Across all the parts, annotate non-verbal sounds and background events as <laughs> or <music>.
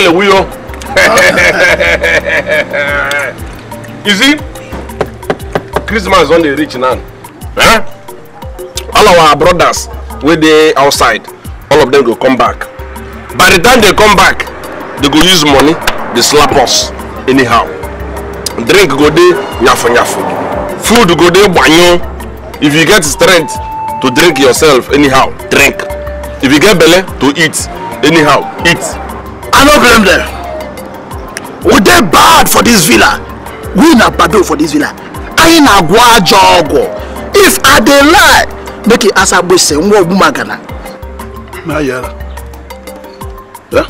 kele wuyo. you see christmas on the rich now eh? all our brothers wey dey outside all of them go come back by the time they come back they go use money they slap us anyhow drink go de nyafu nyafu food go de banyo. if you get strength to drink yourself anyhow drink if you get belly to eat anyhow eat i no blame dem we dey bad for this villa we na bad for this villa I na-agwọ ajọ if i dey lie make it as e ask agbese nwa ogbumagana na yara ya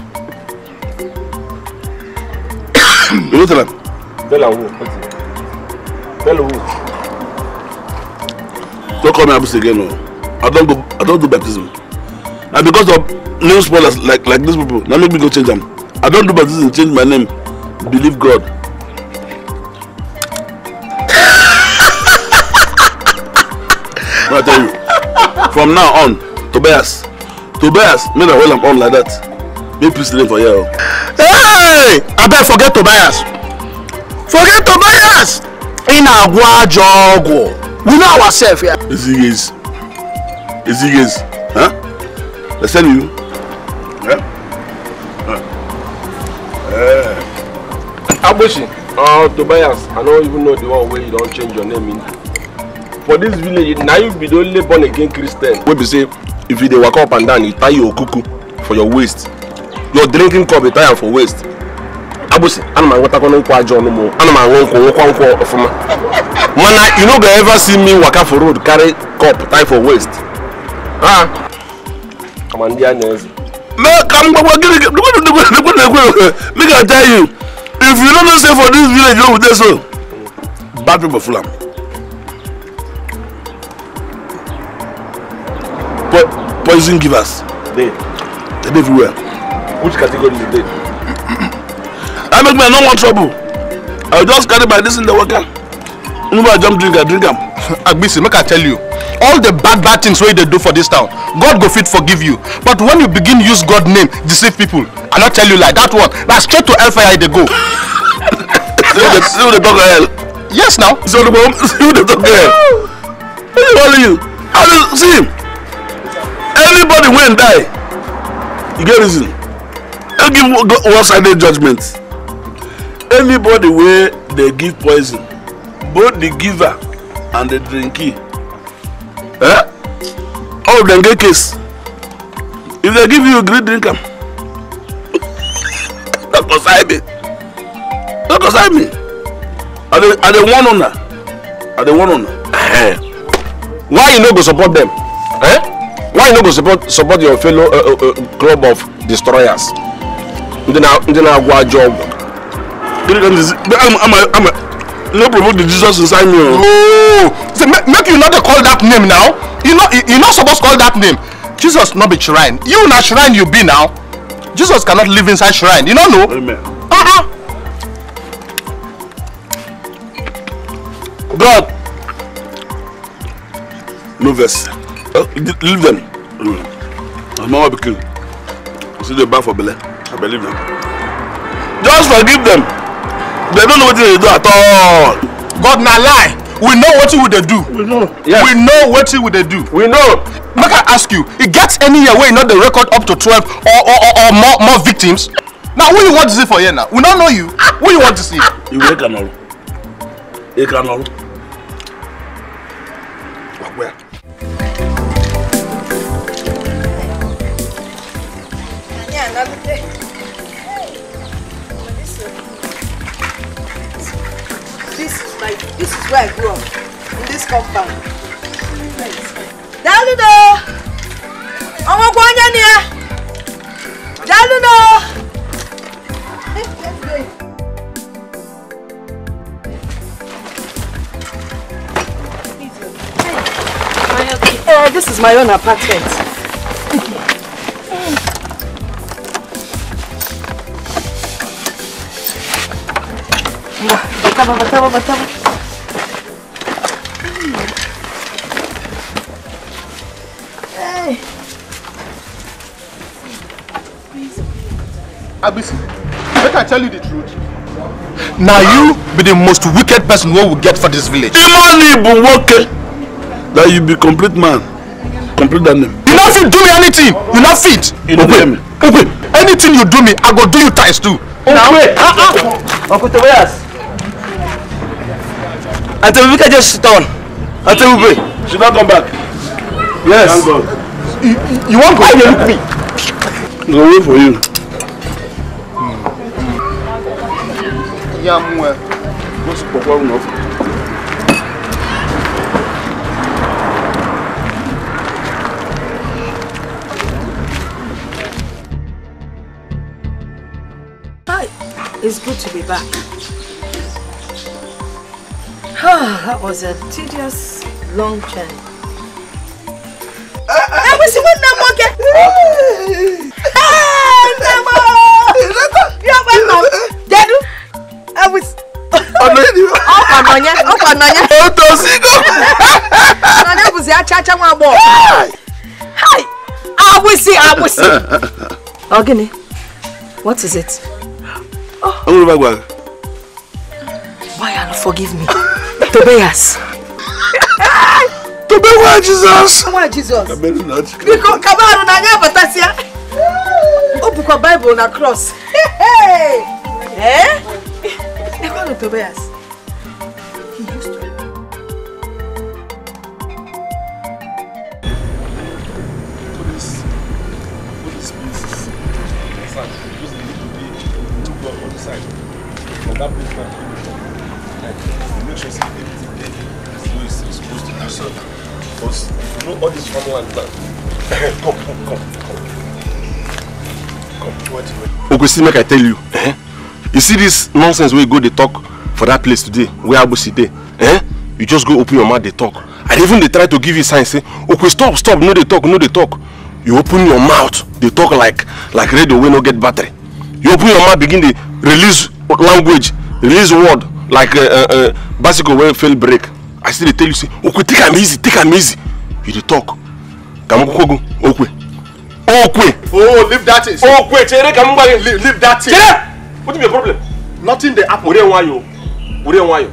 you <coughs> tell am tell am who tell who don't call me abusi again o i don't go i don't do baptism na because of name spoilers like like these people Now make me go change them. i don't do baptism change my name believe god. i tell you from now on tobias tobias make na well am on like that make peace dey for here Hey, I bet. forget tobias forget tobias In na-agwọ we know ourselves here. Yeah. ezighezi ezighezi huh? Let's send you. Eh? Eh. Eh. Agboshi, uh, Tobias, I don't even know the one where you don't change your name into. For this village, now you be the only born again Christian. We be say, if you dey walk up and down, you tie your cuckoo for your waist. Your drinking cup, you tie am for waist. Agboshi, ana m anwetakwana nkwụ aja ọnụ m ana m anwe nkwụ nwekwa nkwụ ọfụma mana you no go ever see me waka for road carry cup tie for waist. Ha! Ama ndị anya eze. make come gbogbo gini dukun dukun make i tell you if you no know say for this village wey we dey so bad people full am. Po poison givers. dey. dey dey everywhere. which category you dey. i make me no want trouble i just carry my dis in the water. nuba jump drink I drink am. <laughs> agbese make i tell you all the bad bad things wey they do for this town god go fit forgive you but when you begin use god name deceive people i not tell you like that one na straight to hellfire I dey go yes you the talk hell yes now so the mom you dey talk hell what dey you i mean see anybody win die you get reason I give one sided judgment anybody where they give poison both the giver and the drinkee Eh? All of them get case. If they give you a great drink, don't consign me. Don't consign me. Are they, are they one owner? Are they one owner? Eh. Why you no go support them? Eh? Why you no go support support your fellow uh, uh, uh, club of destroyers? Ndị na-agwa ajọ ọgwụ. Gịnị ka m zizi? No promote the Jesus inside me. Oh! say make you not dey call that name now you no you no suppose call that name jesus not be shrine you not shrine you be now jesus cannot live inside shrine you no know. Amen. Uh -uh. god no verse. uh, leave them I'm mm. as mama pikin see the bad for belle i believe them just forgive them they don't know what they do at all. god not lie we know wetin we they do we know yes. we know wetin we they do we know make i ask you It gets any year wey you no dey record up to twelve or or or, or more, more victims Now, who you want to see for here now we no know you who you want wan deceive. ìwé kan náà ìkan náà. This is where I grew up, in this compound. Daludo! Ọmọ ọgbọ́n onye ni ya! Daludo! Let's go. Uh, this is my own apartment. Bata, bata, bata, bata. Abisi, make I tell you the truth. Now you be the most wicked person we will get for this village. Imoni Ibu Nwoke, that you be complete man, complete than them. You not fit do me anything, you not fit. You no hear me. Okwe, anything you do me, I go do you ties too. Okwe, ah ah. Uncle Tobias. Until Vika just sit down. Until we pray. She not come back. Yes. Thank God. You, you, you won't go. Why you look me? No way for you. It's good to be back. Ah, that was a tedious, long journey. Uh, uh, ọ̀nà yẹn. ọkọ nọnyẹ ọkọ nọnyẹ. o tó sí kọ. nọnyẹ bùsí achacha wọn bọ. hi awusi awusi. ọgini what is it. ọmọ bá gbà. why you no forgive me Tobias. <laughs> Tobias Jesus. Tobias Jesus. Biko kabaru na nya batasia. O bukwa Bible na cross. <laughs> Hey! Eh? quiero que veas. Ogosi, make I tell you, eh? you see this nonsense where you go they talk for that place today wey agbosi today, eh you just go open your mouth they talk And even they try to give you signs, say okay stop stop no they talk no they talk you open your mouth they talk like like radio wey no get battery you open your mouth begin the release language release word like uh, uh, uh, bicycle wey fail break. i see they tell you say "Okay, take am easy take am easy you dey talk Come on, kwukwogo okay, okwe. oh leave that Okay, okwe chere ka leave that thing. What is your problem? Nothing dey happen. Were why you? Were why you?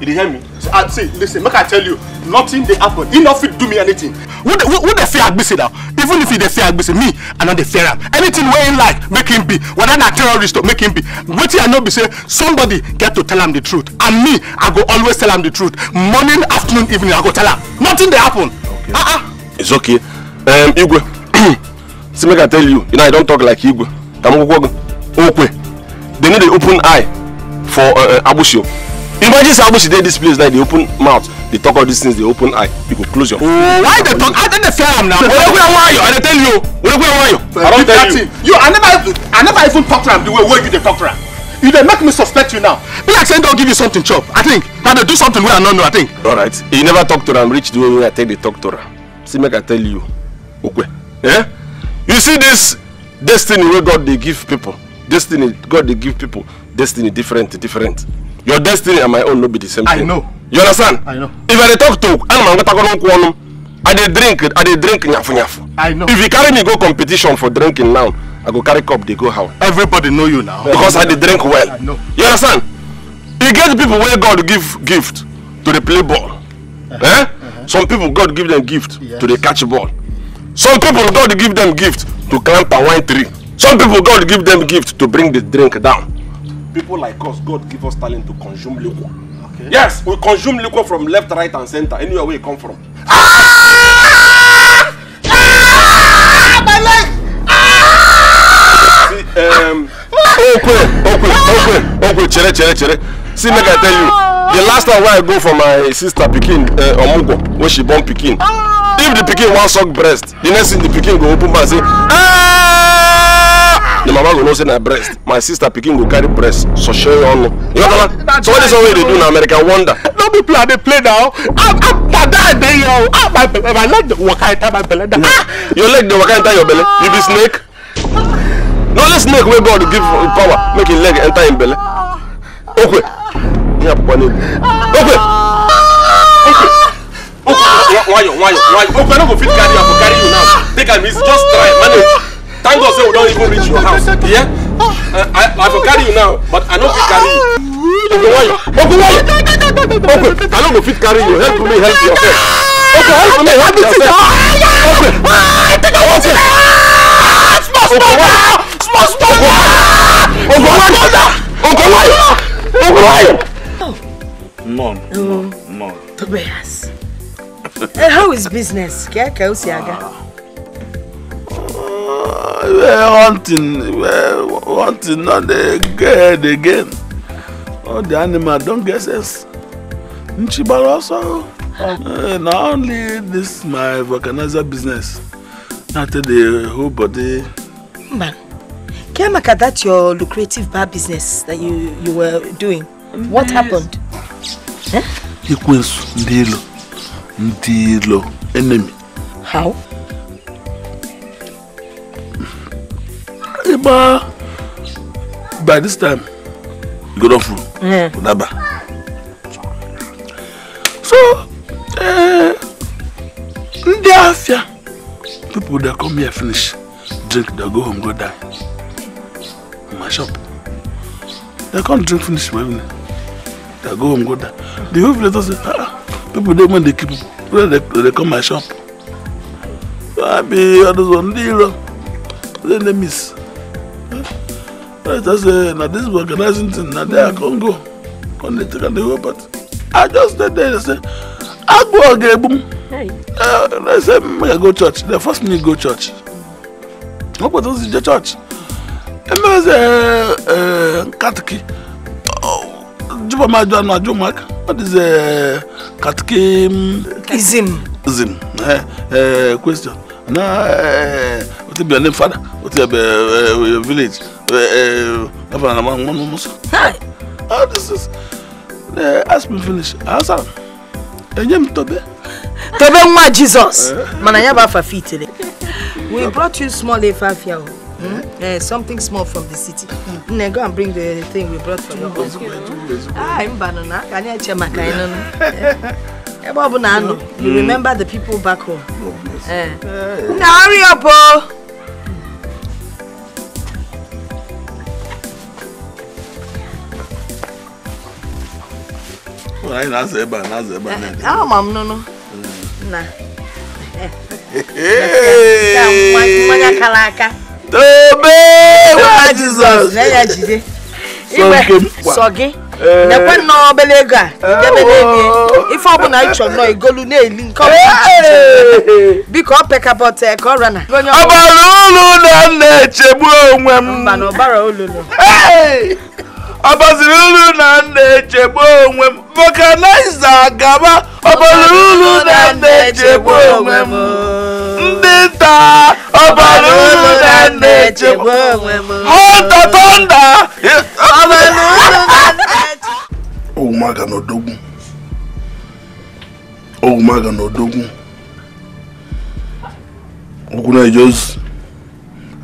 You dey hear me? See, I, ah, see, listen, make I tell you, nothing dey happen. Enough it do me anything. Who dey who, who dey fear Agbese now? Even if he dey fear Agbese, me, I no the fear am. Anything wey he like, make him be. Whether na terrorist or make him be. Wetin I know be say somebody get to tell him the truth. And me, I go always tell him the truth. Morning, afternoon, evening, I go tell him. Nothing dey happen. Okay. Uh-uh. It's okay. Um, Igwe, <clears throat> see, make I tell you, you know I don't talk like Igwe. Kamukwukwo, Okwe. they know they open eye for uh, uh, Imagine say Abusio did this place like they open mouth, they talk all these things, they open eye, you go close your. Oh, why they talk? I don't fear him now. Where where are you? I tell you. Where are you? I don't tell you. You, I never, I never even talk to him the way where you talk to him. You they make me suspect you now. Be like saying don't give you something chop. I think that they do something where I don't know. I think. All right. You never talk to them. Reach the way I take the talk to them. See, make I tell you. Okay. Yeah. You see this destiny where God they give people. destiny god dey give people destiny different different your destiny and my own no be the same thing. i know. you understand. i know. if i dey talk to anam angatakono nkwonum i dey drink i dey drink nyafu nyafu. i know. if you carry me go competition for drinking now i go carry cup dey go house. everybody know you now. because i dey drink well. i know. you understand. e get people wey god give gift to dey play ball. Uh -huh. eh? uh -huh. some people god give them gift yes. to dey catch ball. some people god give them gift to climb palm wine tree. Some people, God give them gift to bring the drink down. People like us, God give us talent to consume liquor. Okay. Yes, we consume liquor from left, right, and center, anywhere we come from. Ah! Ah! My leg! Ah! See, um. Okay, okay, okay, okay. chere, chere, chere. See, make I tell you, the last time when I go for my sister pikin, uh, Omugo, when she born pikin, if the pikin wan suck breast, the next thing the pikin go open mouth say, ah! the mama go know say na breast my sister pikin go carry breast soshe ọnụ you understand so what is one wey you dey do in America? wonder. no be play i dey play now i'm pada i dey here ah my belle my leg dey waka enter my belle da ah. your leg dey waka enter your belle you be snake no only snake wey god give power make him leg enter him belle okwe ihe akwụkwọ n'elu okwe okwe. Okwe, nwayọ nwayọ nwayọ okwe no go fit carry you i go carry you now take am easy just try manage. Thank God say we don't even reach your house. Yeah? Uh, I, I will carry you now, but I no fit carry you. Ogunwayo, Ogunwayo, Ogun, I no go fit carry you. Help me, help yourself. Ogun, help me, help yourself. Ogun, Ogun, Ogunwayo, small, small, Ogunwayo, Ogunwayo, Ogunwayo. Mom, mom, mom. Tobias, eh, how is business? Kya kya usiaga? hunting hunting no dey get again all the animal don get sense nchibara also eh, na only this my vulcanizer business na tey dey whole body. man care that your lucrative bar business that you you were doing what happened. ekwensu ndị ilo ndị ilo enemy. how. But by this time, you go down full. Mm. Unaba. So, eh, ndị afia, people that come here finish, drink, they go home, go die. In my shop. They can't drink finish my evening. They go home, go die. The whole village say, ah, ah, people dey when they keep people. When they, they come my shop. I be, I don't know, ndị iro. They miss i just say na dis organizing thing na there i con go con dey take am dey go party i just dey there say agbo oga egbu m uh, they say make i go church they first me go church What pọ̀ tó in the church ememe sẹ ẹ eh, eh, katiki oh, jùbọ̀ máa jọ àná àjọ mark what is eh, katiki. Mm, zim. zim ẹ ẹ question na ẹ o ti bẹ̀rẹ̀ ní fada o ti bẹ̀rẹ̀ village. Governor, one one Hi. Oh, this is. Uh, ask me finish. Asa. Ah, Enyem eh, tobe. Tobe my Jesus. Eh. Man, I ba fa fit le. We brought you small efafia. Mm? Uh, something small from the city. Mm. Go and bring the thing we brought from your home. Ah, mbanona. Kani ache makaino. <laughs> Ebe ọbụla anọ, you hmm. remember the people back home. Uh, now hurry up, oh! anyị na-azụ ebe a na-azụ ebe a eh, ama m nụnụ hmm. na mmanya kara aka tobe nwa jizọs sọ gị nekwe eh. nnọọ obere ego a debere oh. ego ife ọbụla ịchọ nnọọ igolu na-eli nke biko ọ pekabọta ka ọrịa na ọbara olu na m na-echegbu onwe m ọbara ọbọziri uru na nna echegbu onwe m vulcanizer gaba ọbọziri uru na nna echegbu onwe m ndị nta ọbọziri uru na nna echegbu onwe m hota tonda owumaga n'odogwu owumaga n'odogwu okwu na-eje ozu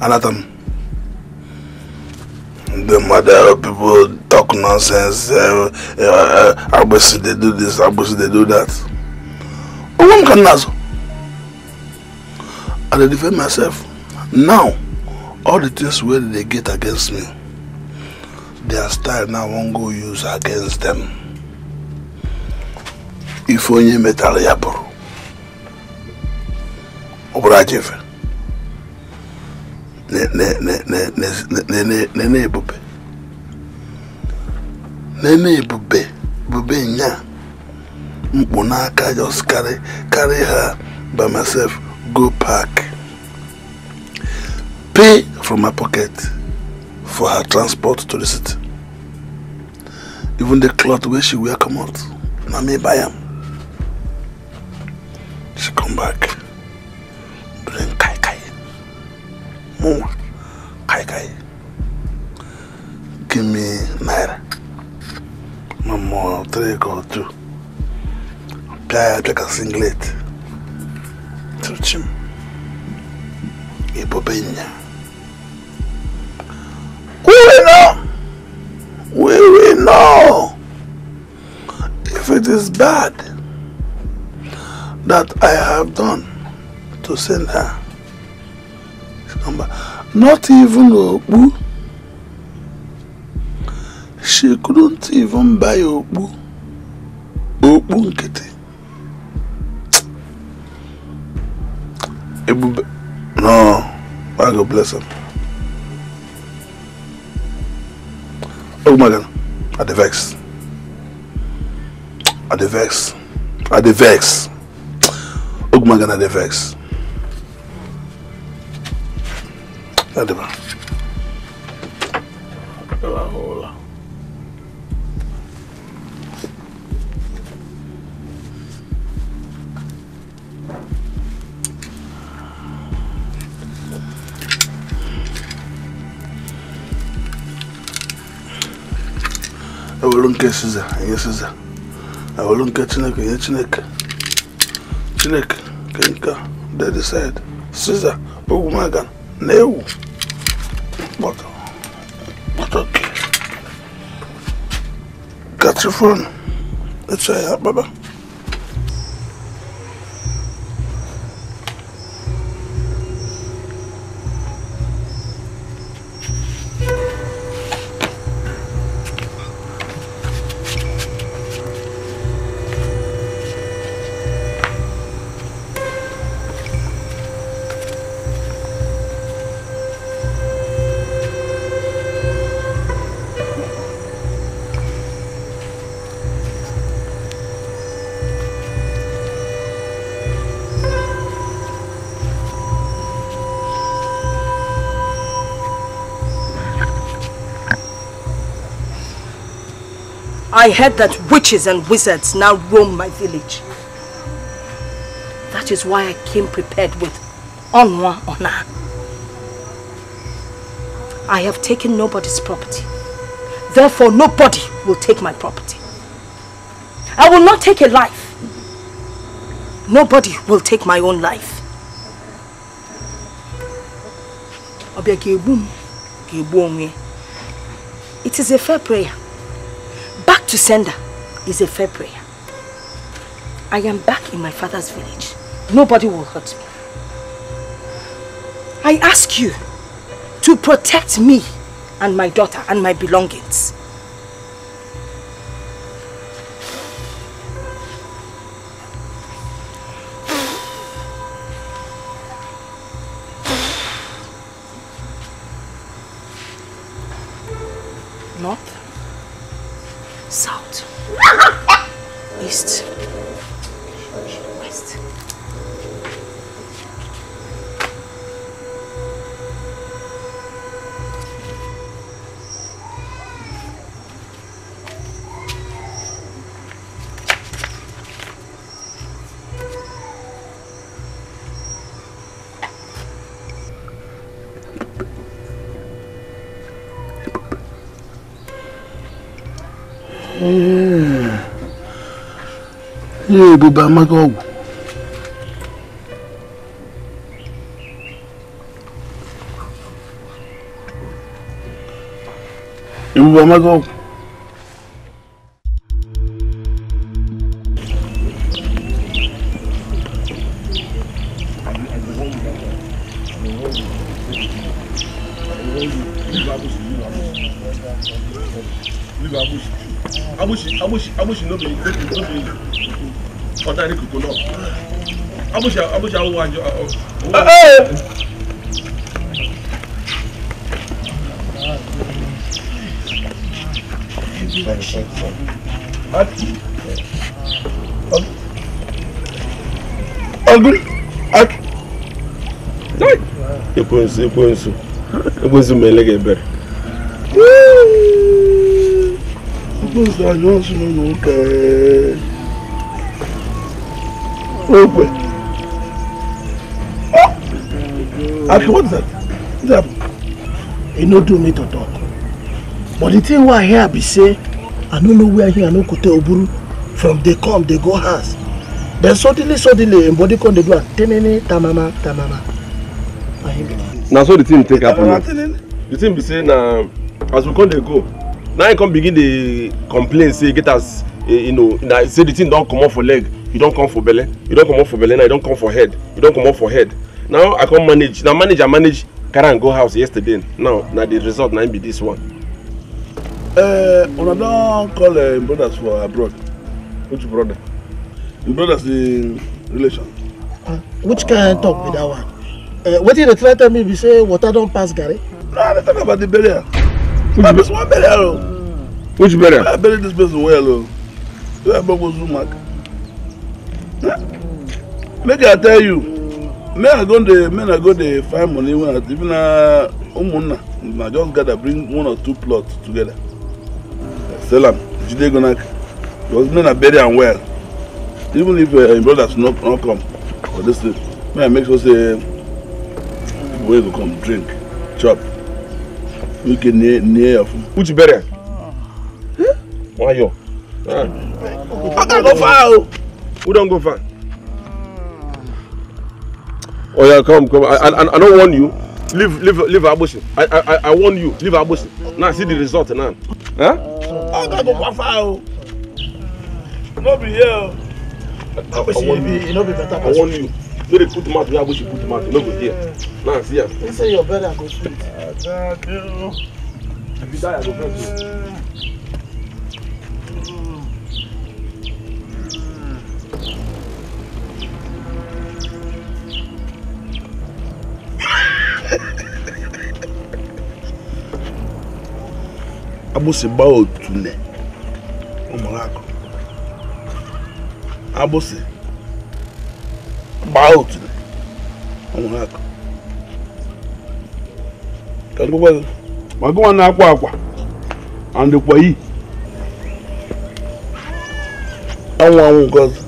anatam the mother people talk nonsense. Uh, uh, uh, they do this. Abusi, they do that. Who can náà sọ. I defend myself. Now, all the things where they get against me, their style now wan go use against them. Ife onye metara ya bụrụ ne ne ne ne ne ne ne ne ne bube ne ne bube bube nya mkpu n'aka just carry carry her by myself go park pay from my pocket for her transport to the city even the cloth wey she wear comot na me buy am she come back bring kai kai muma kai kai give me naira mama three go two pia pia ka singlet truchim ipo penya we know we we know if it is bad that I have done to send her number. Not even Obu. She couldn't even buy Obu. Obu Nkiti. Ebube. No. I God bless her. Oh my God. At the vex. At the vex. At the vex. Oh my God, at the vex. Hadi bakalım. Ulan oğlan. ewere nke siza nye siza ewere nke chineke nye chineke chineke nke nke dead side siza ogwumaga na ewu Bota. Bota Let's say bye bye. I heard that witches and wizards now roam my village. That is why I came prepared with honour. Honour. I have taken nobody's property. Therefore, nobody will take my property. I will not take a life. Nobody will take my own life. Eh? It is a fair prayer to her is a fair prayer. I am back in my father's village. Nobody will hurt me. I ask you to protect me and my daughter and my belongings. ihe ebube amaghị ọgwụ ebube amaghị ọgwụ push out one. Oh, oh. Uh -oh. Algum. Sai! Eu conheço, eu conheço. Eu conheço o Melegeber. Eu conheço a nossa, não, não, Happy what is that? What It no do me to talk. But the thing why I hear be say, I don't know where here I no kote oburu. From they come, they go house. Then suddenly, suddenly, in body con they do a tenene tamama tamama. I hear be. Na so the thing take up. The thing be say na as we come they go. Now I come begin the complain say get us eh, you know say the thing don comot for leg, you don't come for belle, e don comot for belly, now you don't come for head, e don comot for head now i come manage Now manage i manage carry am go house yesterday now na the result na be this one. Uh, una don call uh, brothers for abroad which brother im brothers dey relation. Uh, which kind talk be that one uh, wetin dey try tell me be say water don pass garri. no i dey talk about the burial na this one burial o. Oh. which burial. i bury this person well o oh. wey i gbogbo zoom mark. Hmm. make i tell you. men are go dey men are go dey find money wey even na ụmụnna na just gather bring one or two plots together sell am jide go knack because men na bury am well even if uh, brothers no no come for this thing may i make sure say people wey go come drink chop wike e near near your food. uchi bury am. wayo. i go far o. Oh? who don go far. Oh yeah, come, come. I, I, I don't want you. Leave, leave, leave Abushi. I, I, I warn you. Leave Abushi. Now see the result now. Huh? I gotta go far. No be here. Abushi, oh. you I want you. No dey put the mouth where Abushi put the mouth. No go here. Now see am. You say your brother go you, oh. If you die, I go first. Oh. abusi ba otu ne ụmụrụ akụ abusi gbaa otu ne ụmụrụ akụ ma gụwa na-akwa akwa andịkwa yi anwụ anwụ nke ọzọ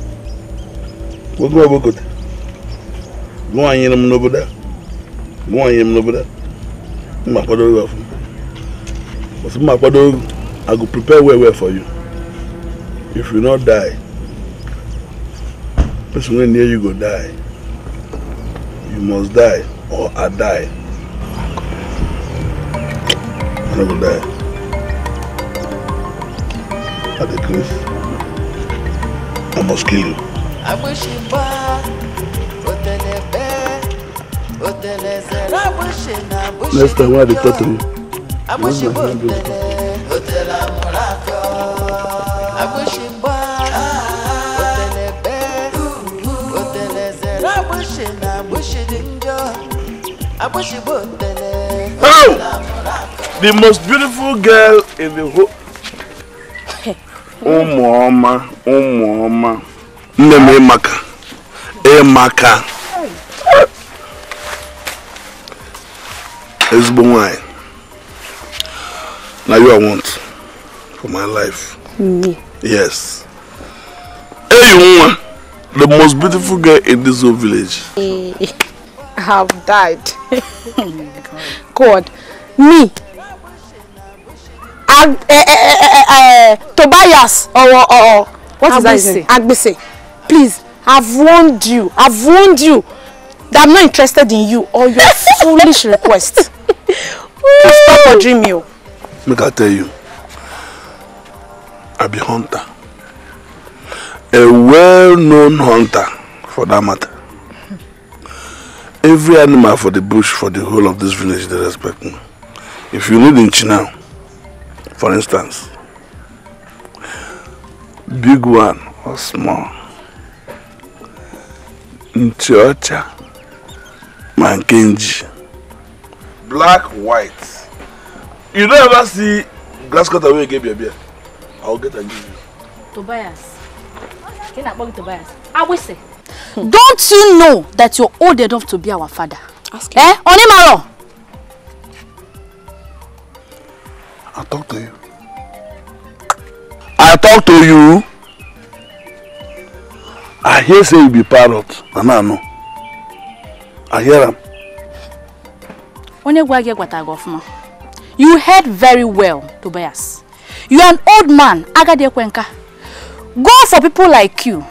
gụwa gụwa gote gụwa nyere m n'obodo a wọn yẹn mu n'obodo m ma kwadoro well fun but m ma kwadoro i go prepare well well for you if you no die person wey near you go die you must die or i die i no go die i dey grief i must kill you next time when i dey talk to How? The most beautiful girl in the whole. Ụmụ ọma, ụmụ ọma, nne m ịmaka, ịmaka. ezigbo nwanyị na you i want for my life yes eyi nwa the most beautiful girl in this whole village i have died god me Ag eh, eh, eh, eh, Tobias or, or, or what Agbese. is that Agbese. Please, I've warned you. I've warned you that I'm not interested in you or your <laughs> foolish request. stop or dream you. Make I tell you, I be hunter. A well-known hunter, for that matter. Every animal for the bush, for the whole of this village, they respect me. If you need in Chinao, for instance, big one or small, in Nchiocha, Mankenji. Black, white. You don't ever see glass cutter wey you get beer beer. I'll get and give you. Tobias. Tobias. will say. Hmm. Don't you know that you're old enough to be our father? Ask eh? him. Eh? Onimaro. I talk to you. I talk to you. I hear say you be parrot, I know. Ayera. Onye gwa gị gwata gị ọfụma. You heard very well, Tobias. You are an old man, agadi ekwenka. Go for people like you.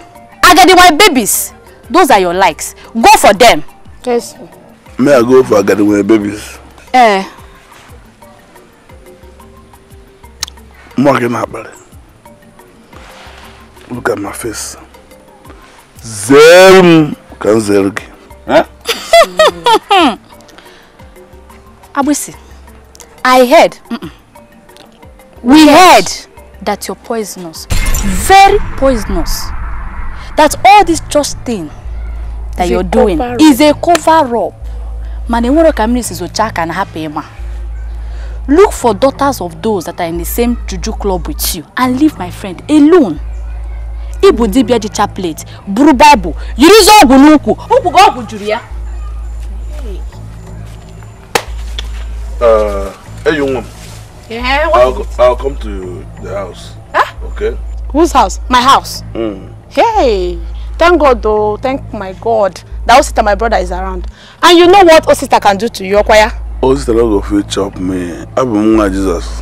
Agadi my babies. Those are your likes. Go for them. Yes. May I go for agadi my babies? Eh. Mwa gị na Look at my face. Zere m ka m zere gị. Eh? <laughs> Abusi, I heard, mm -mm. we heard that you're poisonous, very poisonous. That all this trust thing that is you're doing is a cover-up. Mana enwero ka mmiri na hapụ Look for daughters of those that are in the same juju club with you and leave my friend alone. ịbụ dibịa ji chaplet buru baịbụl yirizi ọgwụ n'ukwu ụkwụ gị ọgwụ juru ya Hey, young woman. Yeah, what? I'll, I'll come to the house. Huh? Okay. Whose house? My house. Mm. Hey, thank God though. Thank my God that old sister my brother is around. And you know what old sister can do to you, Okwaya? Old oh, sister love of chop me. I be Jesus.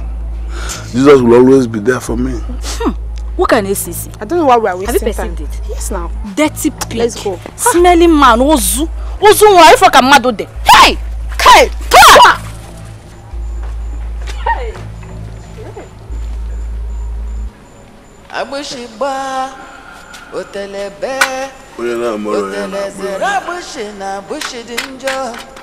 Jesus will always be there for me. Hmm. What can ACC? I don't know why we are wasting time. Have you perceived it? Yes, now. Dirty pig. Let's go. Smelly man. Ozu. Ozu, why you a mad there? Hey! Hey! Come! Hey! Abushiba, Otelebe, Otelebe, Otelebe, Otelebe, Otelebe, Otelebe, Otelebe,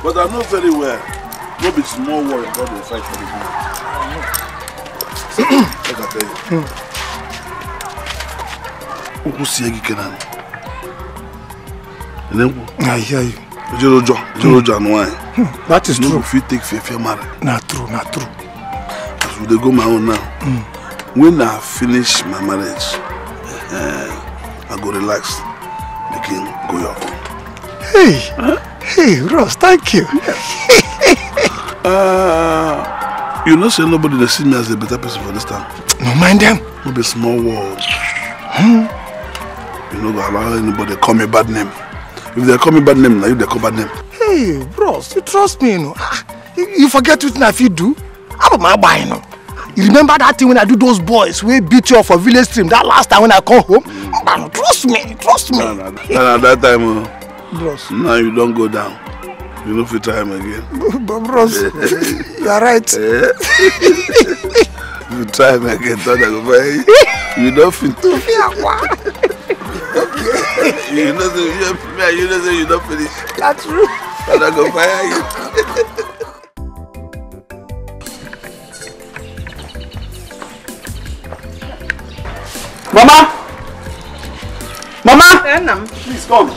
But I know very well, no be small war in God will fight for the woman. <coughs> I can tell you. Ukwu si egi kenan. Elengu. Ayi ayi. Ejorojo, ejorojo anu anyi. Hmm, that is true. If you take fair fair not true, not true. As we go my own now. Hmm. When I finish my marriage, uh, I go relax, begin go your own. Hey! Huh? Hey, Ross, thank you. Yeah. <laughs> uh, you know, say nobody that see me as a better person for this time. No mind them. No be small world. Hmm? You know, allow anybody call me bad name. If they call me bad name, now you they call bad name. Hey, Ross, you trust me, you know. Ah, you, you forget what if you do. I don't mind buying, you know. You remember that thing when I do those boys we beat you up for village stream that last time when I come home? Mm. Trust me, trust me. No, no, no, no, that time. Uh, bros. now you don go down you no fit try am again. <laughs> but bros <laughs> you are right. Eh? <laughs> you try am again tell dem go buy you don fit. to fi akwa. you know say you know, you know say you don finish. that's true. and i go fire you. mama mama. Yeah, please come.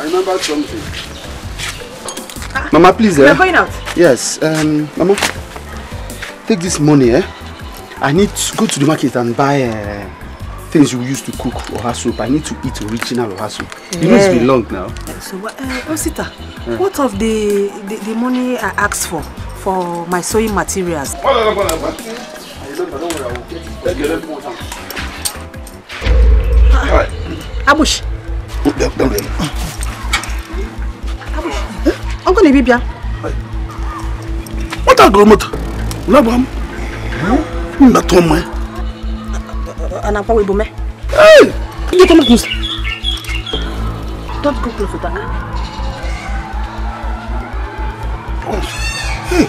I remembered something. Ah. Mama, please. We're eh? going out. Yes. Um, Mama, take this money. Eh? I need to go to the market and buy uh, things you use to cook oha soup. I need to eat original oha soup. Yeah. You know it's long now. Eh, so, uh, eh, Osita, oh, yeah. what of the, the, the money I asked for, for my sewing materials? I remember, don't ah, oh, Don't connaît bien On be here. What are you doing? Labram. Na ton main. pas pas de Hey! Tu tu Don't go close le that. Hein?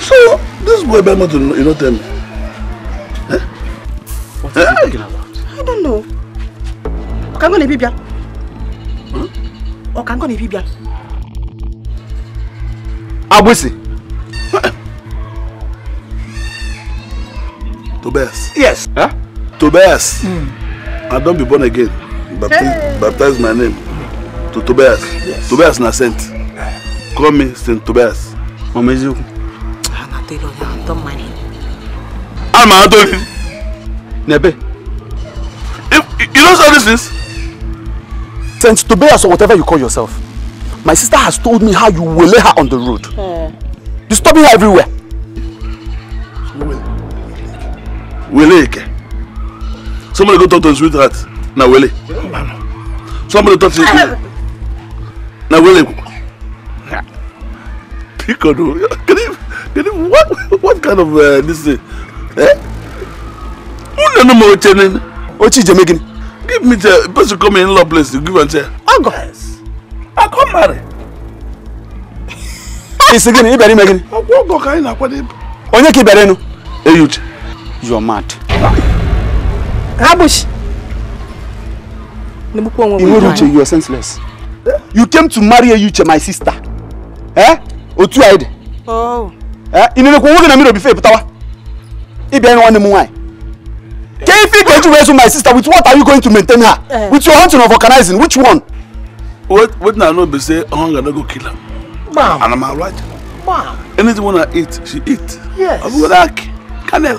So, this boy by ben, you know tell What are you talking about? I don't know. Come on, Bibia. ọka nkọ na-ebi bịa agbụsị Tobias. Yes. Huh? Tobias. Mm. I don't be born again. Baptize, hey. baptize my name to Tobias. Yes. Tobias na saint. Call me Saint Tobias. Mama Ezeku. I'm not telling you. I don't mind. I'm not telling you. Nebe. If, you know all these things. Saint Tobias or whatever you call yourself. My sister has told me how you will lay her on the road. You hmm. stop her everywhere. Wele Eke. Somebody go talk to his sweetheart. Now Wele. Somebody talk to his... Now Wele. Piccolo. Can you... Can you... What, what kind of... Uh, this thing? Eh? Who knows more you're doing? What Give me the person come in law place to give and say, Oh guys, I come marry. It's again, you better make it. I go kind of what it. Onye ki bere nu. Hey You are mad. Rubbish. Iweruche, you are senseless. You came to marry Iweruche, my sister. Eh? Otu aide. Oh. Eh? Inene kwa woge na miro bife putawa. Ibe nwanne mu nwanyị. Can you Kefi Keju raise my sister with what are you going to maintain her? Uh, with your hunting or organizing, which one? What what now? No be say hunger no go kill her. Mom, And am I right? Mom, Anything when I eat, she eat. Yes. I'm gonna like canel.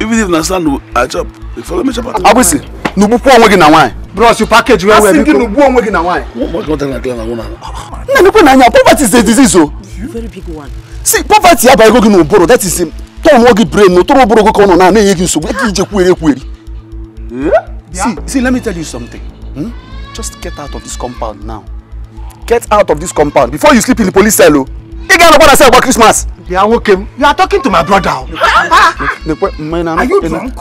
Even if na sand I chop, you follow me chop am. Abusi, nubukwa onwe gị na nwanyị. Bros, you package well well. Asị gị nubukwa onwe gị na nwanyị. What what na clear na one. Na nukwu na anya, poverty is a disease o. Oh. Very big one. See, poverty abago gị n'ụbụrụ, that is him tọọ nwa gị brain na tọrọ ụbụrụ gị ka ọ nọ na na-enye gị nsogbu eke ije kwuere ekwueri see see let me tell you something hmm? just get out of this compound now get out of this compound before you sleep in the police cell o get ga-anọkwa that cell about Christmas bịa nwoke m you are talking to my brother oh. nekwe mme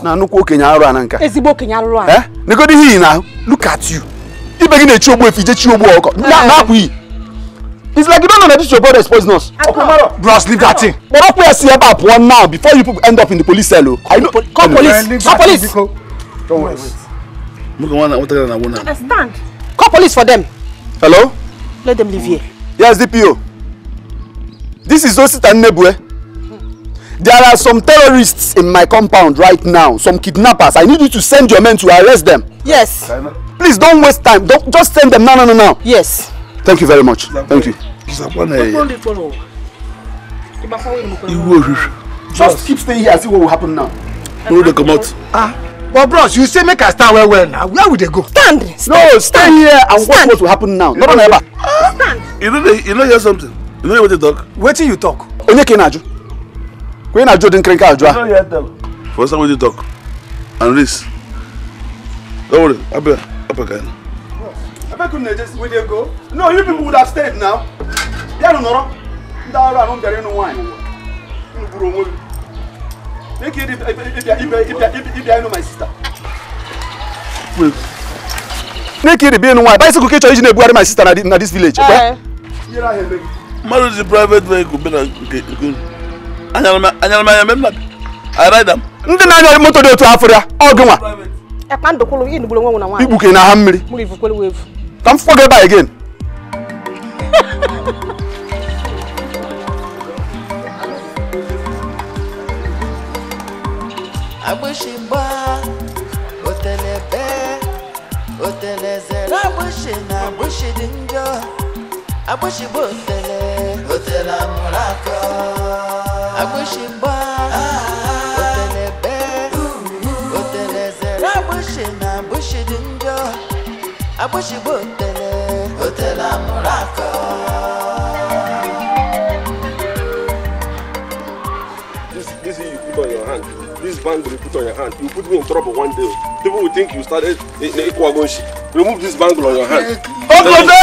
na nnukwu okenye arụ a na nka ezigbo okenye arụrụ a eh? nekodi ihe na look at you ibe gị na-echi ogbu efi ije chi ogbu ọkọ na-apụ iyi It's like you don't know that this your brother is poisonous. Okumaro. Bros, leave that thing. But don't press here about one now before you end up in the police cell. I know. Call police. Call police. Don't worry. Look at one. What are you doing? Stand. Call police for them. Hello. Let them leave here. Yes, DPO. This is Osit and Nebue. Eh? There are some terrorists in my compound right now, some kidnappers. I need you to send your men to arrest them. Yes. Please don't waste time. Don't just send them now, now, now. Yes thank you very much thank you. just keep staying here and see what will happen now. no they come out. ah but bros you say make i stand where? well na where we they go. stand stand no stand here and watch what will happen now no run ever. stand. you know, you know, hear something you know what they talk. Where till you talk. Only na aju didn't crank out. odi nkiri nke aju a. Ah. you no hear talk. for inside wetin talk and this. don't worry abia abia ka ya na make una just we dey go no you people would have stayed now bịanụ nọrọ ndị ọrụ anụ bịara ịnụ nwaanyị m gburu onwe m make if ịbịa ịnụ my sister make ịdị bịa ịnụ nwaanyị bicycle ka ị chọrọ iji na-ebugharị my sister na this village kwe mmadụ ji private vehicle bịa na nke unu anyara m anya mem na arida m ndị na-anya moto dị otu afọ ya ọgụ nwa ikpuke na ha mmiri Don't forget that again. agbóṣebá òtẹlẹbẹ òtẹlẹsẹ lágbóṣe náà agbóṣedé ń jọ agbóṣebó òtẹlẹ òtẹlẹ àmúrakọ abóṣìgbò tẹ̀lé òtẹ̀lá múra This, This you put on your hand, this bangle you put on your hand, you put me in trouble one day. People will think you started an e, equal Remove this bangle on your hand. Okote!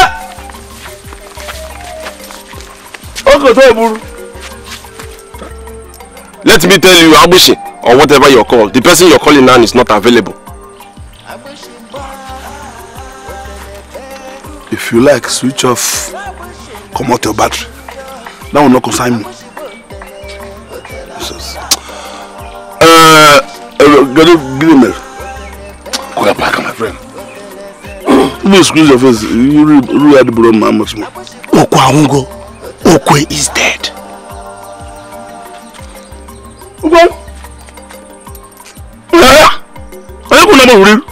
Okote Eburu! Let me tell you, Abushi, or whatever you're called, the person you're calling now is not available. if you like switch off comot your battery that one no concern me jesus uh, get it mail go get back my friend no squeeze your face you really really had to borrow my much more okwe awungo okwe is dead okwe ẹ ẹ kò nàbọ wúri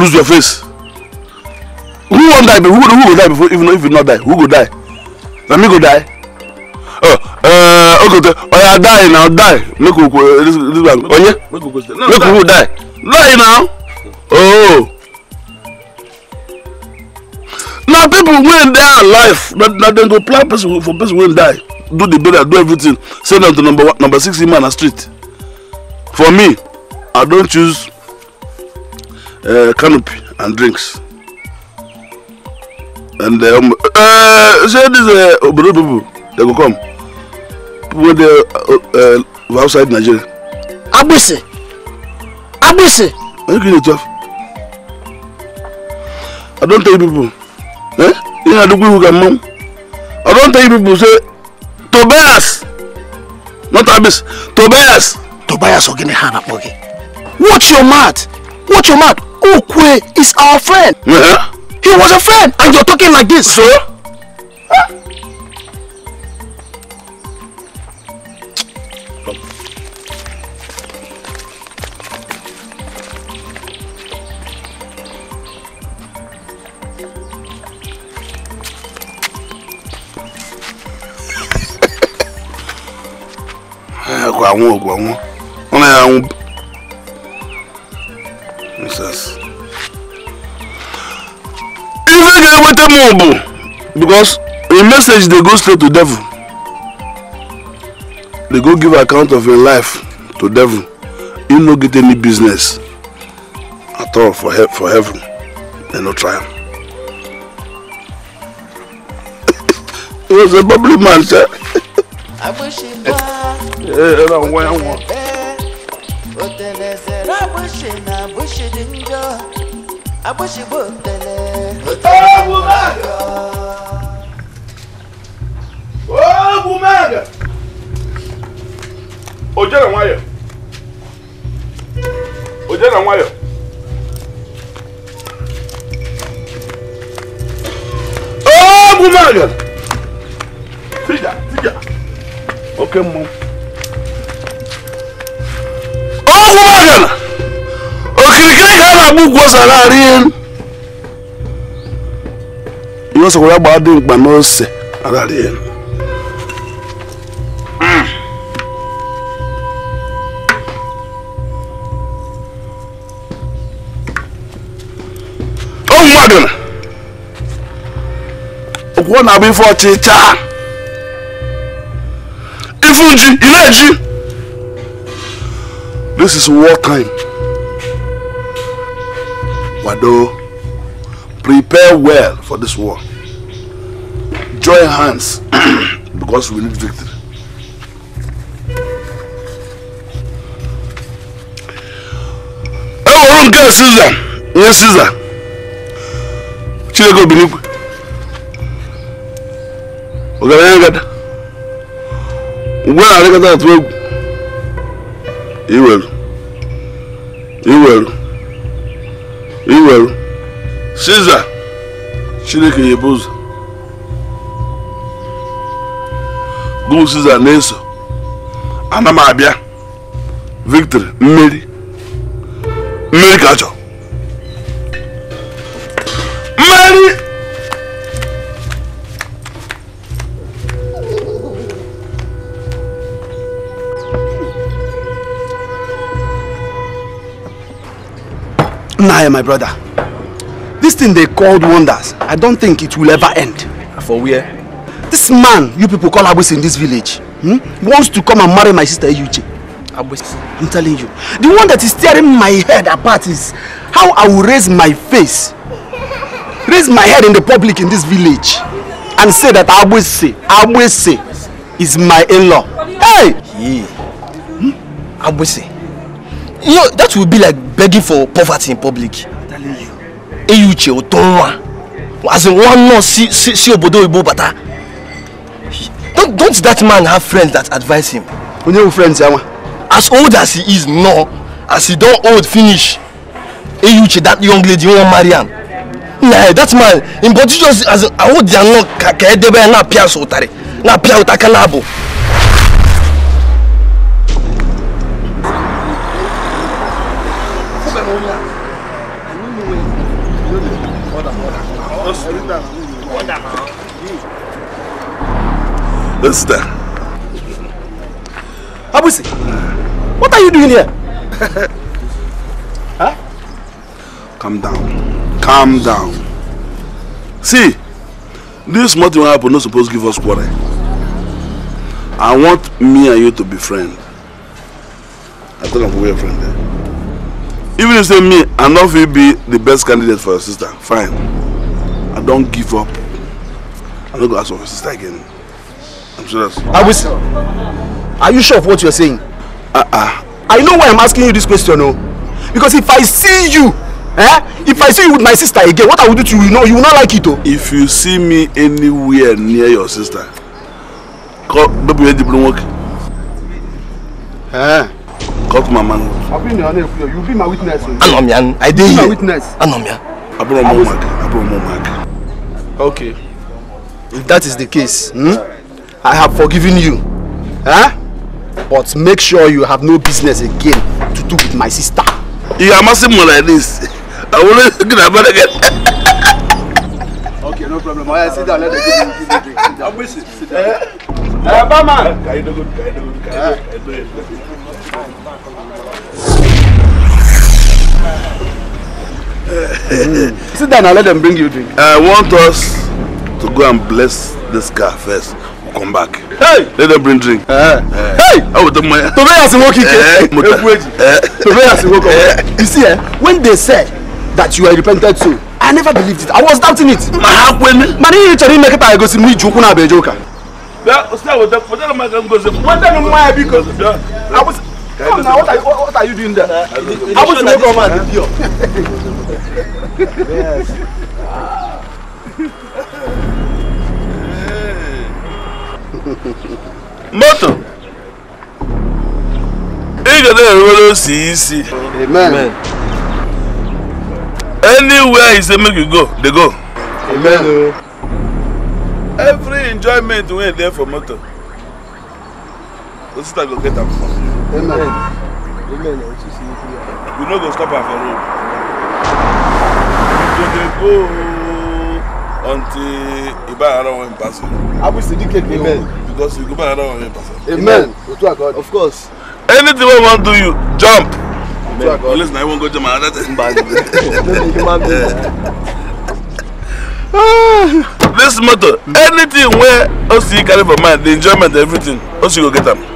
lose your face wan die who, who go die before even if you not die who go die Let me go die oh uh, ogote oya die na die make we eh, this this one onye oh, make we die die now oh Now people wey dey alive na na dem go plan person for person wey die do the burial do everything send am to number one number six man na street for me i don't choose uh, canopy and drinks and the um, uh, say this uh, obodo people they go come people dey uh, uh, outside Nigeria. agbese agbese. Are you gree dey talk i don't tell you people eh ihe adugbo who ga mmam i don't tell you people say tobias not agbese tobias. tobias ogene ha na akpọ gị watch your mouth watch your mouth okwe is our friend. Uh -huh. He was a friend, and you're talking like this. So? Huh? ẹ̀kọ́ àwọn òògùn àwọn wọn náà àwọn ife ga-eweta m bụ because a message dey go straight to devil They go give account of your life to devil you no get any business at all for he for heaven They no try am <laughs> he was a bubbly man sha. ee ra nwa ya nwa. o tẹ̀lẹ̀ sẹ̀ ra bó ṣe na bó ṣe di ń jọ àbóṣe bó tẹ̀lẹ̀. Ô, Bumaga! Ô, Bumaga! Ô, Jana Waya! Ô, Jana Waya! Ô, Bumaga! Filha, filha! Ok, mão. Ô, Bumaga! Ô, Kirikiri, cara, bugosa lá, rin! ihe ọsọkwara gbaa dị mkpa n'ose aghara ya ụmụ mmadụ na okwuo na-abụ ife ọchịcha ifu ji ị na this is war time Wado prepare well for this war. Join hands <clears throat> because we need victory. Eworum ke Caesar, nye Caesar. Chineke obinikwe. going to get na-arịkọta will. egwu. will. Iwelu. will. Siza Chineke nyebe ụzọ gụ Siza na-eso ana m abịa victory mmeri mmeri ka achọ mmeri nna my brother This thing they called wonders, I don't think it will ever end. For where? This man you people call Abus in this village hmm, wants to come and marry my sister Yuji. Abus. I'm telling you. The one that is tearing my head apart is how I will raise my face, raise my head in the public in this village and say that Abuse, Abuse is my in-law. Hey! Yeah. Hmm? Abuse. You know, that will be like begging for poverty in public enyi uche ụtọ nwa as in one nurse si si si obodo oyibo bata don't don't that man have friends that advise him. onye wu friends ya nwa. as old as he is no as he don old finish enyi uche that young lady wan marry am na that man im body just as in awo dia nọ ka ka edebe ya na apia so ụtarị na apia ụtaka na abụ. Sister, Abusi, what are you doing here? <laughs> huh? Calm down. Calm down. See, this small will happen not supposed to give us quarrel. I want me and you to be friends. I thought I'm we were friends there. Even if say me, I know be the best candidate for your sister, fine. Don't give up I'm not go ask for my sister again i'm serious. are we are you sure of what you're saying. ah uh ah. -uh. i know why i'm asking you this question o oh. no? because if i see you eh if i see you with my sister again what i will do to you you know you will not like it o. Oh. if you see me anywhere near your sister call baby wey the blow work. Eh. Call to my man. I've been your name. You'll be my witness. Oh. Anomia. I did. You'll be my witness. Anomia. Abromo Mark. Abromo Mark. Okay. If that is the case, hmm, I have forgiven you. Huh? But make sure you have no business again to do with my sister. You are messing me like this. I will not get about again. Okay, no problem. I sit down. Let the drink. I'm wishing. Sit down. Uh, uh, man. I do good. I do good. mm. Sit down and let them bring you drink. I want us to go and bless this car first. We'll come back. Hey! Let them bring drink. Uh, uh, hey! I will tell my. Tobe has a walkie. Tobe has You see, eh, when they said that you are repented too, I never believed it. I was doubting it. Ma ha kwemi. Ma ni chori make ta go si mu iju kuna abejoka. that usia wote, wote na ma ngozi. Wote na ma biko. Bia. I was Come now, what are, you, what are you doing there? Uh, I want to make a man in here. Yes. Moto. Ị ga na-enwere osi isi. Amen. Anywhere you say make you go, they go. Amen. Every enjoyment wey there for motor. moto. Osita go get am. Amen. Amen. We no go stop our for road. We dey go until Ibarara wan pass. Abu Sidike dey go because we go Ibarara wan pass. Amen. Otu agod. Of course. Anything wey wan do you, jump. Amen. Unless na you wan go to my other Human being. <laughs> <laughs> This motor, anything wey Osi carry for mind, the enjoyment, everything, Osi go get them.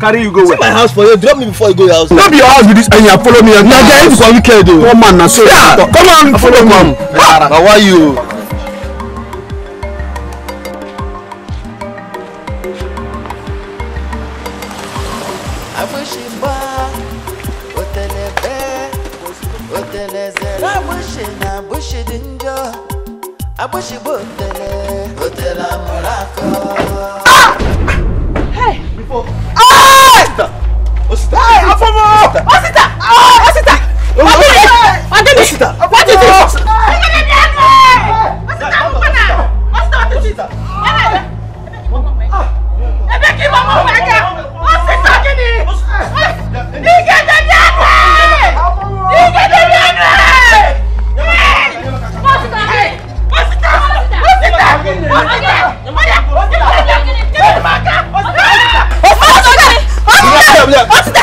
carry you go where. see my house for you drop me before you go your house. no be your house be this and you follow me. na there if for weekend o. Oh. come on na so. yeah come on follow me. Ah. na why you. Abushi bo tẹ. afọmọ ọsítà ọsítà ọdẹmi ọdẹmi ọsítà ọdẹmi ọsítà ọsítà ọsítà ọsítà ẹbẹ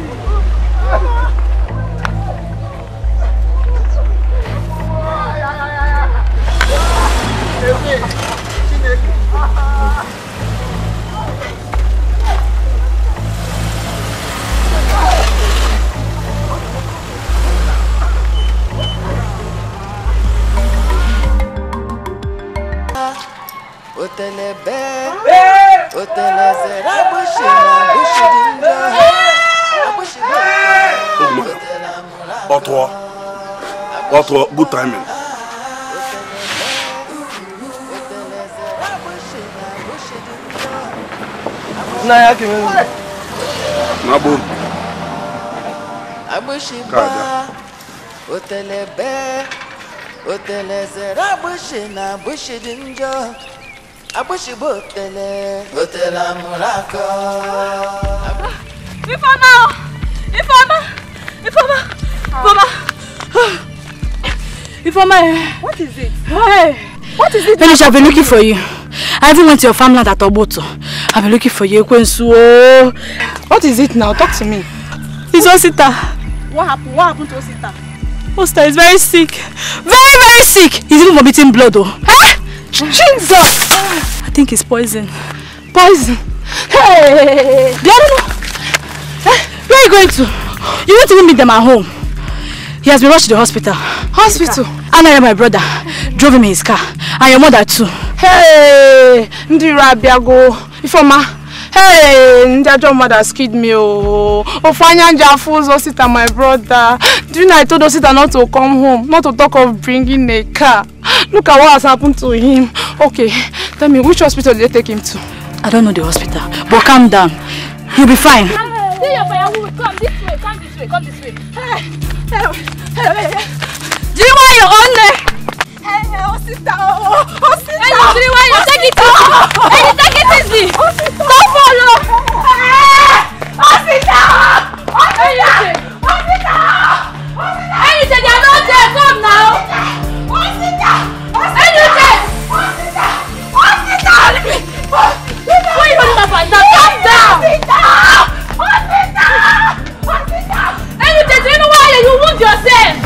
Ötele be Ötele zera başına Başınca Başına Patois Patois good timing Na ya kimin Na bu Abushiba Otelebe Otelezera Bushina Bushidinjo agbóṣìbò tẹlẹ. ó tẹ̀lé àmúra kọ́. ìfọ̀mà ah, o ìfọ̀mà ìfọ̀mà ìfọ̀mà ìfọ̀mà ẹ̀. what is it. Hey. what is it. Felicia I've been looking for you I even went to your farmland at Ogboto I've been looking for you Ekwensu o. what is it now talk to me. it's Osita. what happen what happen to Osita. Osita is very sick very very sick he's even vomiting blood o. Oh. Hey! Jesus! Ah, I think it's poison. Poison? Hey! They Eh? Where are you going to? You won't to meet them at home. He has been rushed to the hospital. Hospital? Anna and my brother drove him in his car. And your mother too. Hey! Ndira Biago. Ifoma. Hey, Ndajo mother skid me. Oh, Ofanya fools, osita my brother. During I told Osita not to come home, not to talk of bringing a car. Look at what has happened to him. Okay, tell me, which hospital did they take him to? I don't know the hospital, but calm down. He'll be fine. Hey, your firewood. Come this way, come this way, come this way. Hey, hey, hey, Do you want your own name? Hey, hey, oh, sister, oh, oh, oh sister. Hey, you do you want your take it easy? Oh, oh, hey, you take it easy. Oh, sister. Don't follow. Hey, sister. Oh, sister. Oh, sister. Oh, sister. Ẹyin ṣe dà ló jẹ fún ọ̀nà o. Ẹyin ṣe. Wọ́n yóò ní bàbá ìgbà calm down. Ẹyin ṣe ṣe inú wáyé you wound yourself.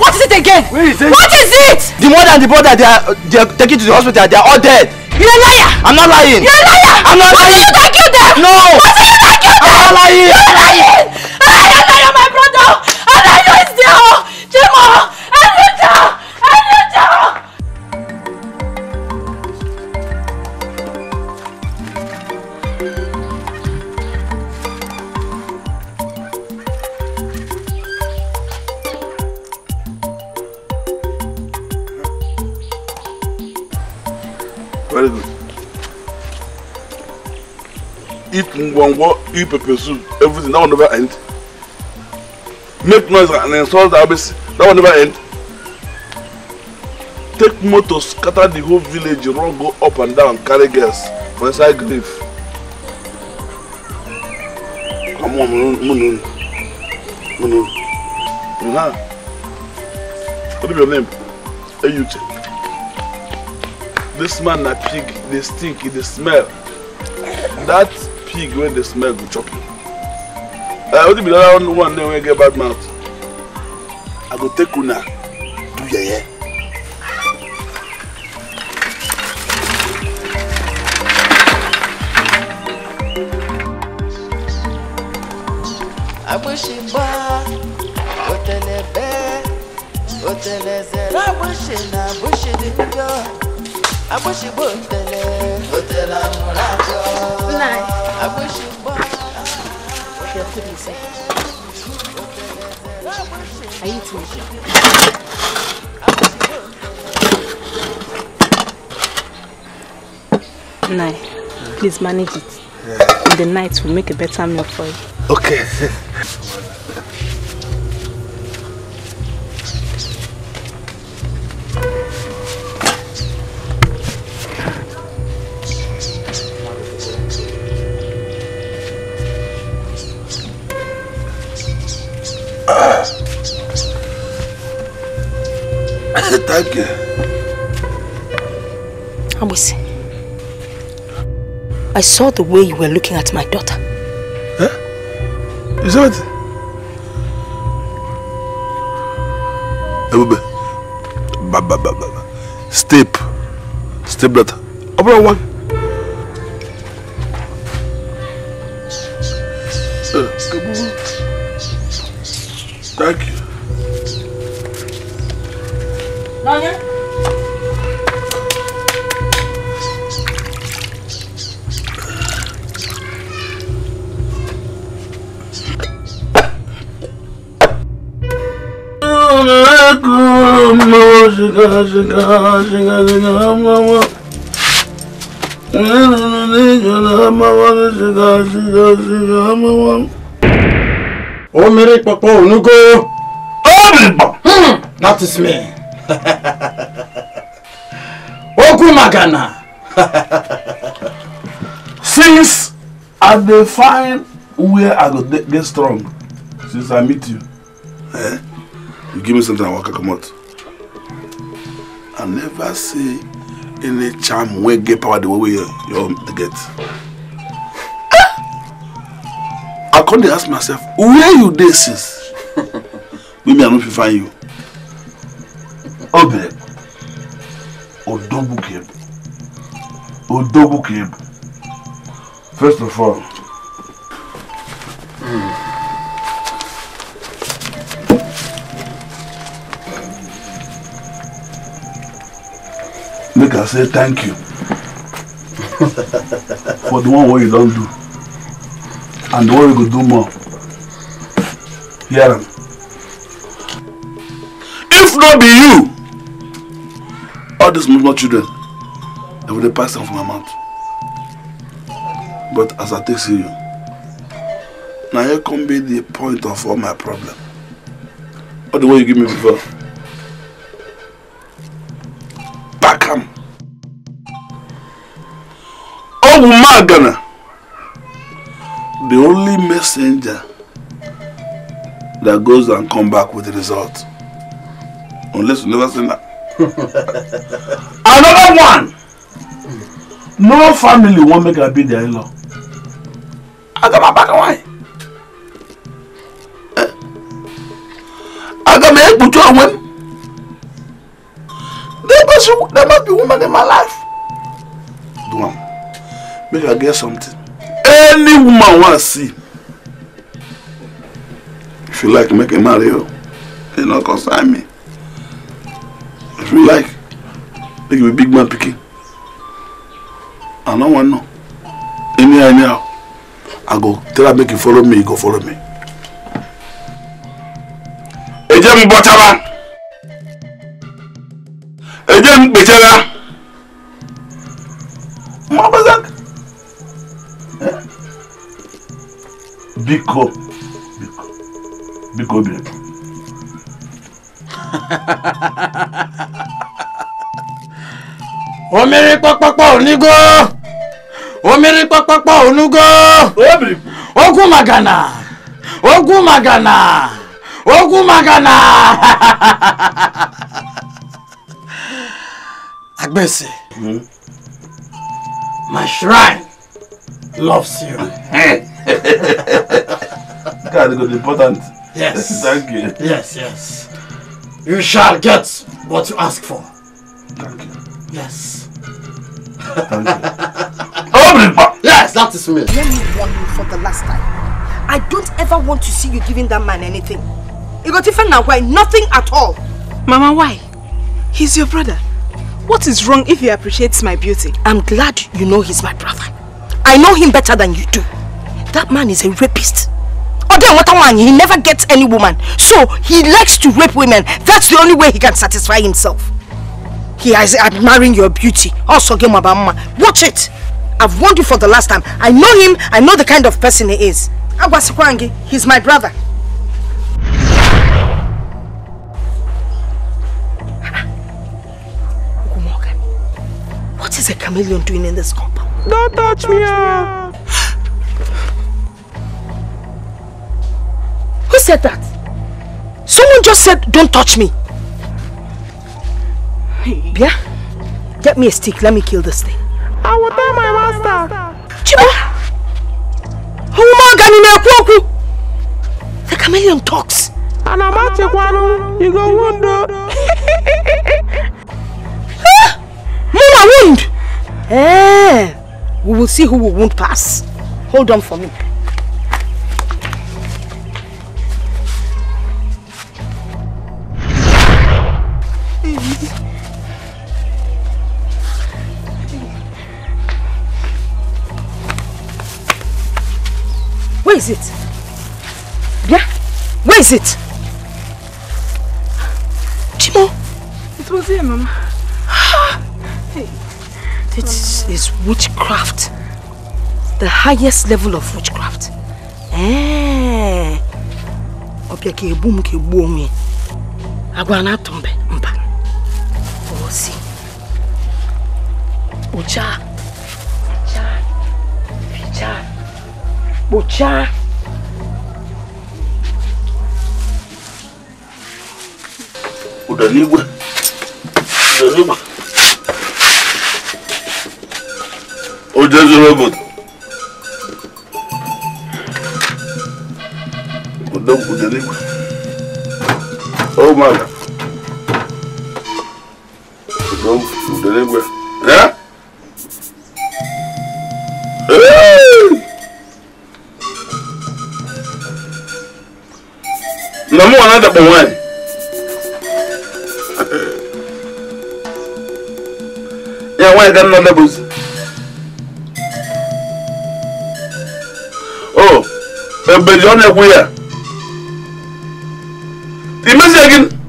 What is it again? Is it? What is it? The mother and the brother they are they are taken to the hospital they are all dead. You're a liar. I'm not lying. You're a liar. I'm not lying. Was it you that killed them? No. Was it you that killed them? I'm not lying. You're lying. I am not your my brother eat ngwongwo, eat pepper soup, everything. That will never end make noise and insult our base that will never end take motor scatter the whole village run go up and down carry girls for inside grief. come on munu munu munu Munu. what is your name eyute this man na pig dey stink e dey smell that pig wey dey smell go chop you. Uh, only be the other one, one day when I get bad mouth. I go take una, do yeye. Yeah, yeah. I wish it lágbóṣe náà bóṣe níjọ agbóṣebó òtẹlẹ I wish it. Okay, I'll give you Are you too? Nine. Please manage it. Yeah. In the night, we'll make a better meal for you. Okay. <laughs> Thank you. Abusi, I saw the way you were looking at my daughter. Eh? Is that it? Ebube, ba ba ba ba, ba. step, step brother. Abra one. shiga shiga shiga hamawa o mere papa onugo ombo that is me okwu <laughs> magana since i dey find where i go get strong since i meet you eh you give me something i waka comot I never see any charm wey get power the way you, you get. <laughs> I come dey ask myself, where you this since? We may not find you. Obere, Odogbukeb, Odogbukeb. First of all, mm. make I say thank you for the one what you don't do and the one you go do more. Hear him. If not be you, all these small children, they will pass them from my mouth. But as I take see you, now here come be the point of all my problem. All the way you give me before. Abu Magana, the only messenger that goes and come back with the result. Unless you never seen that. <laughs> Another one. No family won't make her be their in-law. I got my back and wine. make i get something any woman wan see if you like make i marry you e no concern me if you like make you be big man pikin i no wan know anyhow anyhow i go tell am make you follow me you go follow me. ẹ jẹ́ mi bọ́ tábà ẹ biko biko biko bịa <laughs> omiri kpọkpọkpọ onugo omiri kpọkpọkpọ onugo ogwu magana ogwu magana ogwu magana <laughs> agbese hmm? my shrine loves you. God, it is important. Yes. <laughs> Thank you. Yes, yes. You shall get what you ask for. Thank you. Yes. Thank <laughs> you. yes, that is me. Let me warn you for the last time. I don't ever want to see you giving that man anything. You got even now why? Nothing at all. Mama, why? He's your brother. What is wrong if he appreciates my beauty? I'm glad you know he's my brother. I know him better than you do. That man is a rapist a man! he never gets any woman. So he likes to rape women. That's the only way he can satisfy himself. He is admiring your beauty. Also, mama. Watch it. I've warned you for the last time. I know him. I know the kind of person he is. Agwasikwangi, he's my brother. What is a chameleon doing in this compound? Don't touch me! Ah. Ah. Who said that? Someone just said, don't touch me. Bia, get me a stick. Let me kill this thing. I will tell my master. Chiba! Oh, The chameleon talks. And I'm at you, You go wound. <laughs> Mama wound! Eh, we will see who will wound pass. Hold on for me. Where is it? Bia? Where is it? Timo, It was here, Mama. hey. It is, is witchcraft. The highest level of witchcraft. Eh. Ọbịa ka egbu m ka egbu onwe. Agwa na-atụ mbe mba. Osi. kpochaa ụda n'igwe ụda n'igwe o jezuru obodo ụda ụda n'igwe ụmụaka ụda oh, n'igwe ya Number one, number one. yeah, why got no levels? Oh, a billion everywhere. The message again.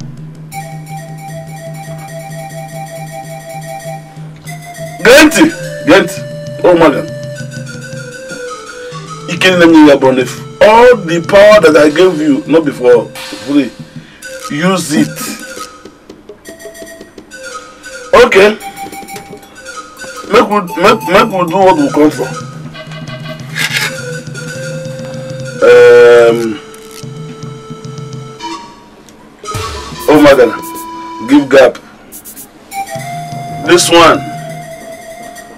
Ganti, Ganti. Oh my God. You can't let me your bonif. All the power that I gave you, not before free use it okay make we make make we do what we come for um, oh my God. give gap this one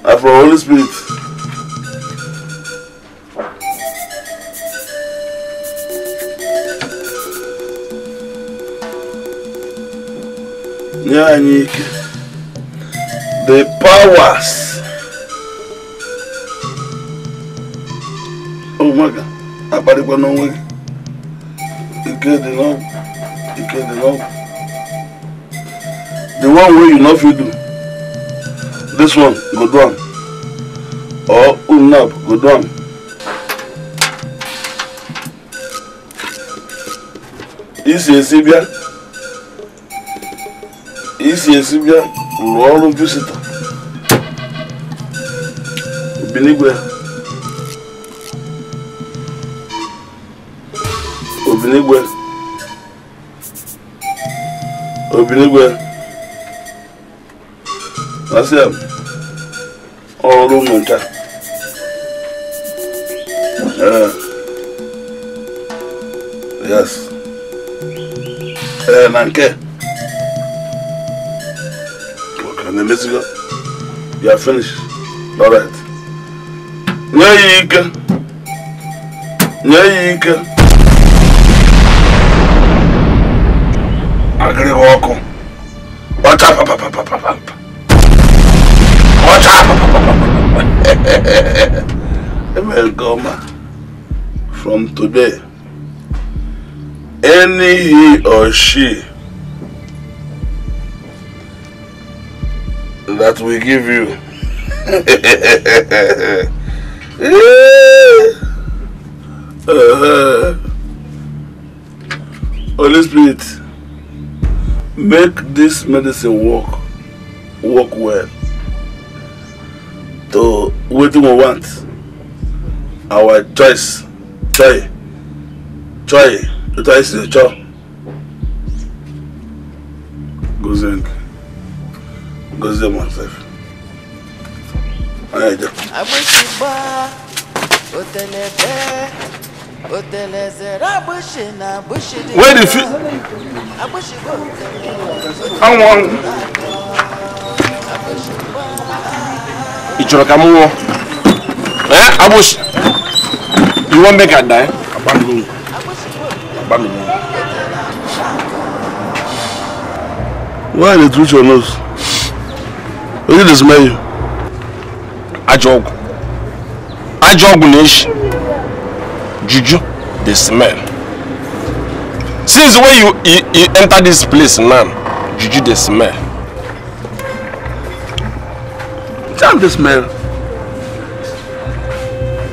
na from holy spirit Nyanyike. The powers. Oh my God. Abarikwa n'onwe gị. Ike dị n'ọgwụ. Ike dị n'ọgwụ. The one wey you no fit do. This one go do am. Or Umnab go do am. Isi esi bịa isi esi bịa rụrụ ọrụ jụsita obiligwe obiligwe obiligwe asị ya ọrụ mmụta ee yes ee na nke the Mexico. You are finished. All right. Nyika, nyika. Agri wako. Wacha pa pa pa pa pa pa. <laughs> Welcome. From today, any he or she that we give you. uh, <laughs> Holy Spirit, make this medicine work, work well. To what we want, our choice, joy, joy, the choice is joy. them myself. All right, then. Abusheba, Otelebe, Oteleze, Abushina, Abushina. Where did you? Abusheba, Otelebe. I want. Abusheba. eh? ka Abush. You wan make I die? Abamini. Abamini. Why the truth your nose? oyi dị ezumike ajọ ọgwụ ajọ ọgwụ na-eshi juju the smell since when you, you, you enter this place now juju the smell charm the smell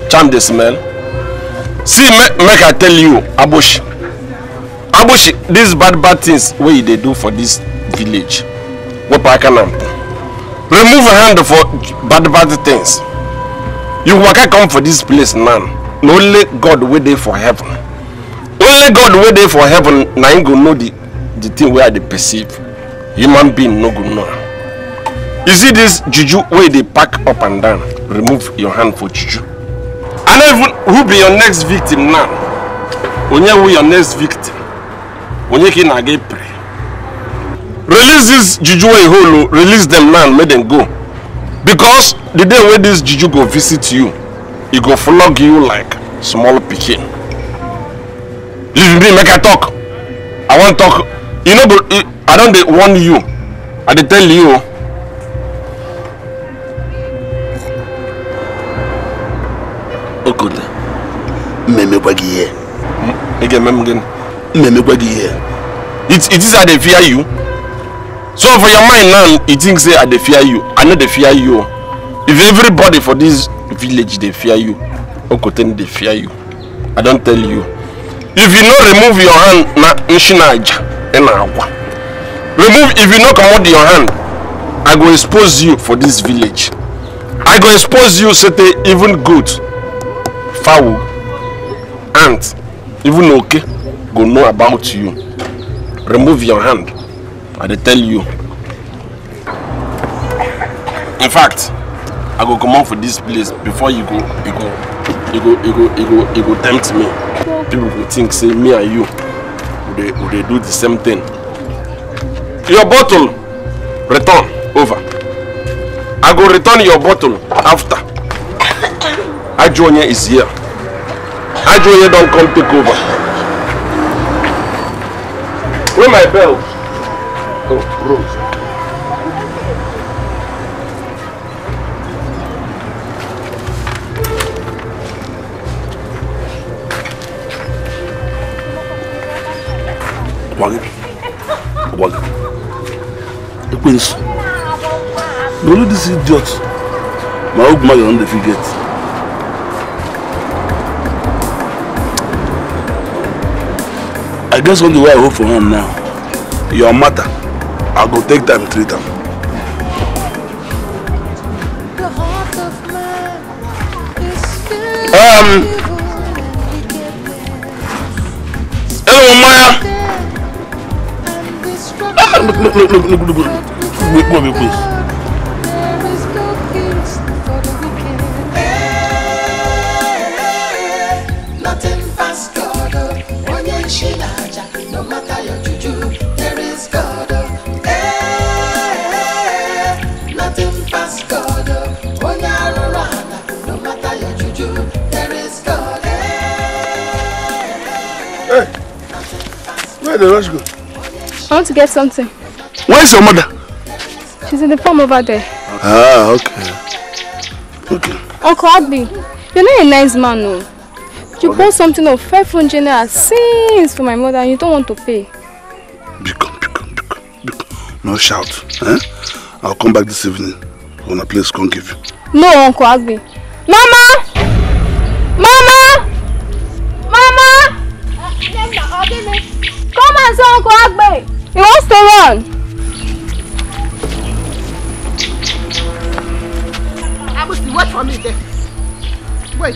charm the smell see me, make i tell you abushi abushi these bad bad things wey you dey do for this village wey pa aka na remove hand for bad bad things you waka come for this place now na only god wey dey for heaven only god wey dey for heaven na im go know the the thing wey i dey perceive human being no go know you see this juju wey dey pack up and down remove your hand for juju and even who be your next victim now onye who your next victim onye ka ị na get? ịpịrị release this juju wey you hold o oh, release dem now make dem go because the day wey this juju go visit you e go flog you like small pikin leave me make i talk i wan talk you know, but i don dey warn you i dey tell you o. okunle mmemmekwa gị ihe. ị ga-eme m gịnị. mmemmekwa gị ihe. it it is i dey fear you so for your mind now you think say i dey fear you i know they fear you if everybody for this village they fear you okoteni they fear you i don't tell you if you no remove your hand na nshinaja ị na remove if you no comot your hand i go expose you for this village i go expose you sete even good, foul, ant even okay, go know about you remove your hand i dey tell you in fact i go comot for dis place before you go you go you go you go you go you go tempt me people go think say me and you we dey we dey do the same thing your bottle return over i go return your bottle after <coughs> ajuonye is here ajuonye don come take over where my bell of roses. Wag, The prince. No, no, this idiot. My old man, on the forget. I guess on the way I hope for him now. Your matter. I will go take time treat them. Um. Hello, Maya. Ah, look, look, look, look, look, look, look, look, look, look, look, look, look, look, look, look, Where the go? I want to get something. Where is your mother? She's in the farm over there. Ah, okay. Okay. Uncle Abby, you're not a nice man, no. You okay. bought something of 500 naira since for my mother and you don't want to pay. Be calm, be calm, be calm. No shout. Eh? I'll come back this evening. When a place can give you. No, Uncle Agbe. Mama! Mama! That's Uncle Agbe. He wants to run. Abusi, wait for me there. Wait.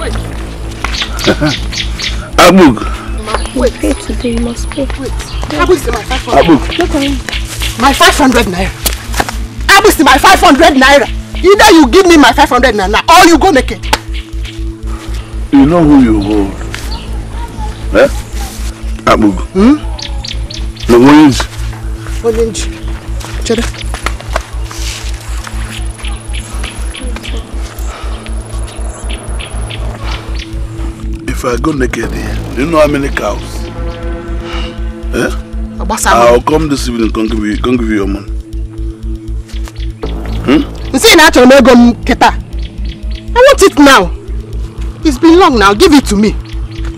Wait. <laughs> Abug. Wait. Pay today, you must pay. Wait. Abusi, my 500. Abug. Look at him. My 500 naira. Abusi, my 500 naira. Either you give me my 500 naira or you go naked. You know who you hold. Eh? Abugu. Hmm? No orange. Orange. Chada. If I go naked do you know how many cows? Eh? I'll come this evening and give you, come give you your money. Hmm? You say now I'm going to go I want it now. It's been long now. Give it to me.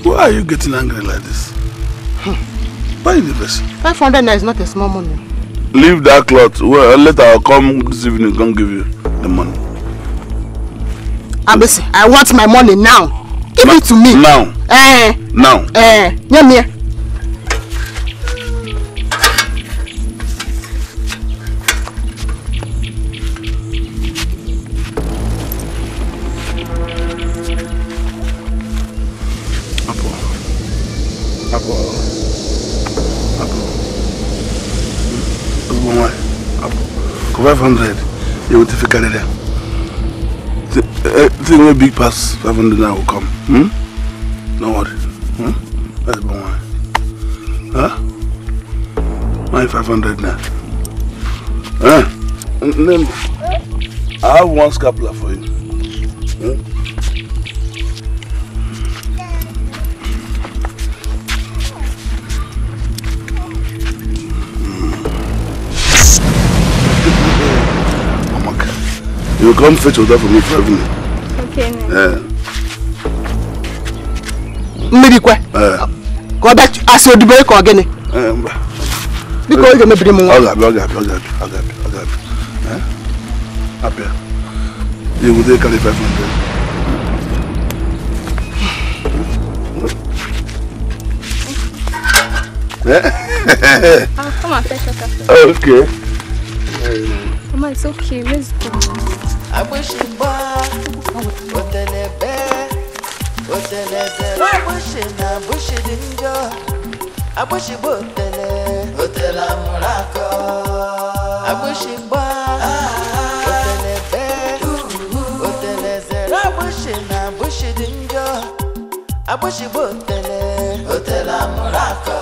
Why are you getting angry like this? Hmm. Buy the vessel. 500 naira is not a small money. Leave that cloth. Well, later I'll come this evening and give you the money. Abisi, I want my money now. Give Ma it to me. Now. Eh. Now. Eh. Yeah, yeah. 500 you will take it there the, uh, thing will big pass 500 now will come hmm? no worry hmm? that's the one huh my 500 now huh? Then I have one scapula for you You come fetch water for me for evening. Okay. Eh. Mmiri kwe. Ka eh. ọ bịa asị odubere ka go. gịnị? Biko ọ ga-emebiri m nwa. Ọ ga-abịa, ọ ga-abịa, ọ ga-abịa, ọ ga-abịa, ọ ga-abịa. Abịa. You will take carry 500. Eh? <laughs> ah, come on, fetch water. Okay. Um, oh, Mama, it's okay. Let's go agbésùnbà òtẹlẹbẹ òtẹlẹbẹ agbésùnà agbésùnìjọ agbésùnbà òtẹlẹ òtẹlàmúrakọ agbésùnbà òtẹlẹbẹ òtẹlẹbẹ agbésùnà agbésùnìjọ agbésùnbà òtẹlẹ òtẹlàmúrakọ.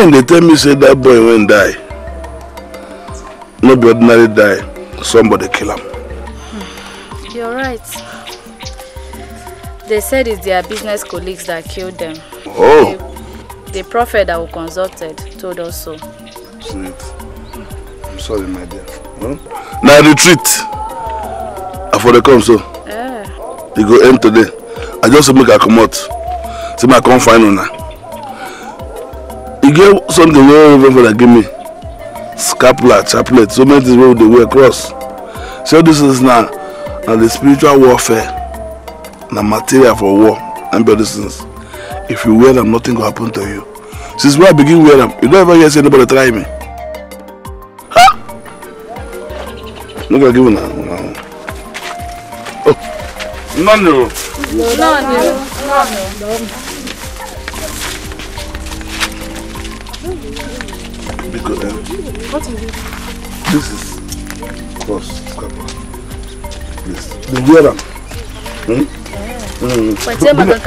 line dey tell me say dat boy wen die no be ordinary die somebody kill am hmm. you're right they said it's their business colleagues that killed them oh the, the prophet that we consulted told us so sweet i'm sorry my dear huh? Hmm? na retreat i for dey come so yeah. e go end today i just make i comot say make i come find una e get something wey reverend father give me scapular chaplet so many things wey we dey wear cross So all these things na na the spiritual warfare na material for war and be all these things if you wear am nothing go happen to you since when i begin wear am you don't ever hear say anybody try me ha no go give una una oh none o. none Because, um, what is it? This is cross scrapper. This. The wear them. Hmm? Yeah. Mm. Bring, bring, bring it.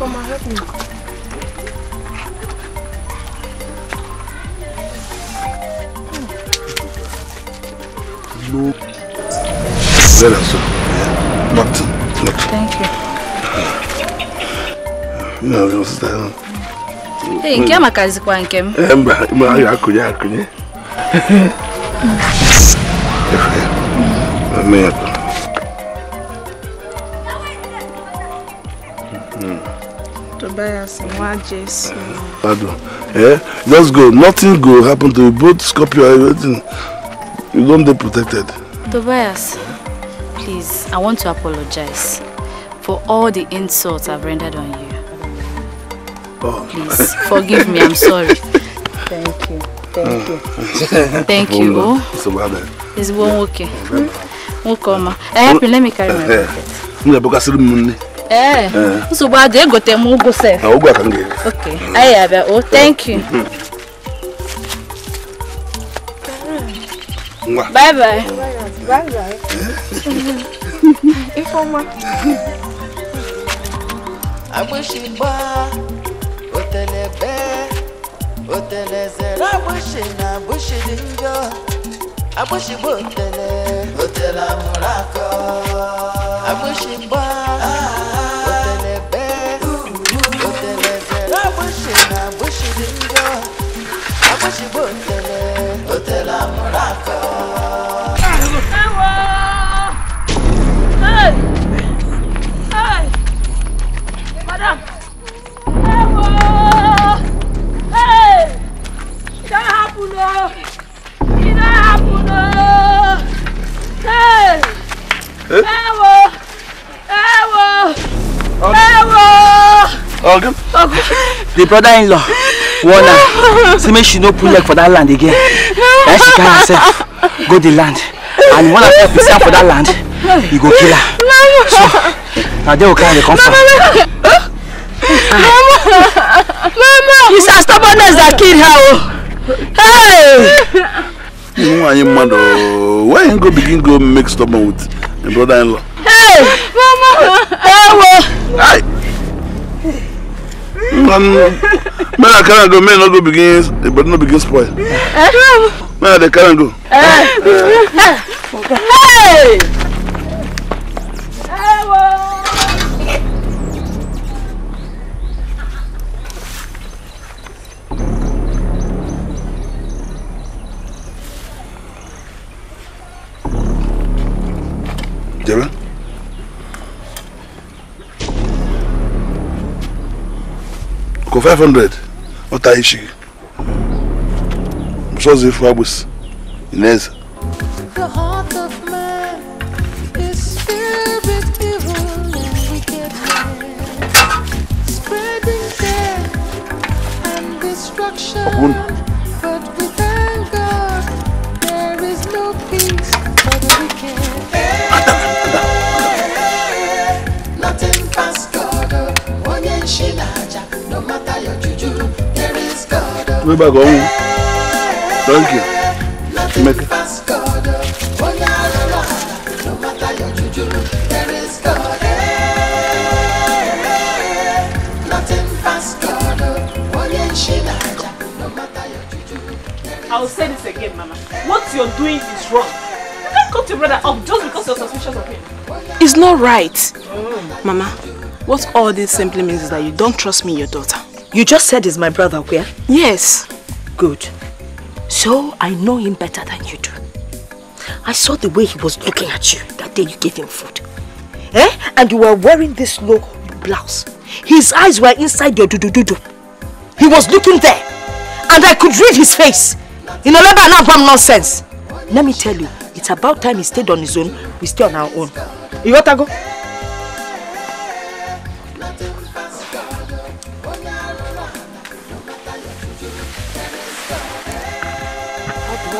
Mama, help me. No. There, sir. Not, not. Thank you. Ee, nke a makazikwa nke m. Ee, mba, mba, a ga-akụnye akụnye. Efe, mama ya tụrụ. Tobias, nwa Jesu. Pardon. Eh? Just go. Nothing go happen to you. Both Scorpio, everything. You don't dey protected. Tobias, please, I want to apologize for all the insults I've rendered on you. Please <laughs> forgive me. I'm sorry. Thank you. Thank you. <laughs> Thank you. Oh. It's about that. It's one okay. Hmm? Nkoma. Eh, help me. Let me carry my eh, eh. bucket. Mna boka siri munne. Eh. Nsogbu adị egote m ụgwọ sef. Na ụgwọ aka m ga-ere. Okay. Anyị abịa. Oh, thank you. Ngwa. <laughs> Eh? Bye bye. Bye bye. Ifeọma. Agbụsị gbaa. otelebe otelezere agbushi na agbushi dị njọ agbushi bụ otele otele amụrụ akọ agbushi mgba ah, ah. otelebe otelezere agbushi na agbushi dị njọ agbushi bụ otele otele ẹ wo ẹ wo ẹ ogun the brother in law warn am say make she no pull leg for that land again na she carry herself go the land and one of her pisin for that land he go kill her so na there we carry the comfort. from. Mama! Mama! It's her stubbornness that killed her. Oh. Hey! You know, I am mad. Oh. Why you go begin go make stubborn with my brother-in-law. Hey! Mama! Hey! Men um, I carry go, men no go begin, the body no begin spoil. Man, eh? I dey go. Eh? Eh. Hey! Hey! kò five hundred ọ̀tá yìí ṣe sọ́ọ̀sì fún agbèsè ìnẹ́ẹ̀sì. gbé bàgọ́ ọ̀hún thank you Emeka. I'll say this again, Mama. What you're doing is wrong. You can't cut your brother up just because you're suspicious of him. It's not right. Mm. Mama, what all this simply means is that you don't trust me, your daughter. You just said he's my brother, Where? Yes. Good. So I know him better than you do. I saw the way he was looking at you that day you gave him food. Eh? And you were wearing this low blouse. His eyes were inside your do-do-do-do. He was looking there. And I could read his face. You know, never now from nonsense. Let me tell you, it's about time he stayed on his own, we stay on our own. You want to go?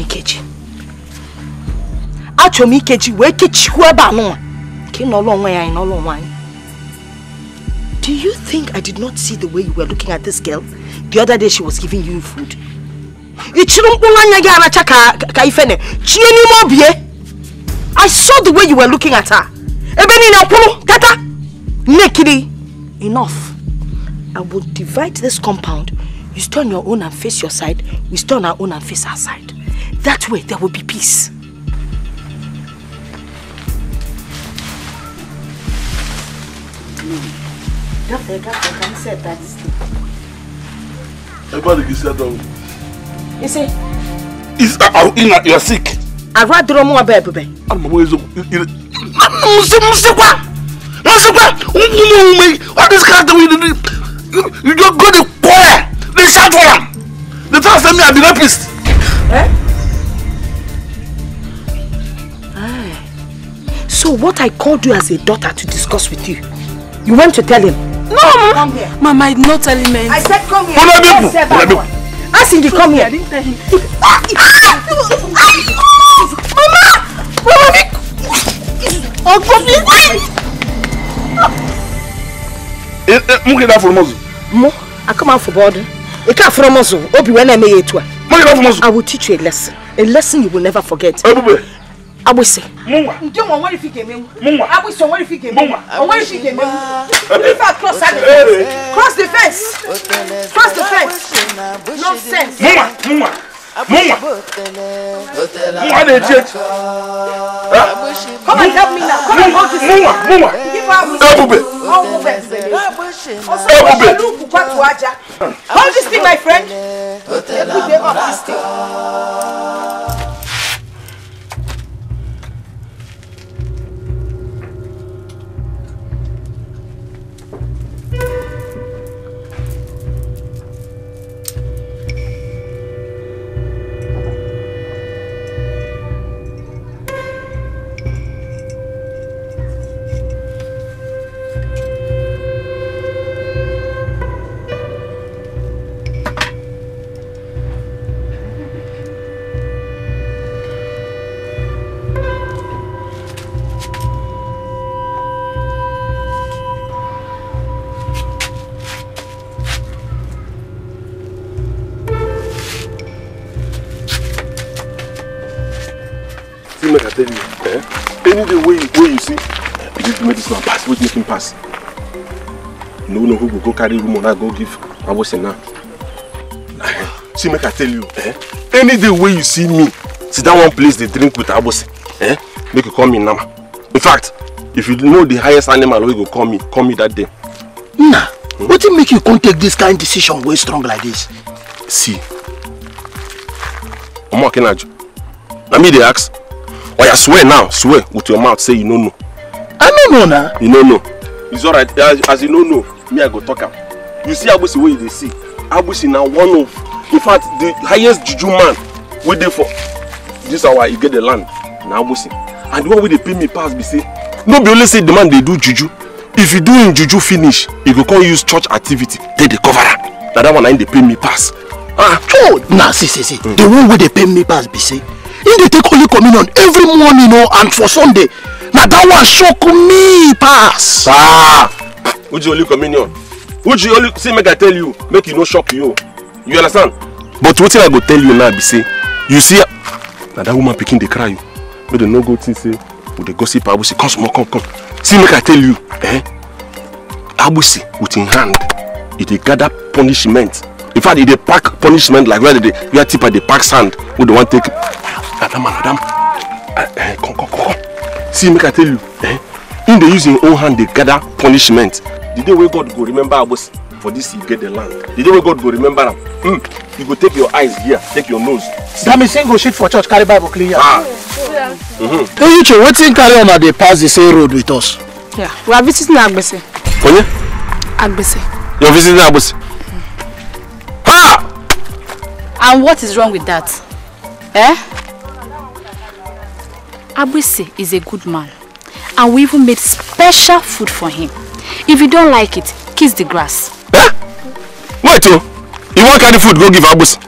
Ikechi achọrọ m Ikechi wee kechikwuo ebe anụnwa ka ị nọlụ onwe ya anyị nọlụ onwe anyị Do you think I did not see the way you were looking at this girl the other day she was giving you food? Ị chịrị mkpụrụ anya gị aracha ka ka ifene chie n'ime obi ye I saw the way you were looking at her ebe niile kwụrụ tata nnekiri enough I will divide this compound you stay on your own and face your side we stay on our own and face our side That way there will be peace. Everybody is down. You see? Is uh, uh, you sick. I rather don't want to be. I'm always. Musikwa! What is that we do? You don't go to choir. They shout for them. They tell us that me I'm the Eh? So what I called you as a daughter to discuss with you, you went to tell him? No, Mama. Come here. Mama, I am not telling him I said come here. Come yes, sir, Mama, Mama. Asking you come here. I didn't tell him. Ah! ah, ah, Mama! Mama, Uncle, please. Mụ gị na-afụrụ mọzụ? Mụ? Aka m afụ bọọdụ. Ị ka afụrụ mọzụ, obi when I eme ya etu a. mu I will teach you a lesson. A lesson you will never forget. abose. mungwa. nti wọn wọn fi kèmé mu. mungwa abose wọn fi kèmé mu. mungwa wọn fi kèmé mu. prefer cross at the fence. cross the fence. cross the fence. sense. mungwa mungwa mungwa mungwa de tiẹ. Ah. come and help me now. come and hold this. mungwa mungwa. ebube. ebube ebube. oluku kwatu aja. hold this thing my friend. put the up this thing. pass na pass which make him pass you no know who go go carry rumour na go give awose now <sighs> see make i tell you eh any day wey you see me sit down one place dey drink with abose eh make you call me nama in fact if you know the highest animal wey go call me call me that day. nna hmm? wetin make you come take this kind decision wey strong like this. see omo akinaju na me dey ask oya swear now swear with your mouth say you no know i no know na you no know it's alright. as, as you no know me i go talk him. you see agbusi wey you dey see agbusi now one of in fact the highest juju man wey there for this get the land na agbusi and the one where they pay me pass be say no be only say the man they do juju if you do him juju finish you go come use church activity They dey cover that one I him dey pay me pass. ah oh Nah see see see mm. the one where they pay me pass be say him dey take holy communion every morning know oh, and for sunday Now that one shock me pass. Ah, Uji only communion. Uji only see make I tell you, make you e no shock you. You understand? But what I go tell you now be say, you see, na that woman picking the cry but Make no go think say we dey gossip Abusi. Come come, come, come. See make I tell you, eh? Abusi with im hand, e dey gather punishment. In fact, e dey pack punishment like where they, where tipa dey pack sand wey dey wan take. Madam, madam, uh, uh, come, come, come, come see make i tell you eh In the using him own hand they gather punishment the day where god go remember agbos for this you get the land the day where god go remember am mm, you go take your eyes here take your nose. That sing single shit for church carry bible clean here. ah mm-hmm. eyiche wetin carry on una dey pass the same road with us. Yeah. we are visiting agbese. onye. agbese. you are visiting agbese. Mm. ha. Ah! and what is wrong with that. Eh? Abwise is a good man and we even made special food for him. If you don't like it, kiss the grass. Eh? Wait, oh. You want kind of food, go give Abwise.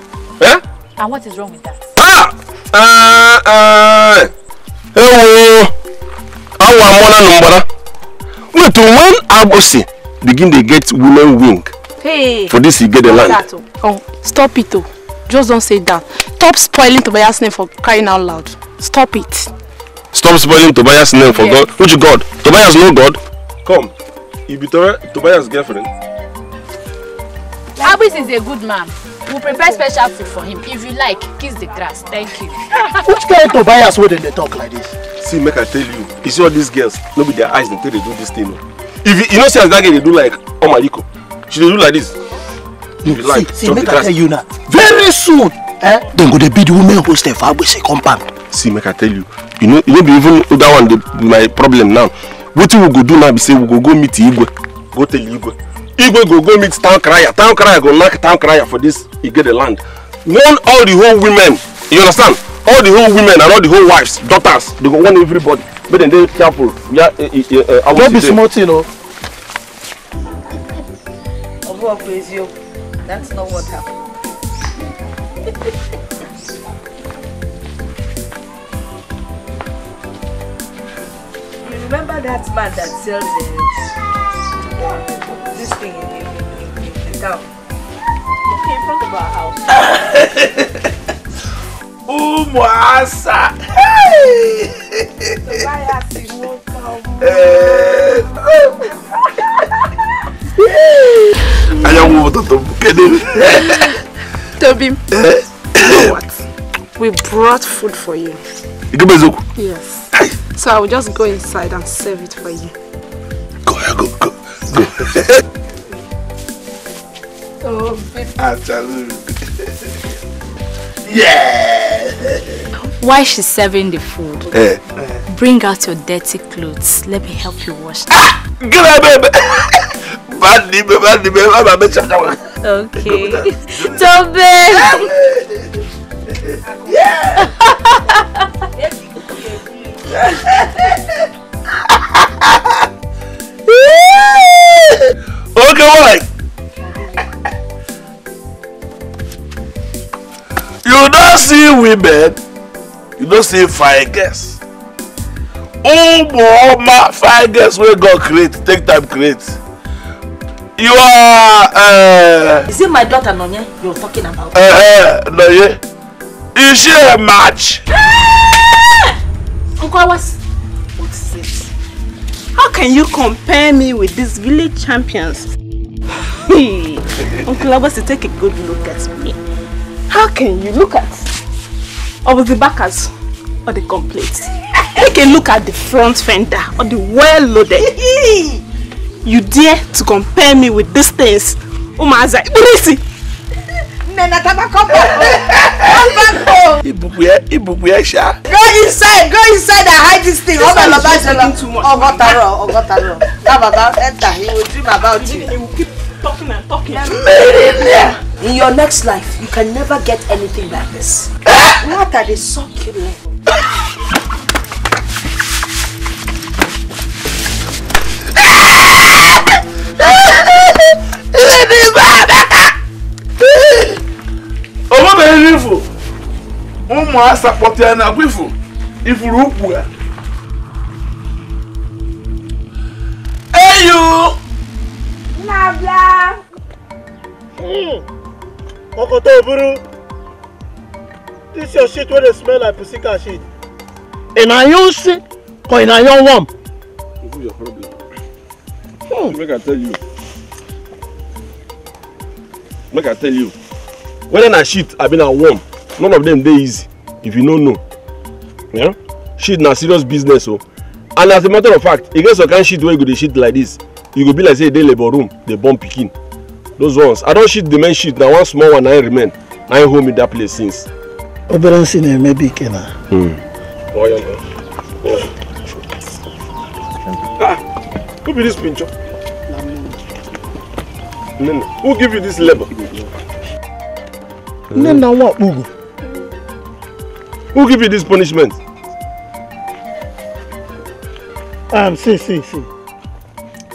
Eh? And what is wrong with that? Ah! Uh, ah, uh, ah. hello! Eh, How am number. Wait, oh, when Abusi begin to get women wing, hey, for this he get the land. That, oh. oh, stop it, oh. Just don't say that. Stop spoiling Tobias' name for crying out loud. Stop it. Stop spoiling Tobias' name for yes. God. Which God? Tobias no God. Come, you be Tobias' girlfriend. Abis is a good man. We'll prepare special food for him. If you like, kiss the grass. Thank you. <laughs> Which kind of Tobias wey they talk like this? See, make I tell you, you see all these girls, Nobody their eyes until they do this thing. If you, you know, see as that girl they do like Omaliko, she dey do like this. If you like, see, see, make I tell you now, very soon, eh, Then go dey be the women hostel for Agbese compound see make i tell you you know you know be even that one dey my problem now wetin we go do now be say we go go meet igwe go tell igwe igwe go go meet town crier town crier go knack town crier for this igede land warn all the whole women you understand all the whole women and all the whole wives daughters they go warn everybody make dem dey careful ya awo no be small thing o. ọbụ ọbụ eziokwu that's not what happened. <laughs> remember that man that sells uh, this thing in, the town? Okay, in front of our house. <laughs> Umuasa! Hey! I am over not come. Ayawo you? kedere. What? We brought food for you. Yes. So I will just go inside and serve it for you. Go, go, go, go. <laughs> oh, baby. <laughs> yeah! While she's serving the food, eh. bring out your dirty clothes. Let me help you wash them. Ah! baby! baby, baby. i Okay. <laughs> Tobe! yeah! okay, what? You don't see women, you don't see fine girls. Umu my fire girls will God create, take time create. You are. Uh, Is it my daughter Nonye you're talking about? Uh, uh, Nonye, is she a match? <laughs> Uncle, what's, what is this? How can you compare me with these village champions? Uncle Abasi, take a good look at me. How can you look at of the backers or the complete? Take a look at the front fender or the well loaded. you dare to compare me with these things? Umaza, Ibrisi! Nana Tabakopo. Tabakopo. Ibukwe, Ibukwe Go inside, go inside and hide this thing. Oba Baba Jala. Ogotaro, Ogotaro. That Baba enter, he will dream about you. He will keep talking and talking. In your next life, you can never get anything like this. What are they succulent? Let me go back! obere ifu ụmụ asa kpọtara na agwa ifu ifuru ukwu ha eyu hmm. ọkọta oburu this your shit wey dey smell like pussy cat shit. ị na-anyụ nsị ka ị na-anyụ worm. this is your problem. Hmm. make i tell you make i tell you whether na shit abi na worm none of them dey easy if you no know yeah? shit na serious business o oh. and as a matter of fact e get some kind shit wey you go dey shit like this you go be like say you e dey labour room dey born pikin those ones i don shit the main shit na one small one na im remain na im hold me that place since. obere nsị na-eme bụ ike na. Hmm. Oh, ah, who be this pincho? who give you this labour? Name na nwa Okpugu. Who give you this punishment? Um, see, see, see.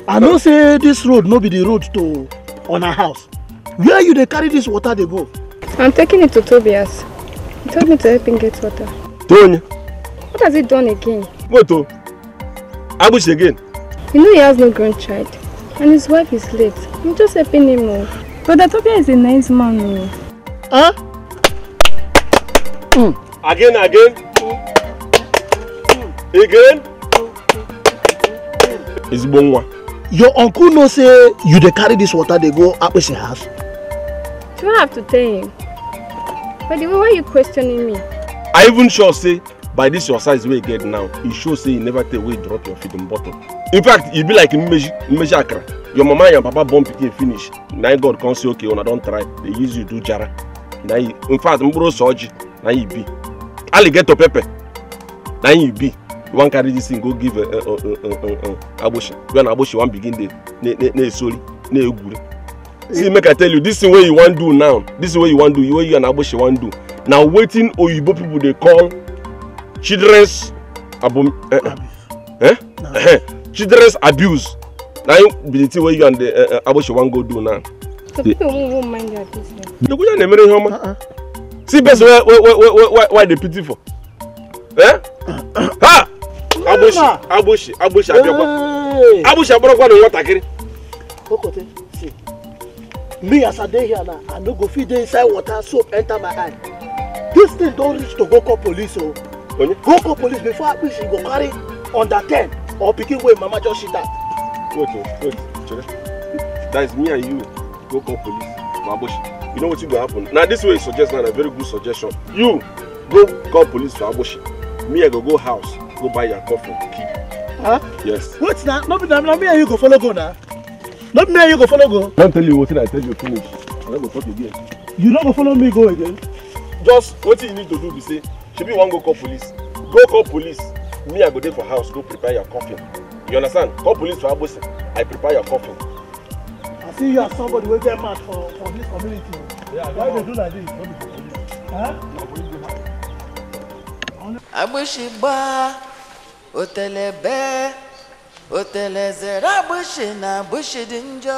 I know say this road no be the road to on our house. Where you they carry this water they go? I'm taking it to Tobias. He told me to help him get water. Tonya? What has he done again? What oh? Abush again? You know he has no grandchild. And his wife is late. I'm just helping him. Oh. Brother Tobias is a nice man. Oh. Huh? Mm. Again, again. Again. It's Bonwa. Your uncle no say you de carry this water They go up with your house. Do I have to tell him. But the way why you questioning me? I even sure say by this your size wey get now, e show say you never take wey drop your feet feeding bottle. In fact, you e be like Mmeji Mmeji Your mama and your papa born pikin finish. Na God can't say okay, una don't try. They use you do jara na yi in fact mkpụrụ ose ọjị na yi bi alligator pepper na yi bi you wan carry this thing go give eh, eh, eh, agboshi You na agboshi wan begin dey na-esori na-egwuri see make i tell you this thing wey you wan do now this thing wey you wan do wey you and agboshi wan do na wetin oyibo people dey call children's abom eh, eh? eh? children's abuse na be the thing wey you and the uh, wan go do now. The question is, Mary Homer. See, best why why why the pity for? Eh? Ha! Abushi, Abushi, Abushi, Abiokwa. Abushi, Abiokwa, the water kiri. Okote, see. Me as I dey here now, I no go fit dey inside water soap enter my eye. This thing don reach to go call police o. Oh. Go call police before Abushi go carry under ten or pikin wey mama just shit at. Wait, wait, wait, Chere. That is me and you go call police for ambush you know wetin go happen Now this way you suggest na very good suggestion you go call police for ambush me i go go house go buy your coffin. the Huh? yes. wait now? Not be na me and you go follow go now. Not me and you go follow go. i don tell you wetin i tell you finish i no go talk again. you not go follow me go again. just what you need to do be say Should be one go call police go call police me i go dey for house go prepare your coffin you understand call police for abosin i prepare your coffin see you as somebody wey get mouth for for this community yeah, why they do like this. agbóṣìgbà òtẹ̀lẹ̀ bẹ́ẹ̀ òtẹ̀lẹ̀ zẹ̀rẹ̀ agbóṣì na agbóṣì dì ń jọ.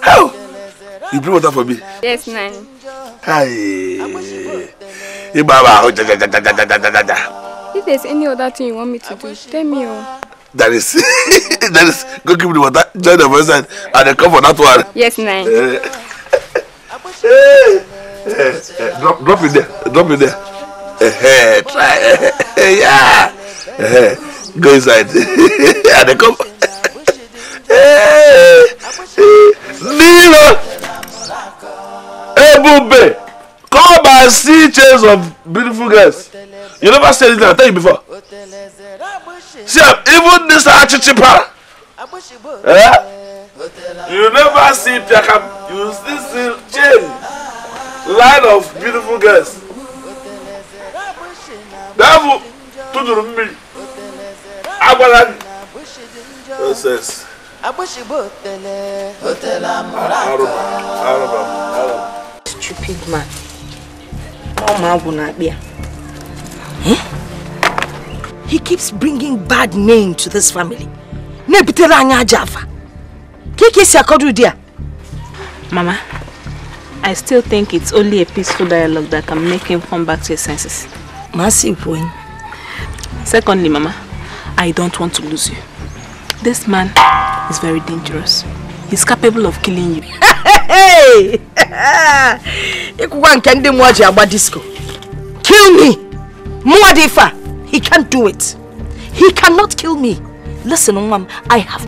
how you bring water for me. yes nani. hi if there's any other thing you want me to do tell me o. Oh. that is <laughs> that is go give me the water join the voice and i come for that one. yes na. Eh, eh, eh, drop drop it there drop it there uh-huh, try uh yeah uh go inside i <laughs> dey come. Hey, <laughs> Nilo Ebube all by sea chains of beautiful girls. You never said it, I tell you before. See, even this achichipa. Eh? You never see Piakam. You still see chain. Line of beautiful girls. Devil, tuduru mmiri. Agbara gị. Nonsense. Stupid man ọmọ na akpị ya he keeps bringing bad name to this family na-ebutere anyị aja afa ka ike esi akọdo ụdị mama i still think it's only a peaceful dialogue that can make him come back to his senses Massive point. secondly mama i don't want to lose you this man is very dangerous he's capable of killing you <laughs> ịkwụkwa <laughs> nke ndị mmụọ kill me mmụọ he can't do it he cannot kill me listen Mom, I have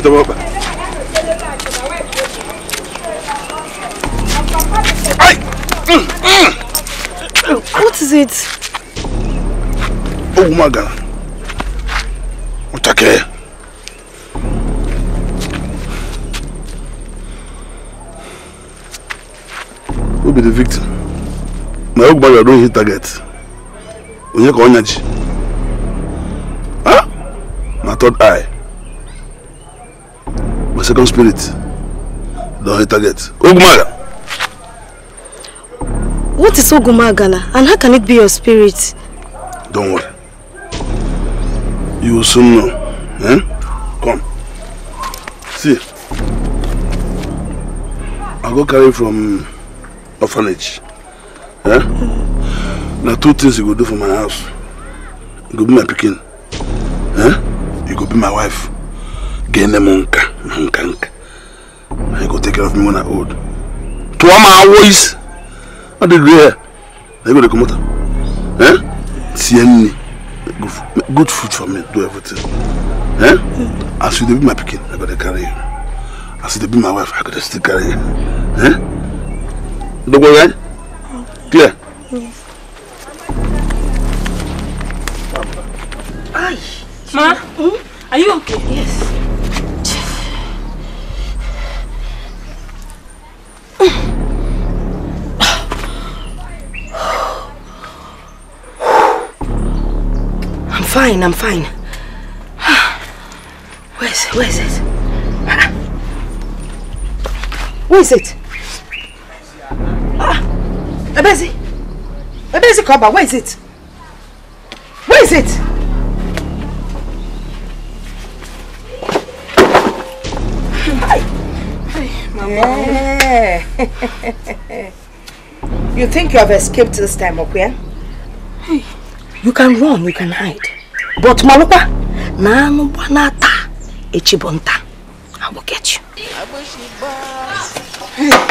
kò tọwọ́ What is it? Oh, my God! What are you? Who be the victim? My old brother don hit target. Onye ka onyaji. Huh? My third eye. My second spirit. Don't hit target. Ogumaga. What is Ogumagala and how can it be your spirit? Don't worry. You will soon know. Eh? Come. See. I go carry from orphanage. Eh? Mm. Now two things you go do for my house. You go be my picking. Eh? You go be my wife. Gain them on car. Nank, nank. And you go take care of me when I old. To all my ways, I did there. I go to come out. Eh? See any good, food for me. Do everything. Eh? As you be my picking, I gotta carry you. As you be my wife, I gotta still carry you. Eh? Don't go right? Eh? Clear? Yes. Ay. Ma, hmm? are you okay? Yes. I'm fine, I'm fine. Where is Where is it? Where is it? Ah, Ebezi! Ebezi Koba, where is it? Where is it? Hi! Hi, Mama. Yeah. <laughs> you think you have escaped this time, Okwe? Hey, you can run, you can hide. But Malupa, Nanu Banata, Echibonta, I will get you.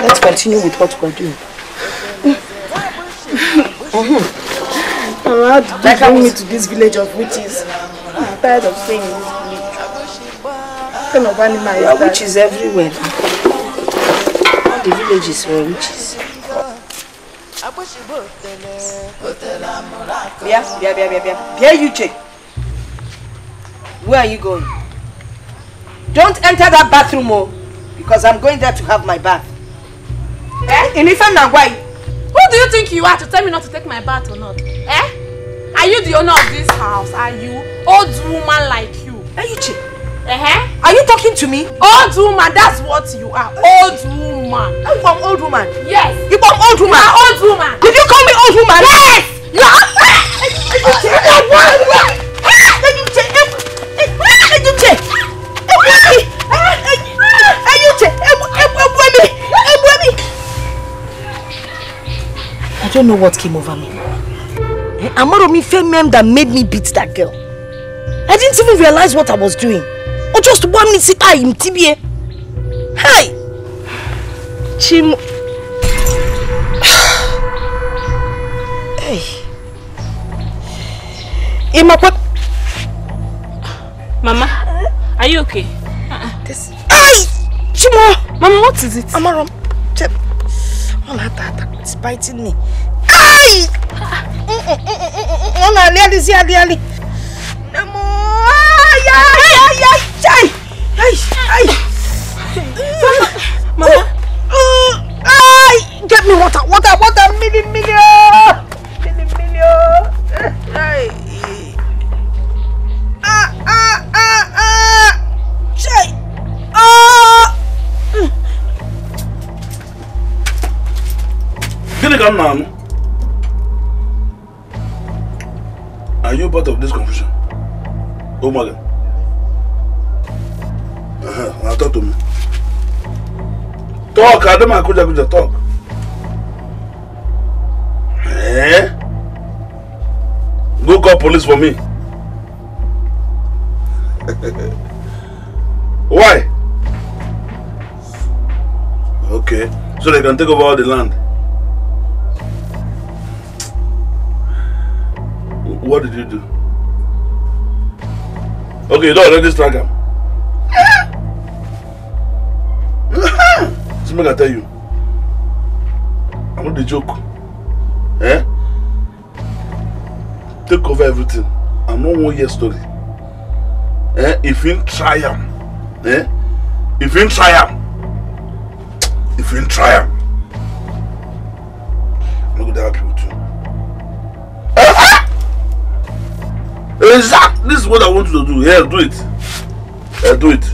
Let's continue with what we're doing. Mm-hmm. How did you like bring me to this village of witches? I'm tired of seeing this village. What kind of animal is that? witches everywhere the villages were witches. yeah. Bia, Bia, Bia, Where are you going? Don't enter that bathroom, oh, because I'm going there to have my bath. Eh? In Ife Nagwai. Who do you think you are to tell me not to take my bath or not? Eh? Are you the owner of this house? Are you old woman like you? Are eh, you chill? Uh -huh. Are you talking to me? Old woman, that's what you are. Old woman. I'm from old woman. Yes. You from old woman? You are old woman. Did you call me old woman? Yes. You are. I don't know what came over me. Eh, Amoromi fame that made me beat that girl. I didn't even realize what I was doing o just one minute sit down in tibie hi chimo hey imakwa mama are you okay this uh-uh. hey chimo mama what is it amarom chep all that attack it's biting me hey ọ na-alị alịzi alị alị nne m Mama! Mama! Get me water, water, water! Are you part of this confusion? Oh, my God! Uh Now talk to me. Talk, I Akuja Akuja, talk. Eh? Go call police for me. <laughs> Why? Okay, so they can take over all the land. What did you do? Okay, you don't already strike him. See, make I tell you. I'm not the joke. Eh? Take over everything. I'm know one year story. Eh? If you try him, eh? If you try him, if you try him, I'm not gonna help you too. Eh? Exactly. This is what I want you to do. Yeah, do it. Yeah, do it.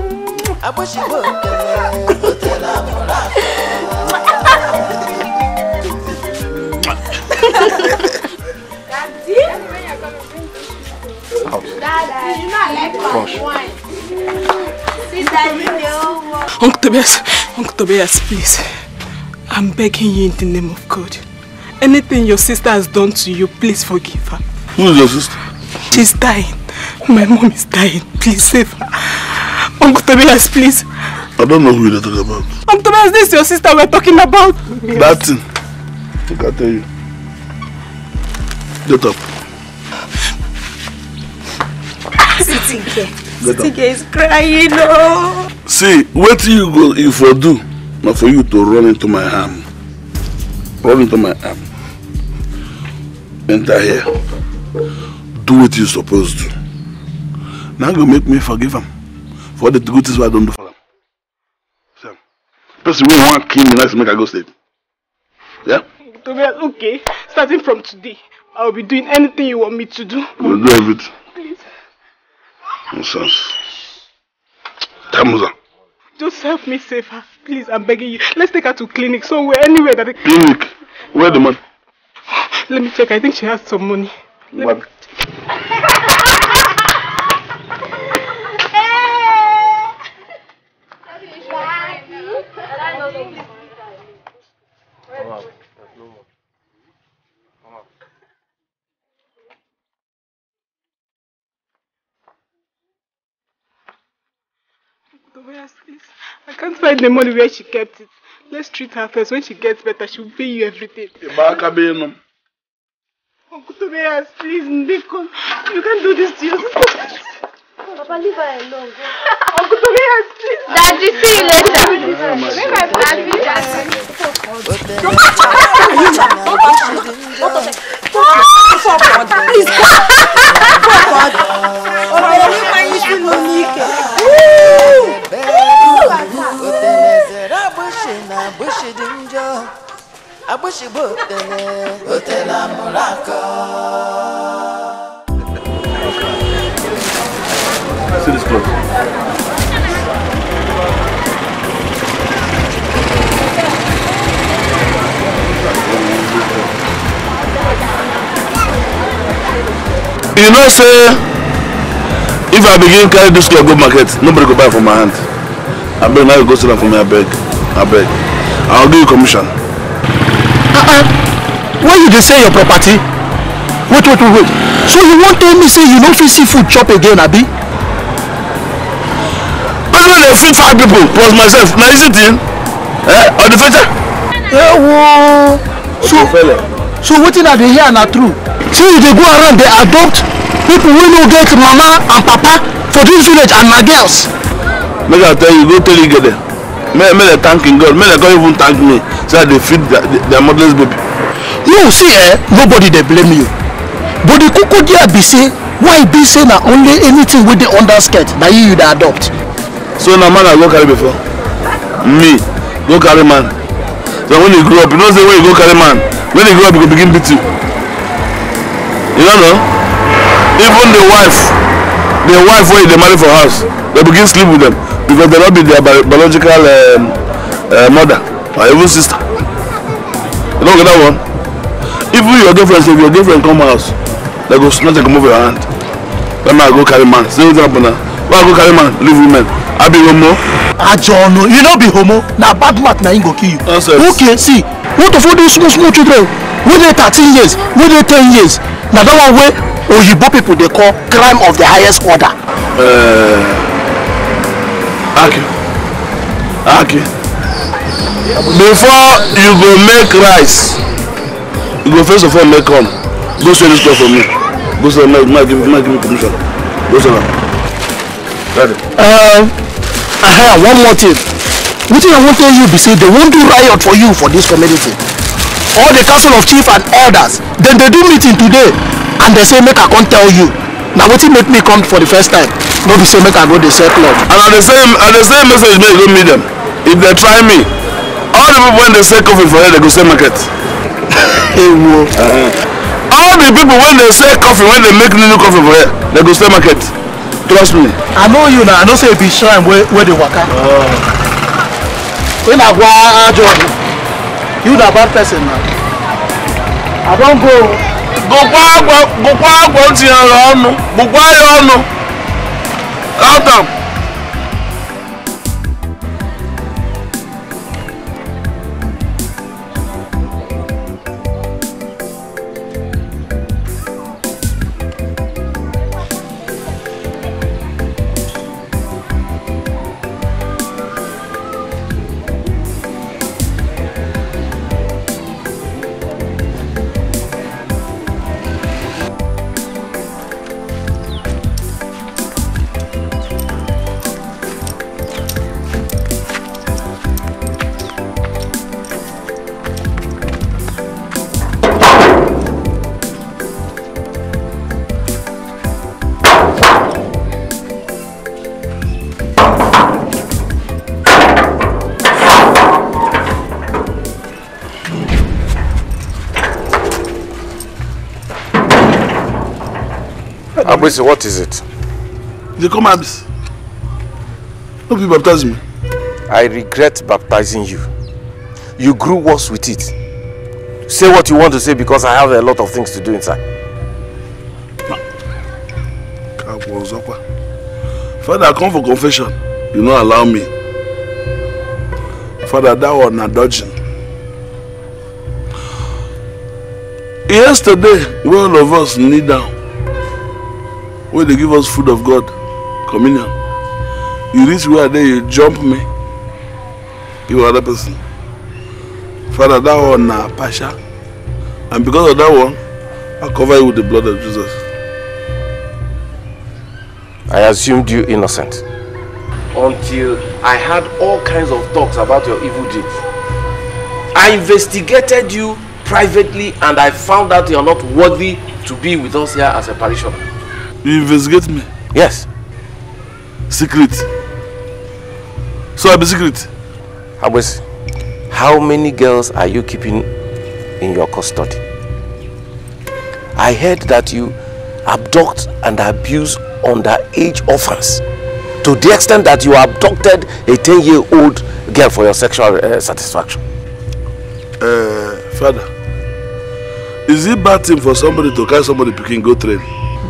Uncle Tobias, Uncle Tobias, please. I'm begging you in the name of God. Anything your sister has done to you, please forgive her. Who is your sister? She's dying. My mom is dying. Please save her. Uncle Tobias, please. I don't know who you're talking about. Uncle Tobias, this is your sister we're talking about. Yes. That thing. I can tell you. Get up. Sitinke. <laughs> Sitinke is crying. Oh. See, what you go if I do, not for you to run into my arm. Run into my arm. Enter here. Do what you're supposed to. Now go make me forgive him for the good things I don't do for them. So, person wey wan kill me like make a go state. Yeah? Tobias, okay. Starting from today, I will be doing anything you want me to do. We'll do everything. Please. Nonsense. Tamuza. Just help me save her. Please, I'm begging you. Let's take her to clinic somewhere, anywhere that... It... Clinic? Where the money? Let me check. I think she has some money. Let what? Me... Where is this? I can't find the money where she kept it. Let's treat her first. When she gets better, she will pay you everything. Uncle Tobias, please, Ndiko, you can't do this to yourself. Papa, leave her alone. Uncle Tobias, please. Daddy, see you later. Leave her alone. Daddy. focode. focode. O meu país <laughs> de Monique. Abushi botele, botela muraka. See this close. Thank you. you know say if i begin carry this cloth go market nobody go buy for my hand abeg now you go sell am for me abeg abeg i go give you commission. Uh -uh. Why you dey sell your property wait wait wait wait so you wan tell me say you no fit see food chop again abi. person dey feed five people plus myself na easy thing eh odifeja. Eh, wo. so so wetin i dey hear na true say you dey go around dey adopt people wey no get mama and papa for this village and my girls. make i tell you go tell igede make make dem thank im god make dem come even thank me say i dey feed their their motherless baby. you see eh nobody dey blame you but the koko there be say why be say na only anything wey dey under skirt na you you dey adopt. so na man i go carry before me go carry man so when you grow up you know say when you go carry man when you grow up you go begin beat you you don't know even the wife the wife wey dey marry for house dey begin sleep with them because they no be their biological um, uh, mother or even sister you don't get that one even your girlfriend say if your girlfriend come house they go snatch and comot your hand Then man go carry man say wetin happen na why i go carry man leave women i be homo. ajo ọ̀nà you no be homo na bad mouth na him go kill you. okay see what of all those small small children wey dey thirteen years wey dey ten years na that one way oyibo people they call crime of the highest order. Uh, Okay. aki before you go make rice you go first of all make corn go sell this corn for me go sell am now give me give me commission go sell it. am. Uh, uh, one more thing thing i want to tell you be say they wan do riot for you for this community all the council of chiefs and elders dem dey do meeting today and dem say make i come tell you na wetin make me come for the first time no be say make i go dey sell club. and i dey send i dey send message make you go meet dem if dem try me all the people wey dey sell coffee for here dey go sell market. <laughs> ewo. uh -huh. all the people wey dey sell coffee wey dey make new coffee for here dey go sell market trust me. i know you na i know say you be shrine wey dey waka. Uh -huh. Oh. wey na gwa ajo you the bad person now. i don't go. Go Go Go bùkwa agwọ bùkwa agwọ tinyere ọnụ bùkwa ya ọnụ count am. Abisi, what is it? They come Abisi. No people baptize me. I regret baptizing you. You grew worse with it. Say what you want to say because I have a lot of things to do inside. Father, I come for confession. You not allow me. Father, that was not dodging. Yesterday, all of us kneel down wey dey give us food of god communion you reach where there you jump me you other person father that one na pasha, and because of that one i cover you with the blood of jesus. i assumed you innocent. until i had all kinds of talks about your evil deeds i investigated you privately and i found out you are not worthy to be with us here as a parishioner. You investigate me? Yes. Secret. So i be secret. Abwesi, how many girls are you keeping in your custody? I heard that you abduct and abuse underage orphans to the extent that you abducted a 10-year-old girl for your sexual uh, satisfaction. Uh, father, is it bad thing for somebody to carry somebody picking go train?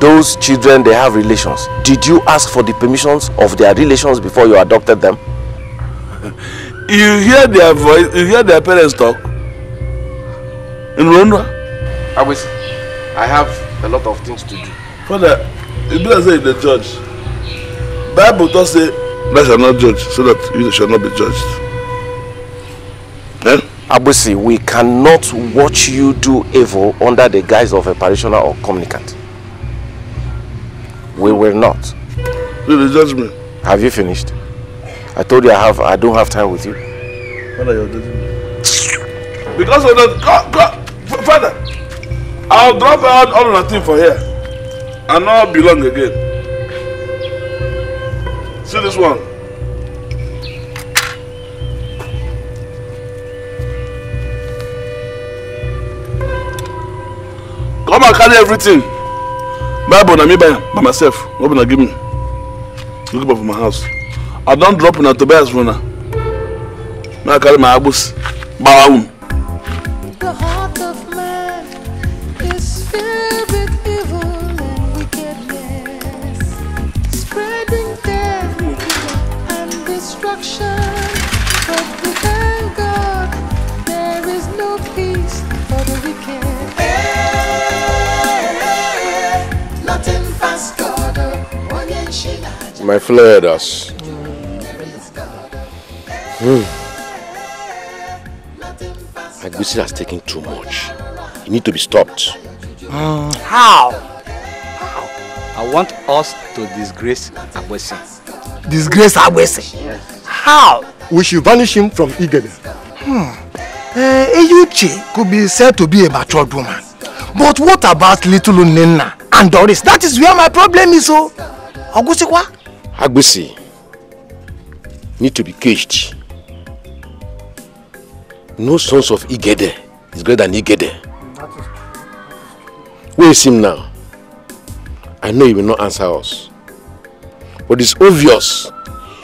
those children, they have relations. Did you ask for the permissions of their relations before you adopted them? <laughs> you hear their voice, you hear their parents talk. In Rwanda? I was, I have a lot of things to do. Father, you better say the judge. Bible does say, thou shall not judge, so that you shall not be judged. Eh? Abusi, we cannot watch you do evil under the guise of a parishioner or communicant. We will not. Do the judgment. Have you finished? I told you I have. I don't have time with you. What are you doing? Because of the God, God, Father, I'll drop out all the thing for here, and not belong again. See this one. Come and carry everything bible na me buy by myself no na give me look for my house i don drop una tobias for una make i carry my agbos gbawa But we thank God there is no peace for the wicked. my flares. Mm. Agusi has taken too much. You need to be stopped. Mm. How? How? I want us to disgrace Agusi. Disgrace Agusi? Yes. How? We should banish him from Igede. Hmm. Uh, could be said to be a matured woman. But what about little Nena and Doris? That is where my problem is, oh. Agusi, what? Agbese need to be caged. No sons of Igede is greater than Igede. Where is him now? I know he will not answer us. But it's obvious.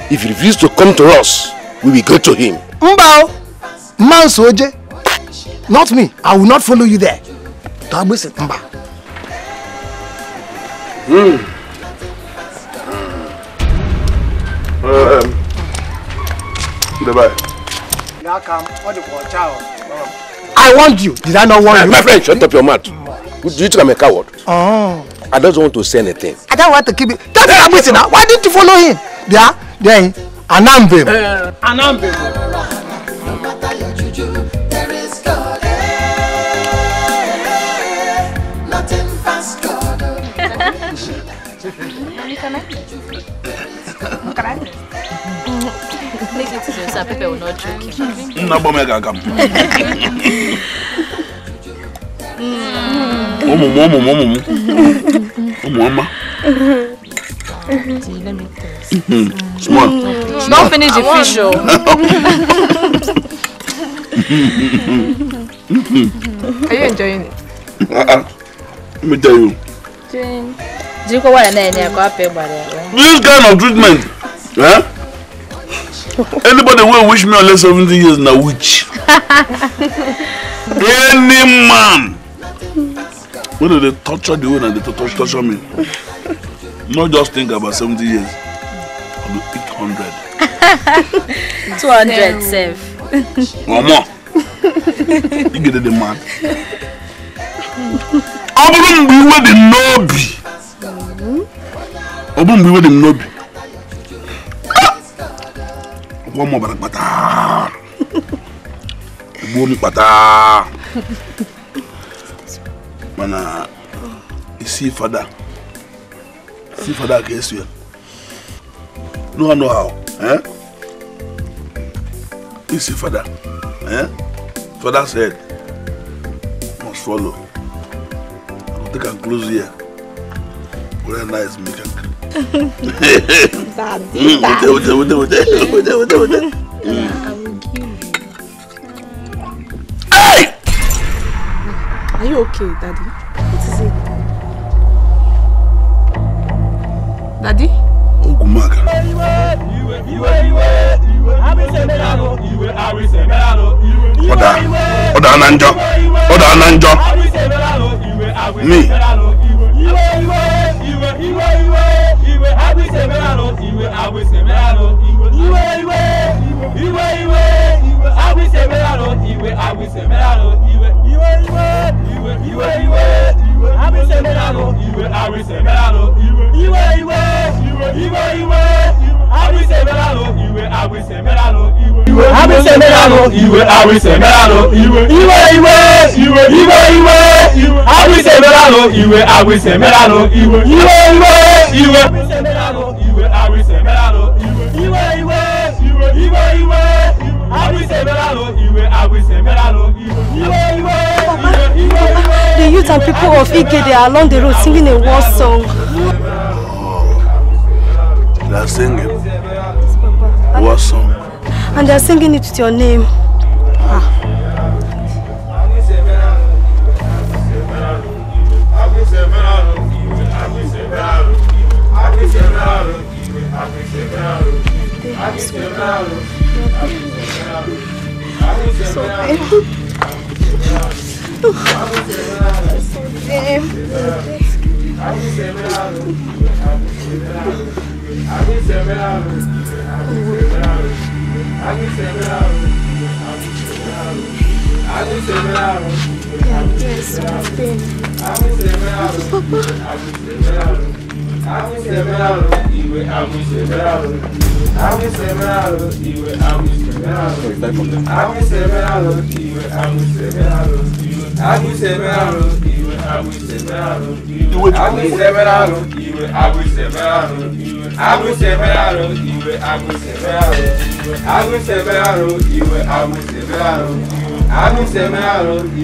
If he refuses to come to us, we will go to him. Mbao! Man Soje! Not me. I will not follow you there. Tagbese Mba. Hmm. Bye-bye. Now what do you want, I warned you. Did I not want you? My friend, shut up your mouth. Do you think I'm a coward? Oh. I don't want to say anything. I don't want to keep it. Tell me I'm missing now. Why didn't you follow him? Yeah, then Anambe. Eh, Anambe. No matter your juju, there is God so Pepe will not joke him. No, but me gagam. Hmm. Omo, omo, omo, omo. Omo, mama. Let me taste. Hmm, hmm. Small. Small. Don't finish the fish, oh. <laughs> Are you enjoying it? Uh-uh. Let me tell you. This kind of treatment, eh? anybody wey wish me unless seventy years na witch <laughs> any man wey dey torture the way na dey torture me no just think about seventy years i go eat hundred. <laughs> two hundred sef. omo igede the mad ọ bụrụ mgbe iwe dị n'obi ọ bụrụ mgbe iwe dị n'obi wọ́n mọ̀ bàrà pátá gbogbo mi pátá mana isi fada isi fada ka esu ya no one know how eh? isi fada eh? fada said must follow I go take am close here very nice make am. Daddy, daddy. Wait, wait, wait, wait, wait, wait, wait, wait. I Are you okay, daddy? What is it? Daddy? Ogunmaga. ọ̀dà ọ̀dà àná njọ́ ọ̀dà àná njọ́ mi. Iwe iwe iwe iwe iwe iwe iwe I I will will. will will. will, will. will, will. will will. will you, you, you, abisemelalo iwe abisemelalo will. iwe will, iwe will. iwe will, iwe will. iwe will iwe iwe iwe will. iwe will abisemelalo iwe abisemelalo will. iwe will, iwe will. and people of Igede are along the road singing a war song. They are singing war song. And they are singing it with your name. Ah. So, I will seven hours, even I will seven hours. agùsẹ̀mẹ́ràrún ìwé agùsẹ̀mẹ́ràrún ìwé agùsẹ̀mẹ́ràrún ìwé agùsẹ̀mẹ́ràrún ìwé agùsẹ̀mẹ́ràrún ìwé agùsẹ̀mẹ́ràrún ìwé agùsẹ̀mẹ́ràrún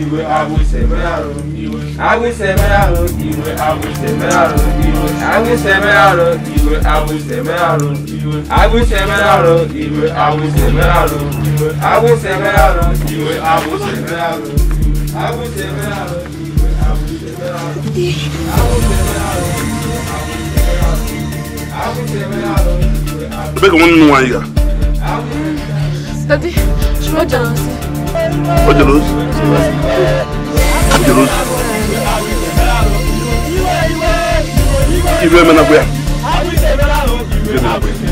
ìwé agùsẹ̀mẹ́ràrún ìwé agùsẹ̀mẹ́ràrún ìwé agùsẹ̀mẹ́ràrún ìwé agùsẹ̀mẹ́ràrún ìwé agùsẹ̀mẹ́ràrún ìwé agùsẹ̀mẹ́ràrún ìwé agùsẹ̀mẹ́ràrún ìwé agùsẹ̀mẹ́ràrún ìwé agùsẹ̀mẹ́ràrún ìwé agùsẹ̀mẹ́ràrún ìwé agùsẹ̀mẹ́ràrún. Rebecca, wọ́n nínú wọn yìí gà. Dadi, ṣùgbọ́n ọjà lọ sí. Ọjà lọ sí. Ọjà lọ sí. Ìlú ẹ̀mẹ́ náà gbéyà. Ìlú ẹ̀mẹ́ náà gbéyà.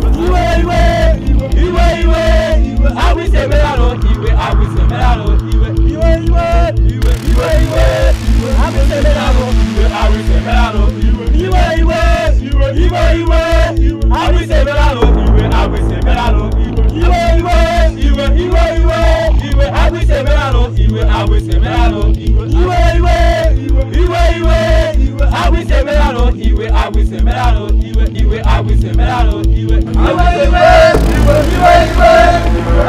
I will ìwé ìwé I awísè mẹ́lárò ìwé awísè mẹ́lárò ìwé ìwé ìwé ìwé ìwé ìwé iwe iwe iwe iwe iwe iwe agbese merano iwe agbese merano iwe iwe iwe iwe iwe iwe agbese merano iwe agbese merano iwe iwe agbese merano iwe iwe iwe iwe iwe iwe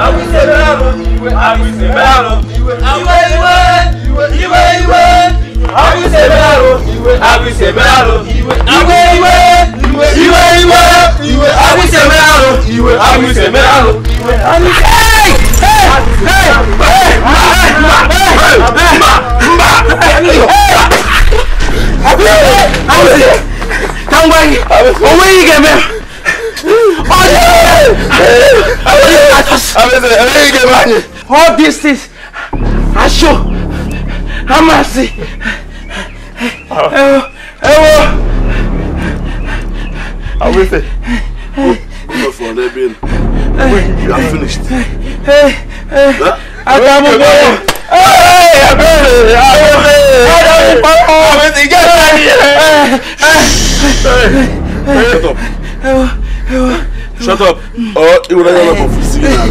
agbese merano iwe agbese merano iwe iwe iwe iwe iwe iwe. àwíṣe mẹ́rọ ìwé àwíṣe mẹ́rọ ìwé ìwé ìwé ìwé ìwé ìwé ìwé àwíṣe mẹ́rọ ìwé àwíṣe mẹ́rọ ìwé àwíṣe. Tangwani, owó yìí gẹ̀mẹ́, ọ̀dọ́ yìí gẹ̀mẹ́, all these things, aṣọ amasi ẹwọ. awese go go for rebel when you are finished. Eh, eh, eh. adamu gbọ́dọ̀ abẹ́rẹ́ abẹ́rẹ́ adamu pàpọ̀ àwẹ̀sẹ̀ ìjà ìjà. shut up shut up or iwọ náà yọ ọmọ kò fún sí i.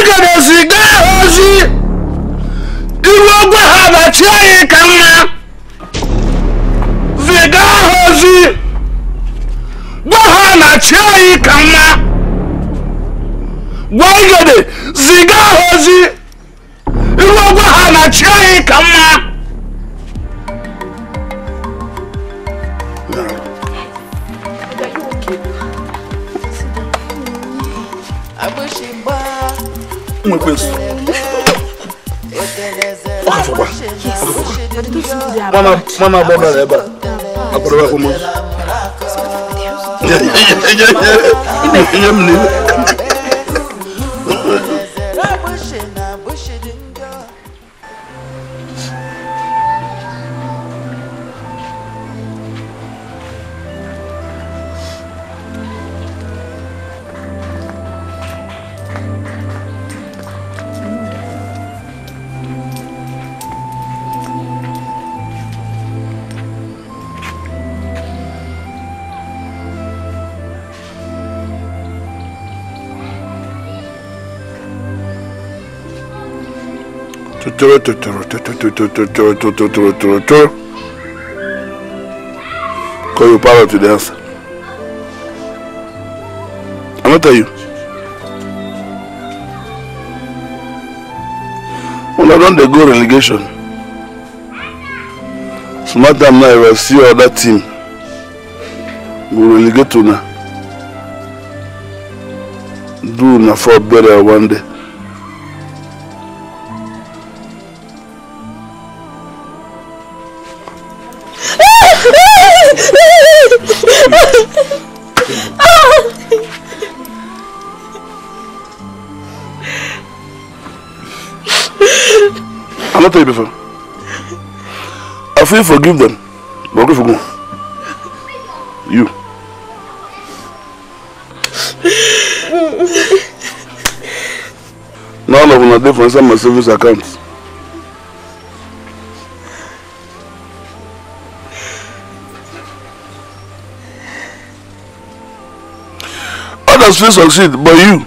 igedesi gaa ozi iwe ogwe ha bachi anyị ka mma ziga ha ozi gwa ha na chi anyị ka mma gwa igede ziga ha ozi iwe ogwe ha na chi anyị ka mma um penso. Akafọkwa. Mama mama abọrọ ya ebe a. Abọrọ ya kwụmọ. Nye m n'iwe. toro Call your parrot to the answer. I'm not tell you. Una don dey go relegation. Smart time now you see other team go relegate una. Do una for better one day. feel forgive them but okay forgive you. none of una dey for inside my savings account. others fit succeed but you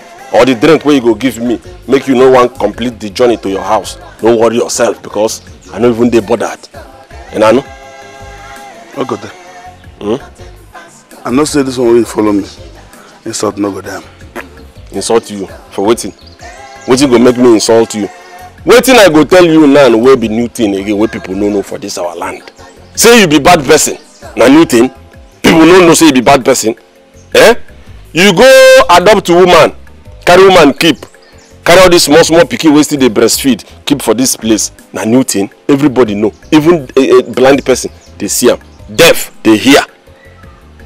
or the drink wey you go give me make you no wan complete the journey to your house no worry yourself because i no even dey bothered una know. no go there. Hmm? i know say this one wey follow me insult no go there. insult you for wetin wetin go make me insult you wetin i go tell you now wey be new thing again wey people no know for this our land say you be bad person na new thing people no know say you be bad person eh you go adopt woman carry woman keep carry all this. small small pikin wey still dey breastfeed keep for this place na new thing everybody know even a, eh, a eh, blind person dey see am deaf dey hear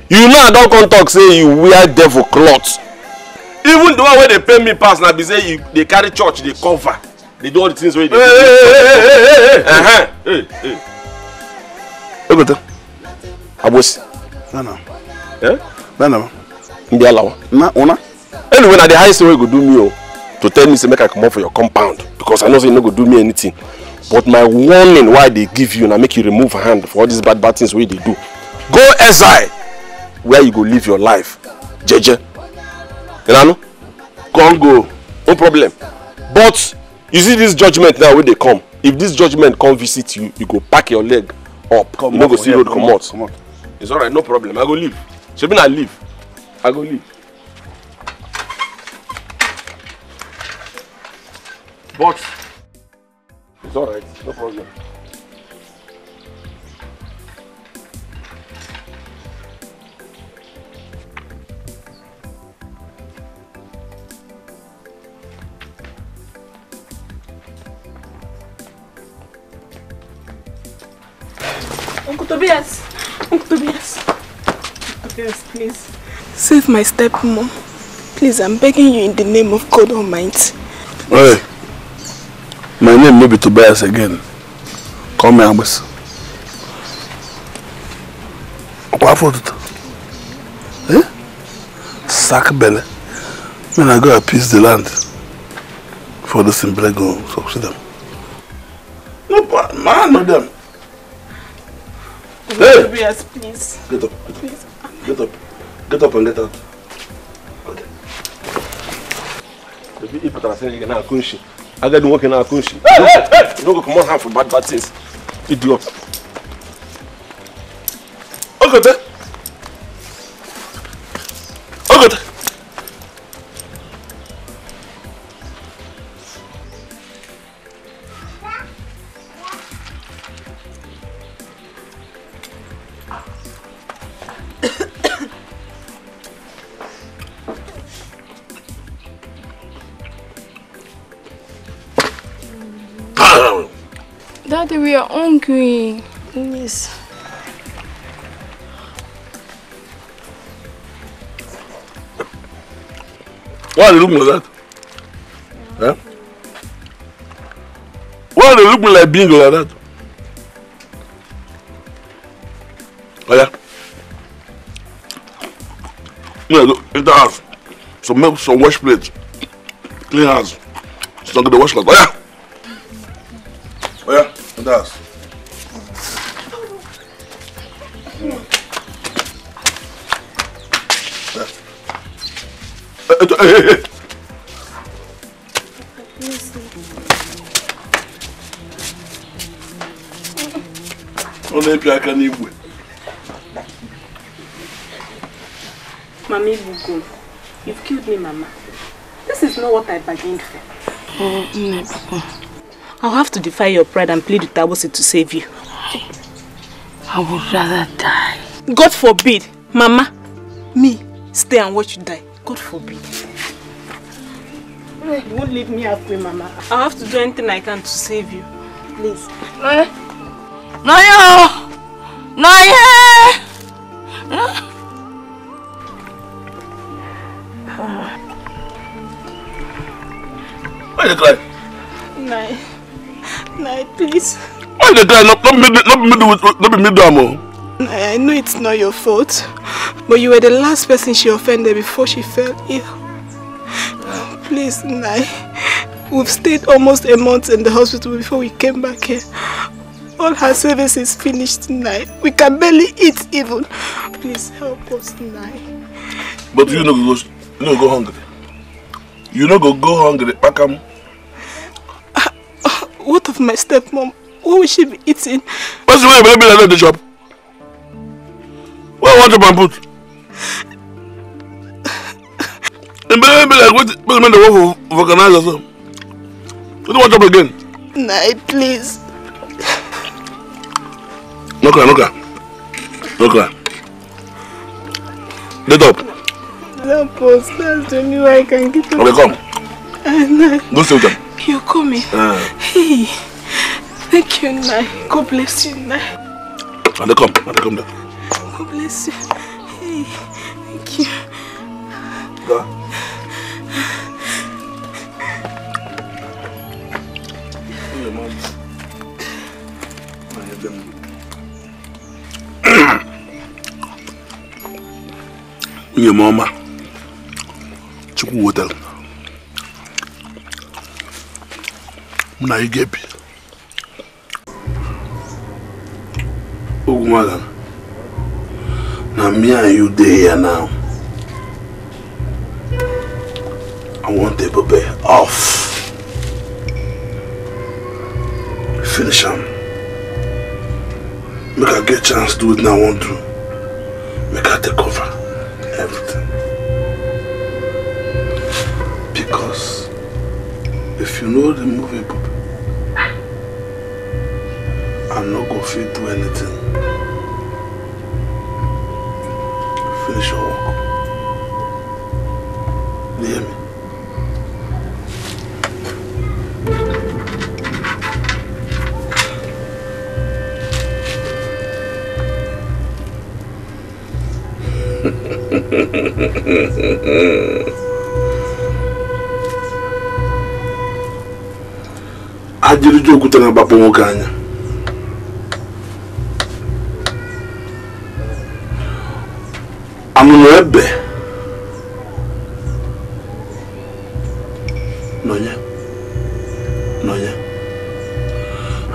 you know i don come talk say you wear devil cloth even the one wey dey pay me pass na be say you dey carry church dey cover dey do all the things wey you dey do. ogoto abosi. nana. Eh? nana. ndị alawa. na una anyway na the highest way you go do me oh, to tell me say make i comot for your compound because i know say you e no go do me anything but my warning why i dey give you na make you remove hand for all these bad bad things wey you dey do go exile where you go live your life jeje you come go no problem but you see this judgement now wey dey come if this judgement come visit you you go pack your leg up come you no go see road comot it's alright no problem i go leave shebi na leave i go leave box. It's alright, no problem. Uncle Tobias! Uncle Tobias! Tobias, please. Save my stepmom. Please, I'm begging you in the name of God Almighty. Hey! My name may be Tobias again. Call me Abbas. Kwafoto. Eh? Sack belly. When I go I appease the land for the simple go succeed them. No, man, no them. Hey! Tobias, please. Get up. Get up. Get up. and get out. Okay. If I say you're not a I got to work in our country. Hey, hey, You don't go come on half for bad bad things. Idiot. Okay, then. Okay, then. we are hungry. Yes. Why are they looking like that? Huh? Why are they looking like being like that? Oh yeah. Yeah, look, in the house. Some milk, some wash plates. Clean house. It's not the wash like Oh yeah. Sanders. Ọ na-epi aka n'igwe. Mama Ibugo, you've killed me, Mama. This is not what I bargained for. Oh, my Papa. I'll have to defy your pride and plead with Tabosi to save you. I, would rather die. God forbid, Mama, me, stay and watch you die. God forbid. Eh, you won't leave me halfway, Mama. I'll have to do anything I can to save you. Please. Eh? Noye! Noye! Noye! Noye! Why are you crying? please. Why the guy not, not, middle, not, middle not be I know it's not your fault, but you were the last person she offended before she fell ill. Please, Nai. We've stayed almost a month in the hospital before we came back here. All her service is finished tonight. We can barely eat even. Please help us tonight. But you know, go, you no go hungry. You know, go go hungry, Pakam. What of my stepmom? What will she be eating? What's the way you be like the job. Where want to put? And baby <laughs> be like what? What the work of organize yourself? You don't want up again. Night, please. No cry, no cry, no cry. Get up. Help post. That's the only way I can get up. Okay, come. Go sit with them. You call me. Uh. Hey. Thank you, Nai. God bless you, Nai. And they come. And they come down. God bless you. Hey. Thank you. Go. <coughs> Your mama. Chukwu hotel. mụ na ị ga you dey here now I want the Ebube off finish am make I get chance do wetin I wan do make I take over everything because if you know the movie. I'm not gonna fit do anything. Finish your work. You hear me? <laughs> ajiri jo okutana bapụ nwoke anya amụma ebe nọnye nọnye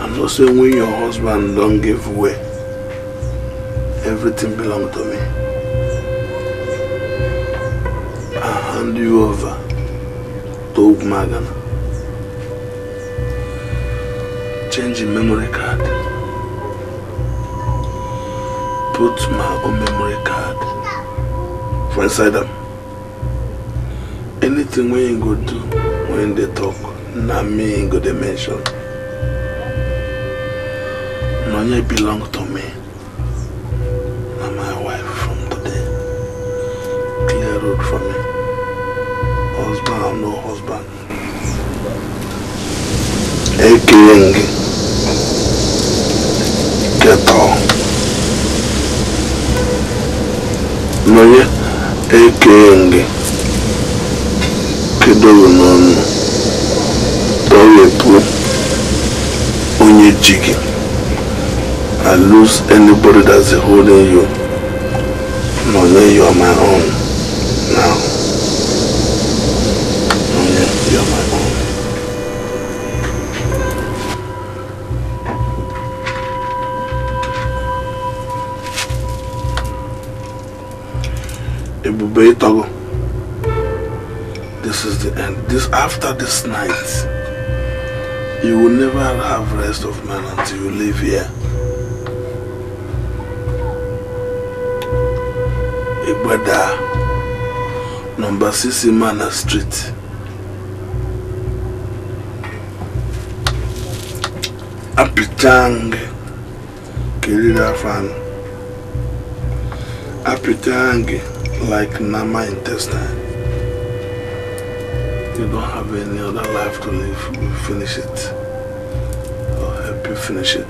and also when your husband don give way everything belong to me i hand you over to Ugwumagana change your memory card put my own memory card for inside them. Anything when you go do when they talk, not me ain't go they mention. Money belong to me. Na my wife from today. Clear road for me. Husband or no husband. Hey, King. Get off. Money ekenge kedoro n'ọnụ tọwepụ onye ji gị I lose anybody that's holding you nọ no, your my own Doye Togo. This is the end. This After this night, you will never have rest of man until you leave here. Igbada, number 6 Imana Street. Apichang, Kirira Fan. Apichang like Nama intestine. You don't have any other life to live. We'll finish it. I'll help you finish it.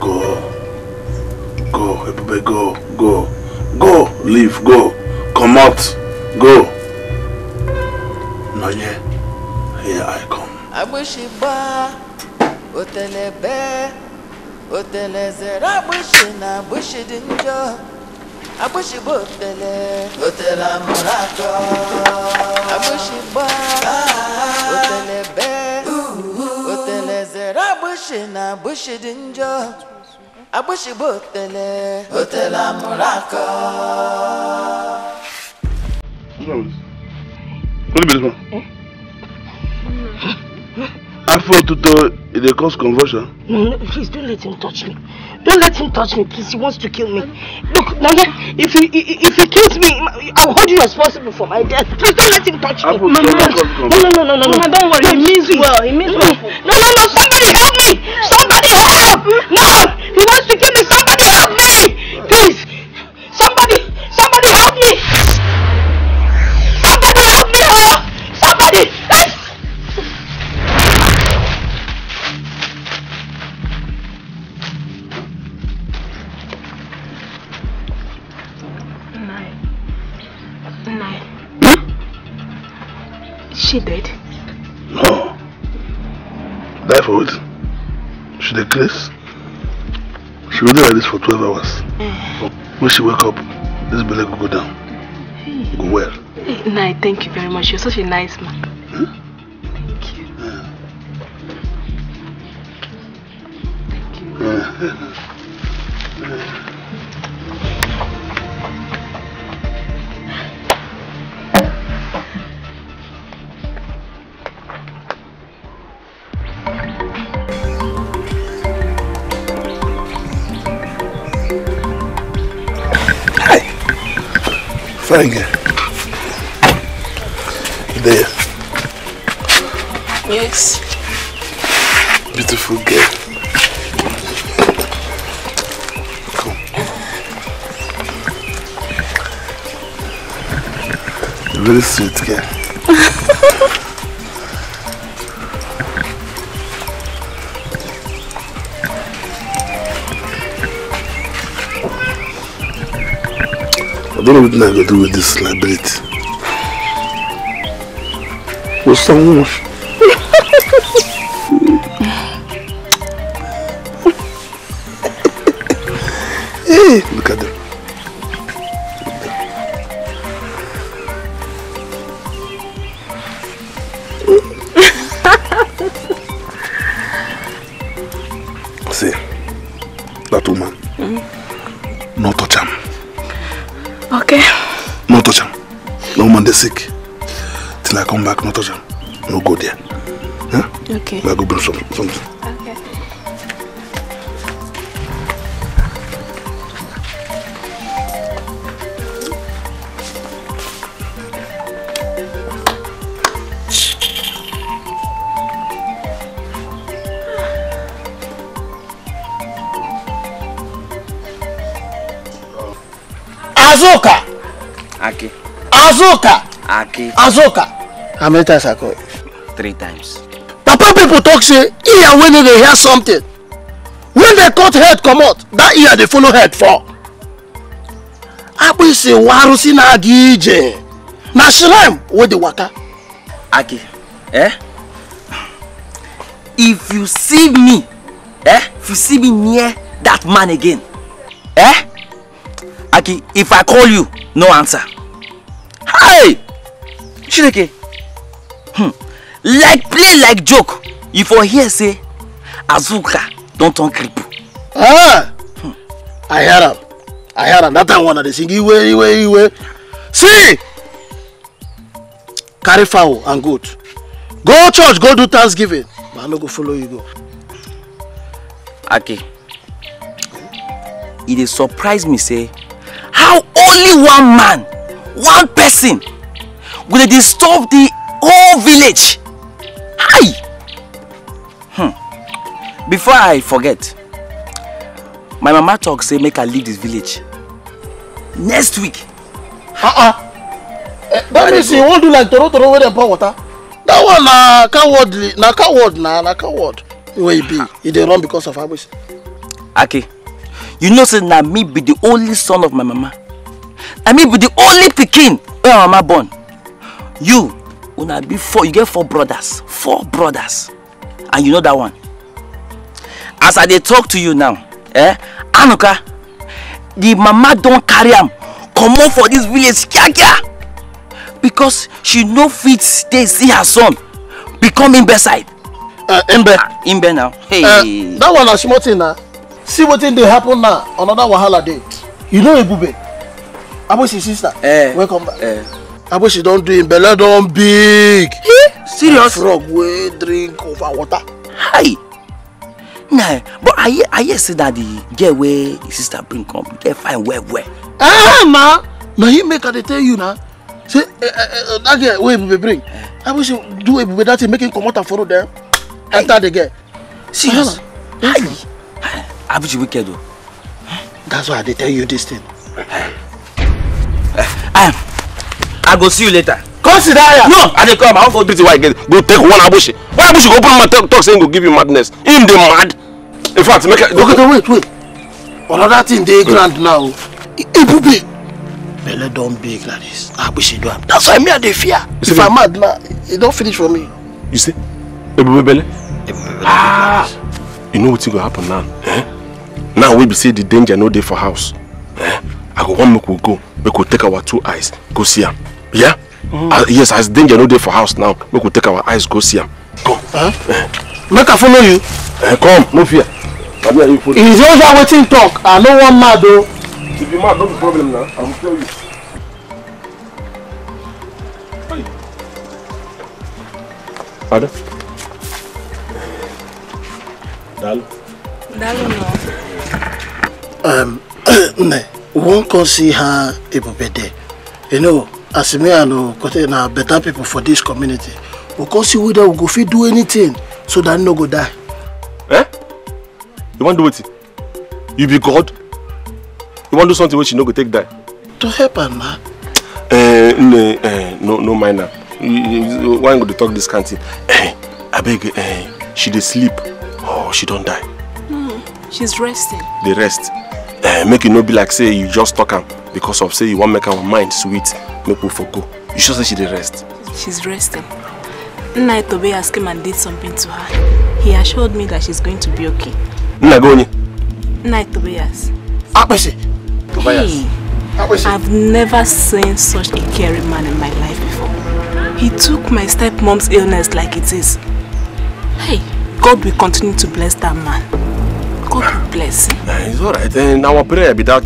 Go. Go. Go. Everybody go. Go. Go. Leave. Go. Come out. Go. Nanye. Here I come. I wish you were. otelezere agbụsị na agbụsị dị njọ agbụsị bụ otele otele amụrụ akọ agbụsị gba otele be otelezere agbụsị na agbụsị dị njọ agbụsị bụ otele otele amụrụ akọ Who's going to be this one? afro to e dey cause conversion? no no please don't let him touch me don't let him touch me please he wants to kill me look nana if he if he kills me i will hold you responsible for my death please don't let him touch me. afro tuto dey cause convulsion. no no no no no don't worry he means well he means well. no no no somebody help me somebody help No! food. She dey craze. She go like this for 12 hours. But eh. when she wake up, this belly will go down. Go well. Hey, Nai, thank you very much. You're such a nice man. Hmm? Thank you. Yeah. Thank you. Yeah. <laughs> Finger. There. Yes. Beautiful girl. Come. Very sweet girl. <laughs> don't know what I'm going to do with this celebrity. Was someone Ah, azoka how ah, many times i call you three times papa people talk say ear wey no dey hear something when they cut head come out, that ear they follow head for." fall akpịsị warụsị na-aga ije na shilem wey the water." aki eh if you see me eh if you see me near that man again eh aki if i call you no answer chineke hmm. like play like joke you for hear say azuka don turn crip. Ah, hmm. i hear am i hear am that time one i dey sing iwe iwe iwe see carry fowl and goat go church go do thanksgiving but i no go follow you go. ake e dey surprise me say how only one man one person go dey disturb the whole village hi hmm. before i forget my mama talk say make i leave this village next week uh-uh. eh, that means you won't do like toro toro wey dem pour water that one na coward na coward na na coward Where he be He dey run because of abuse. okay. you know say na me be the only son of my mama I me be the only pikin where my mama born you una be four you get four brothers four brothers and you know that one as i dey talk to you now eh anuka the mama don carry am comot for this village kiakia because she no fit stay see her son become imbe side. Uh, imbe. Uh, imbe now. Hey. Uh, that one na small thing na see wetin dey happen now another wahala dey you know ebube abosi sister eh, welcome back. Eh she don do im belle don big eh serious frog wey drink over water hi nah but i hear i hear say that the girl wey the sister bring come get fine well well ah ma na him make i dey tell you na say eh, eh, eh, oh, that girl wey ebube bring i wish you do ebube that thing make him comot and follow dem enter the girl serious hi abuchi wicked o oh. that's why i dey tell you this thing. Uh, um, i go see you later come sit down no i dey come i wan go treat you why again go take one abushi why abushi go open my talk, talk say him go give you madness him dey mad in fact make i. okay wait wait another thing dey ground now ebube belle don big like this abushi do am that's why me i dey fear if i mad na e don finish for me. you see ebube belle. ah you know wetin go happen now eh? now wey be say the danger no dey for house eh? i go wan make we go make we take our two eyes go see am yeah mm. uh, yes as danger no dey for house now We could take our eyes go see him. come make i follow you eh, come no fear e is over wetin talk i know one mad though. if you mad no problem now. i go tell you Ada? Dalo. Dalo no. Um, <coughs> we won't go see her Ebubede. You know, as me and Okote na better people for this community. We can see whether we go fit do anything so that no go die. Eh? You want to do it? You be God? You want to do something which you no go take die? To help her, ma. Eh, no, eh, no, no mind her. Why go to talk this kind thing? Eh, I beg, eh, she dey sleep. Oh, she don't die. Mm, she's resting. The rest uh, make e no be like say you just talk am because of say you want make our mind sweet make we for go you sure say she dey rest. she's resting nna asked him and did something to her he assured me that she's going to be okay. nna gị onye. nna tobias. akpịsị. tobias. Hey, I've never seen such a caring man in my life before. He took my stepmom's illness like it is. Hey, God will continue to bless that man. God bless eh, it's all right. And eh, our prayer be that.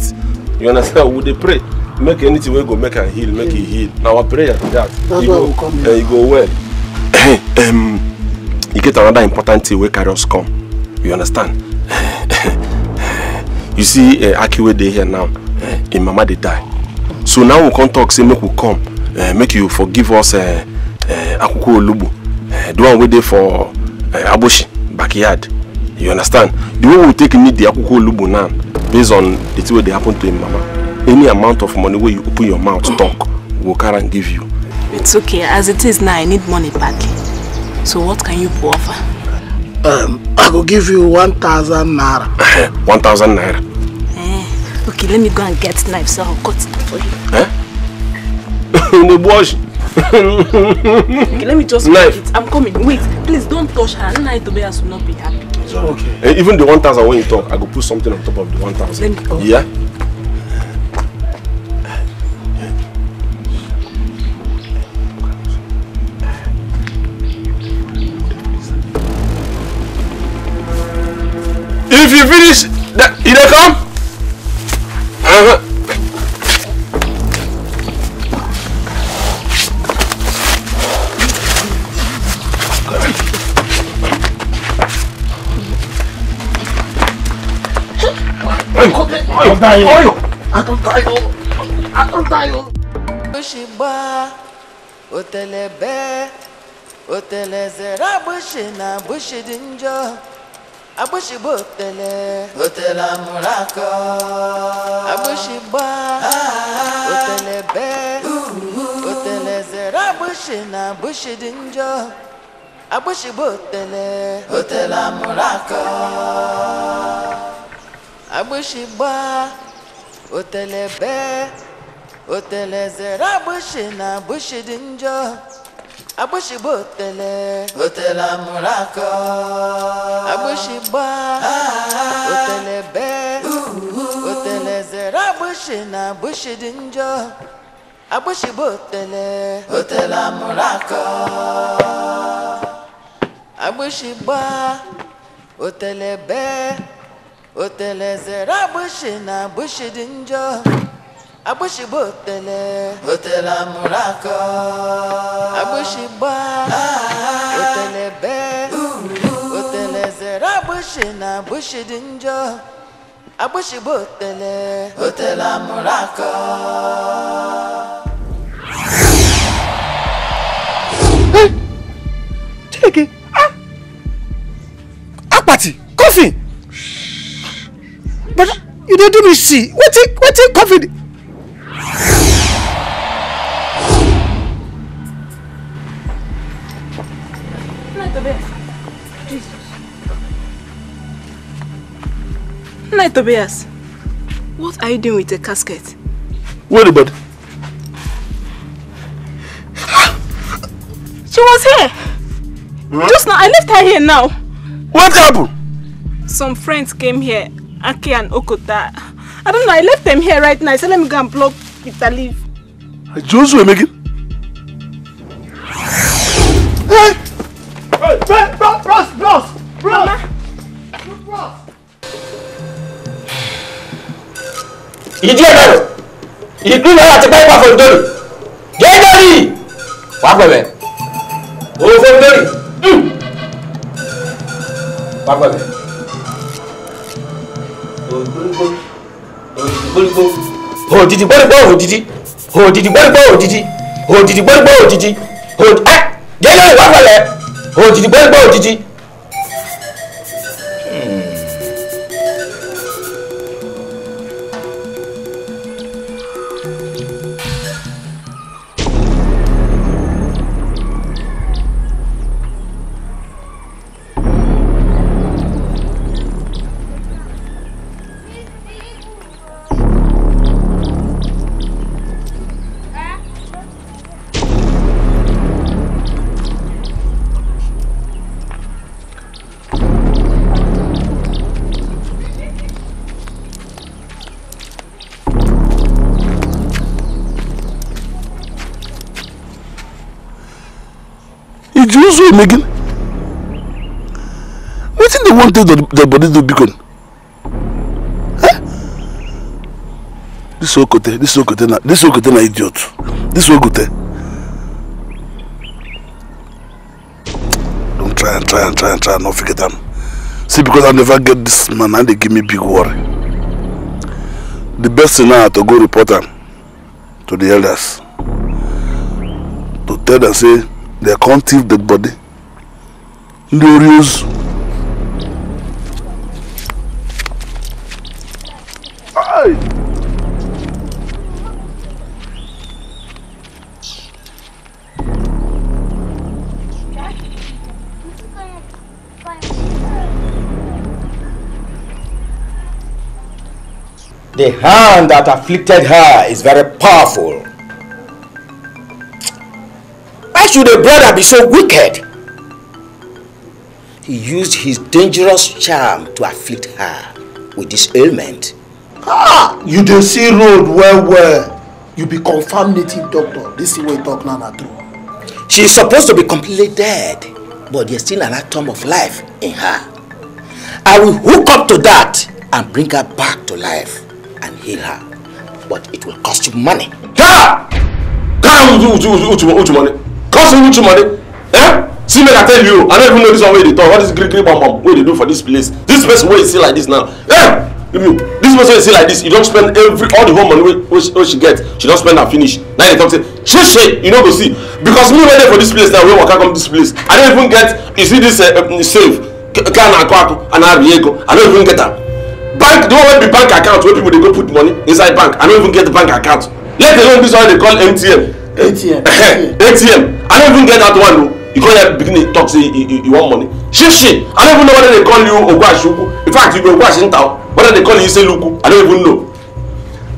You understand? We dey pray. Make anything we go make and heal, make yeah. it heal. Now our prayer be that. That's you go, we come uh, eh, you go well. um, <coughs> you e get another important thing where carry come. You understand? <coughs> you see, uh, Akiwe dey here now. Uh, him mama dey die. So now we come talk, say make we come. Uh, make you forgive us uh, uh, Akuko Olubu. Uh, the one we dey for uh, Aboshi backyard you understand the way we we'll take need the akwukwo lubu now based on the thing wey dey happen to him mama any amount of money where you open your mouth talk we'll go carry am give you. it's okay as it is now i need money badly. so what can you offer. Um, i will give you one thousand naira. Eh, one thousand naira. Eh, okay let me go and get knife so i'll cut it for you. Eh? the <laughs> bush. okay, let me just knife. It. i'm coming wait please don't touch her nna itobeya will not be happy. Okay. Uh, even the 1,000 when you talk, I go put something on top of the 1,000. Oh. Yeah? If you finish, that, you don't come? tayo. Oyo! Atol tayo. Atol tayo. Bushimba, otelebe, otelezera bushina bushidinjo. Abushibo otele, otela murako. Abushiba, otelebe, otelezera bushina bushidinjo. Abushibo otele, otela murako. agbịsị gbaa otele ebe. otele zere agbịsị na abushi dị njọ agbịsị bụ otele otele amụrụ akọ agbịsị gbaa otele bee otele zere agbịsị na abushi dị njọ agbịsị bụ otele otele amụrụ akọ agbịsị gbaa otele bee otele zere agbụshị na agbụshị dị njọ agbụshị bụ otele otele amụrụ akọ agbụshị gbaa ah. otele bee otele zere agbụshị na agbụshị dị njọ agbụshị bụ otele otele amụrụ akọ Chike, ah! akpati, kọfị but you do do me see What is? wetin covid. Night Tobias, what are you doing with the casket? Wait a bit. she was here. Hmm? Just now, I left her here now. What happened? Some friends came here Aki and Okota. I don't know, I left them here right now. I said let me go and block Peter leave. Leaf. Joshua Megan? Hey! Hey, hey, bros, bros, bros! Bros! Bros! Ìdí ẹ̀ lọ́rọ̀, ìdú náírà ti pẹ́ pàfọ̀ ìdórì, gẹ́gẹ́rì! Wà pẹ̀lẹ̀, òfin lórí, wà pẹ̀lẹ̀. òdìdì gbọ́dọ̀gbọ́ òdìdì òdìdì gbọ́dọ̀gbọ́ òdìdì òdìdì gbọ́dọ̀gbọ́ òdìdì òdìdì ẹ eh, jẹ́lẹ̀ ìwà pẹ̀lẹ́ òdìdì gbọ́dọ̀gbọ́ òdìdì so you making? What Wetin dey wan take the body do beacon? Eh? This Okote, this Okote na, this Okote na idiot. This Okote. Don't try and try and try and try and not forget them. See, because I never get this man, and they give me big worry. The best thing now to go report am to the elders. To tell them say they can't thief dead body ndị Hey. The hand that afflicted her is very powerful. Why should a brother be so wicked? He used his dangerous charm to afflict her with this ailment. Ah, you don't see road well well. You be confirmed native doctor. This is what talk Nana na She is supposed to be completely dead, but there's still an atom of life in her. I will hook up to that and bring her back to life and heal her. But it will cost you money. Yeah! Come, you, you, you, you, you, you, cause me too money eh see make i tell you i don't even know this one wey they talk What is gree gree bam What wey dey do for this place this person where you see like this now eh you this person wey you see like this you don't spend every all the whole money which wey she, she get she don't spend and finish Now they talk say shey shey you no go see because me wey for this place now we waka come this place i don't even get you see this uh, um, save Can I akọ and ari i don't even get that. bank the one wey be bank account where people they go put money inside bank i don't even get the bank account let alone this one they call mtn atm <coughs> atm i don't even get that one o you come there begin talk say you, you want money shit shit i don't even know whether they call you Oguashuku. in fact you be ogwashinta whether they call you say Luku? i don't even know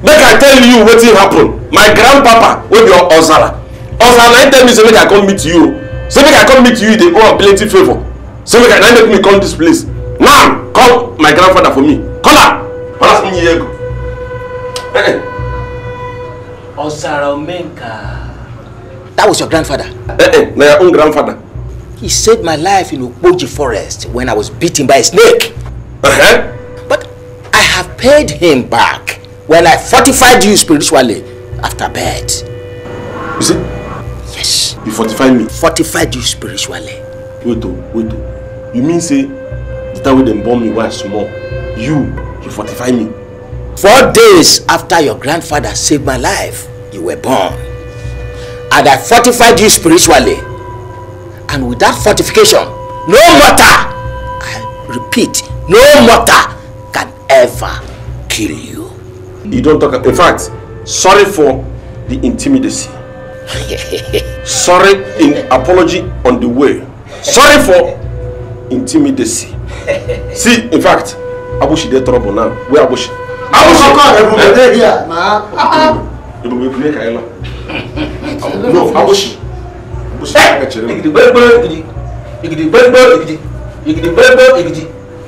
make i tell you wetin happened? my grandpapa wey be ozara ozara na tell me say make i come meet you oh. say make i come meet you They owe am plenty favor. say make i na make me come this place now call my grandfather for me call am pass me Diego. ozara omenka. That was your grandfather. Eh, eh, na own grandfather. He saved my life in Okpoji forest when I was bitten by a snake. Uh-huh. But I have paid him back when I fortified you spiritually after bed. Is it? Yes. You fortified me? Fortified you spiritually. Wait, oh, wait. Oh. You mean say the time when they born me was small, you, you fortified me? Four days after your grandfather saved my life, you were born and I fortified you spiritually. And with that fortification, no mortar, I repeat, no mortar can ever kill you. You don't talk. In fact, sorry for the intimidacy. sorry in apology on the way. Sorry for intimidacy. See, in fact, Abushi dey trouble now. Where Abushi? Abushi! Abushi! Abushi! Abushi! Abushi! Abushi! Abushi! no abosi abosi I kyerɛ mu. igidi gbɛgbɛ igidi igidi gbɛgbɛ igidi igidi gbɛgbɛ igidi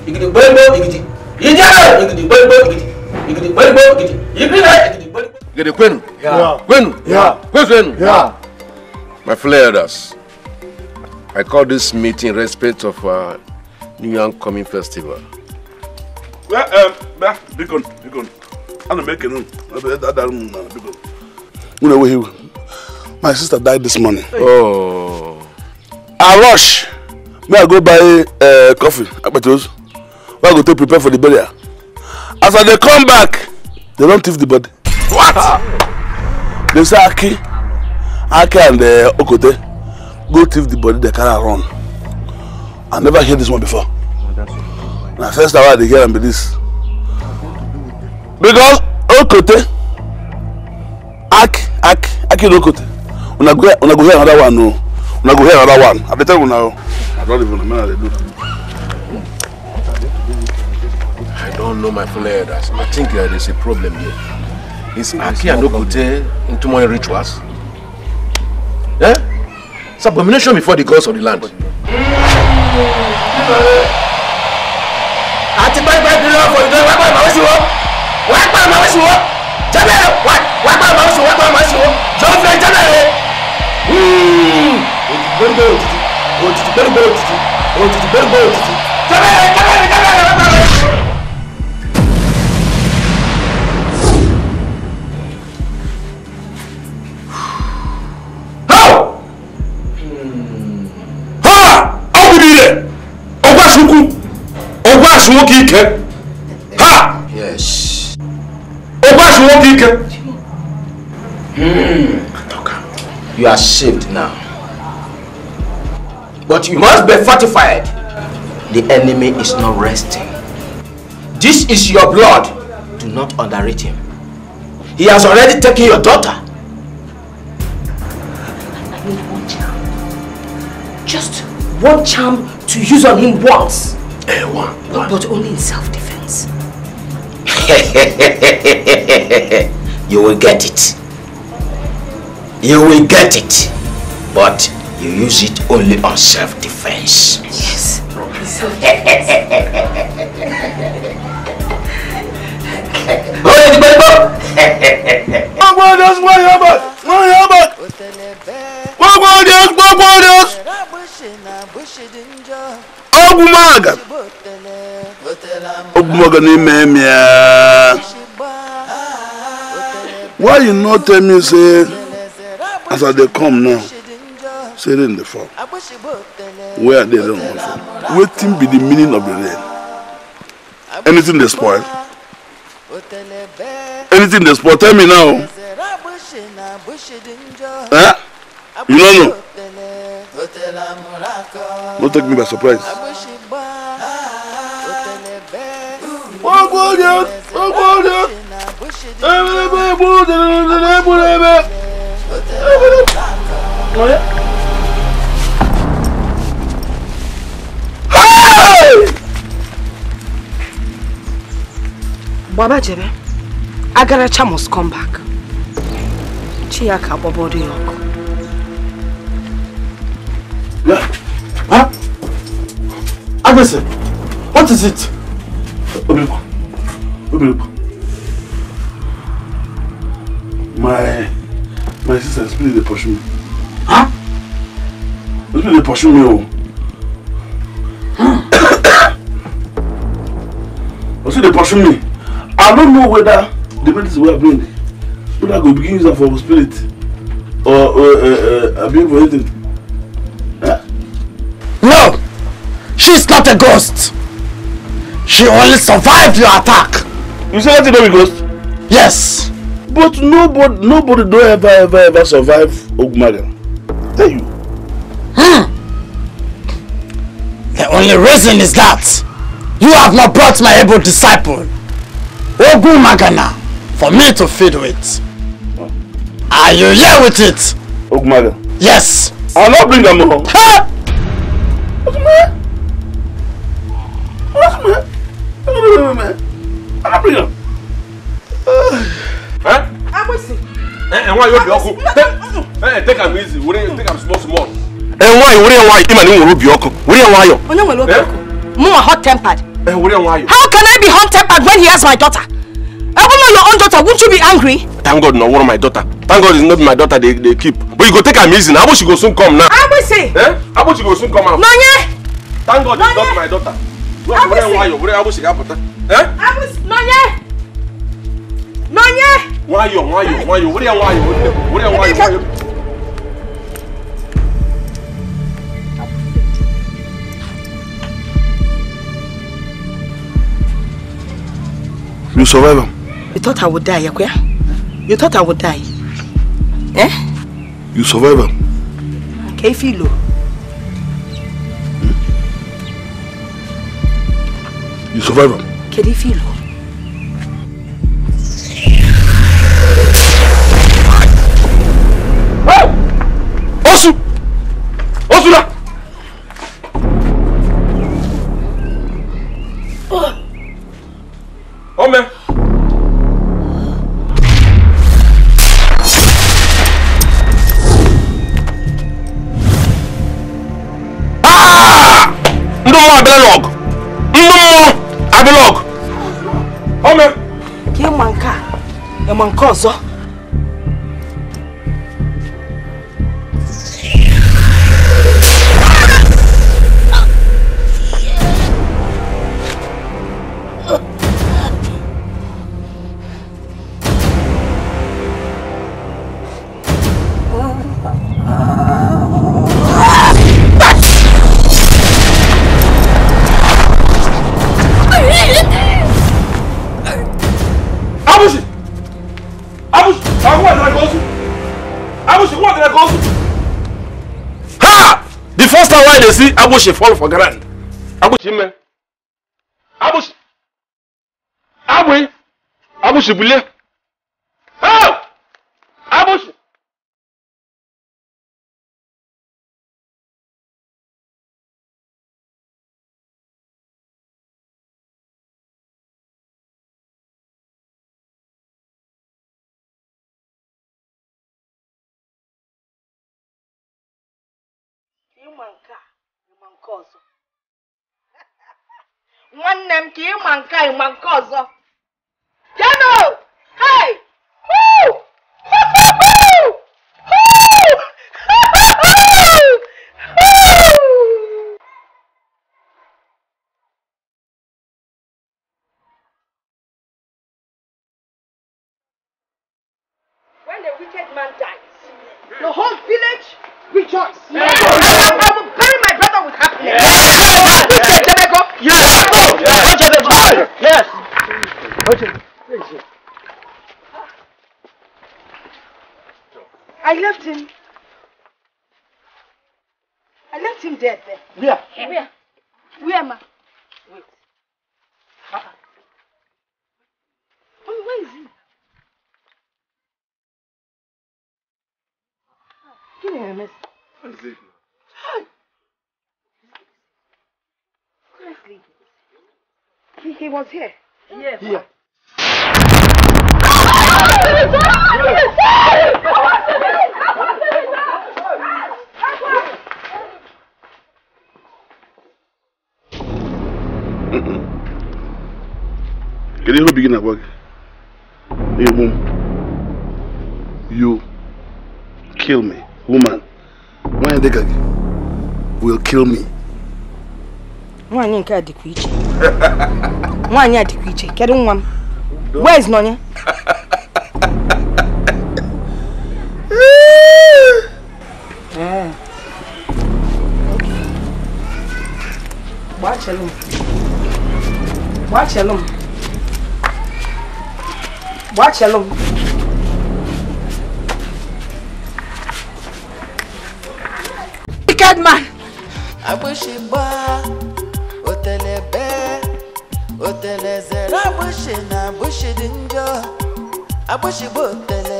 igidi gbɛgbɛ igidi yíyá igidi gbɛgbɛ igidi igidi gbɛgbɛ igidi yíyá igidi gbɛgbɛ. igidi kwenu kwenu kwenu my fellow elders i call this meeting in respect of our new yam coming festival. well um, bia bikon bikon ana m ekene m ebe dadarụ m na bikon. My sister died this morning. Oh. I rush. May I go buy uh, coffee, you. May I go to prepare for the burial. As they come back, they don't thief the body. What? They say Aki, Aki and uh, Okote go thief the body, they carry run. I never hear this one before. Na first time I dey hear am be this. Because Okote act act act lokote una go una go hear another one o una go hear another one i dey una o i don even remember dey do i don know my full head as i think uh, there is a problem here is aki adokote in my rituals eh it's abomination before the gods of the land. àti báyìí báyìí bí wọ́n fọ̀ ìdánwò wáá pàmò àwọn sí wọ́n wáá pàmò àwọn sí wọ́n jẹ́bẹ̀ wá gbà máa ń sọ wá gbà máa ń sọ jọ fẹ́ jẹ́bẹ̀ rẹ̀ òtítì gbẹ́rùgbẹ́rù òtítì gbẹ́rùgbẹ́rù òtítì òtítì gbẹ́rùgbẹ́rù òtítì jẹ́bẹ̀ rẹ̀ jẹ́bẹ̀ rẹ̀ jẹ́bẹ̀ rẹ̀ wá gbà rẹ̀. ọgbà sunkún ọgbà sunwó kì í kẹ́. deacon. Mm. Okay. You are saved now. But you must be fortified. The enemy is not resting. This is your blood. Do not underrate him. He has already taken your daughter. I need one charm. Just one charm to use on him once. Eh, one, one. But only in self-defense. you will get it. You will get it. But you use it only on self-defense. Yes. Gbogbo ọdọs wọ́n ogbonge n'ime mia why you no tell me say as i dey come now say rain dey fall where i dey rain wan fall wetin be the meaning of the rain anything dey spoil anything dey spoil tell me now eh you no know no take me by surprise. Ogbonye, ogbonye, ebelebe ebulebe ebulebe. Baba Jebe, Agaracha must come back. Chiaka Bobo Dioko. Yeah. Huh? Agbese, what is it? My my sister spirit dey pursue me. Huh? Spirit dey pursue me o. Osi dey pursue me. I don't know whether the medicine wey I bring whether I go begin use for spirit or or uh, uh, abuse for anything. Uh. No! She's not a ghost! She only survived your attack. You say said the baby ghost? Yes. But nobody, nobody don't ever, ever, ever survive Ogumaga. Tell you. Hmm. The only reason is that you have not brought my able disciple, Ogumagana, for me to feed with. Oh. Are you here with it? Ogumaga? Yes. I'll not bring them home. Ha! Ogumaga? Ogumaga? arábìnrin náà. agbèsè. ẹ̀wọ̀n yóò bí ọkọ take am easy take am small small. ẹ̀wọ̀n ayọ̀ wúrẹ́ ẹ̀wọ̀n ayọ̀ ìmọ̀ hot tempered. how can I be hot tempered when he has my daughter? Even your own daughter, wouldn't you be angry? Thank God, not one of my daughter. Thank God it's not my daughter they, they keep. But you go take her easy now. How about she go soon come now? How about she? Eh? How about she go soon come out? No, Thank God it's not my daughter wúrẹ́ wọ ayọ̀ wúrẹ́ abúsì kápọ̀tà. abúsì nọ̀nyẹ́ nọ̀nyẹ́. wọ́n ayọ̀ wọ́n ayọ̀ wọ́n ayọ̀ wúrẹ́ wọ́n ayọ̀ wúrẹ́ wọ́n ayọ̀ wọ́n ayọ̀. You eh? survive him. You thought I would die, Yakuya? You thought I would die? Eh? You survive him. Kefilo. Okay, You survive am. Can you feel? Osu! Osula! Ah! No mwa bele log! block. Ome. Ke manka. E manka ọzọ. I Abushi fall for I ground. Abushi me. Abushi. Abushi. Abushi believe. nke ọzọ nwanne m ka ịma nke ịma nke ọzọ comes here. Yes. Here. Kedu ihe obi gị na-agwa gị? You kill me, woman. Nwaanyị dịka will kill me nke a dịkwa iche nwaanyị a dịkwa iche kedu nwa m wez n'onye gbachelụ m gbachelụ m m wicked man. I agbụchigbo otele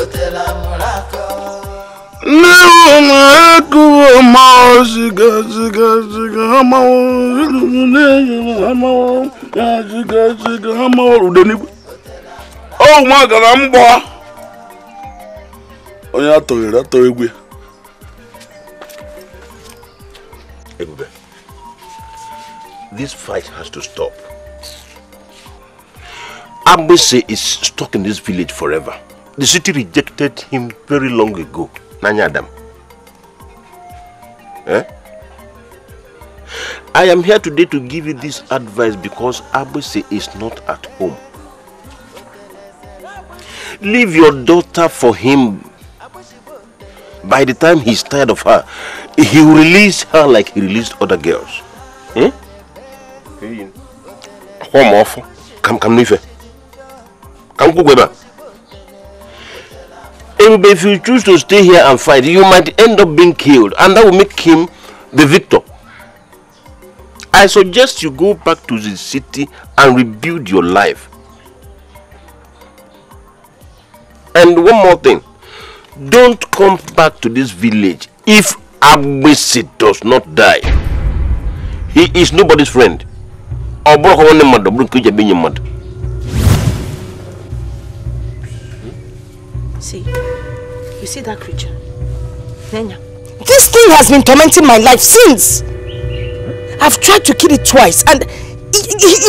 otele amụrakọ na ha a ude n'igwe m onye atọghere atọ egwe this fight has to stop Ambese is stuck in this village forever. The city rejected him very long ago. Nanya, Adam. Eh? I am here today to give you this advice because Abese is not at home. Leave your daughter for him. By the time he's tired of her, he will release her like he released other girls. Hmm? Eh? Come off. Come, come, her if you choose to stay here and fight, you might end up being killed, and that will make him the victor. I suggest you go back to the city and rebuild your life. And one more thing don't come back to this village if Abisi does not die. He is nobody's friend. See, you see that creature? Nenya. This thing has been tormenting my life since. I've tried to kill it twice and it, it,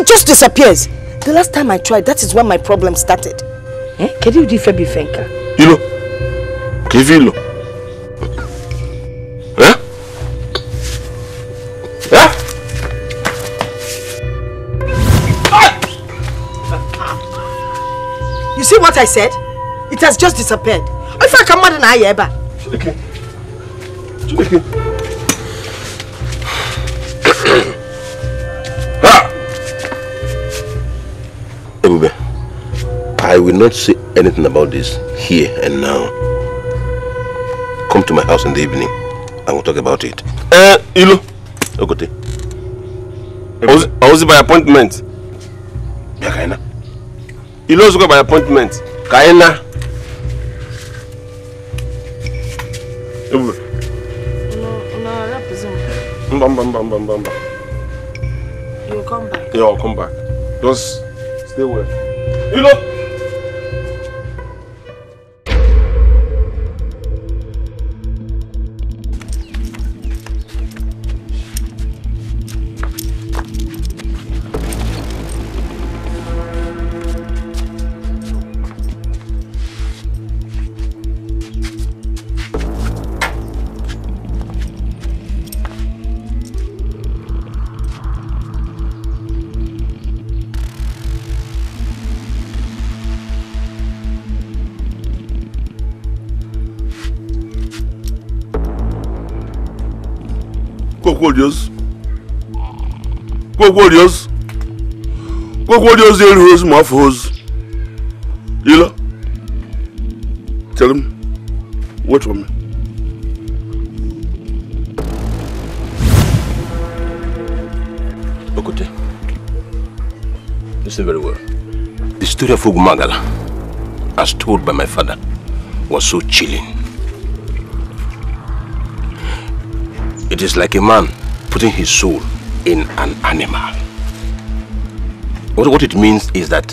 it just disappears. The last time I tried, that is when my problem started. Eh? Kedu ụdị ife bụ ife nka? Ilo. Ka ife ilo. Eh? Eh? You see what I said? It has just disappeared. If I come out in I ever. <clears throat> Ah! Ebube, I will not say anything about this here and now. Come to my house in the evening and we'll talk about it. Eh, uh, Ilu. Okote. I was by appointment. Yeah, Kaina. Ilu was by appointment. Kaina. bam, bam, bam, bam, bam, bam. You'll come back. Yeah, I'll come back. Just stay well. You know. warriors. Go warriors. Go warriors, they'll hose my You know? Tell him. Wait for me. Okute. Listen very well. The story of Ugumagala, as told by my father, was so chilling. It is like a man putting his soul in an animal. What, what it means is that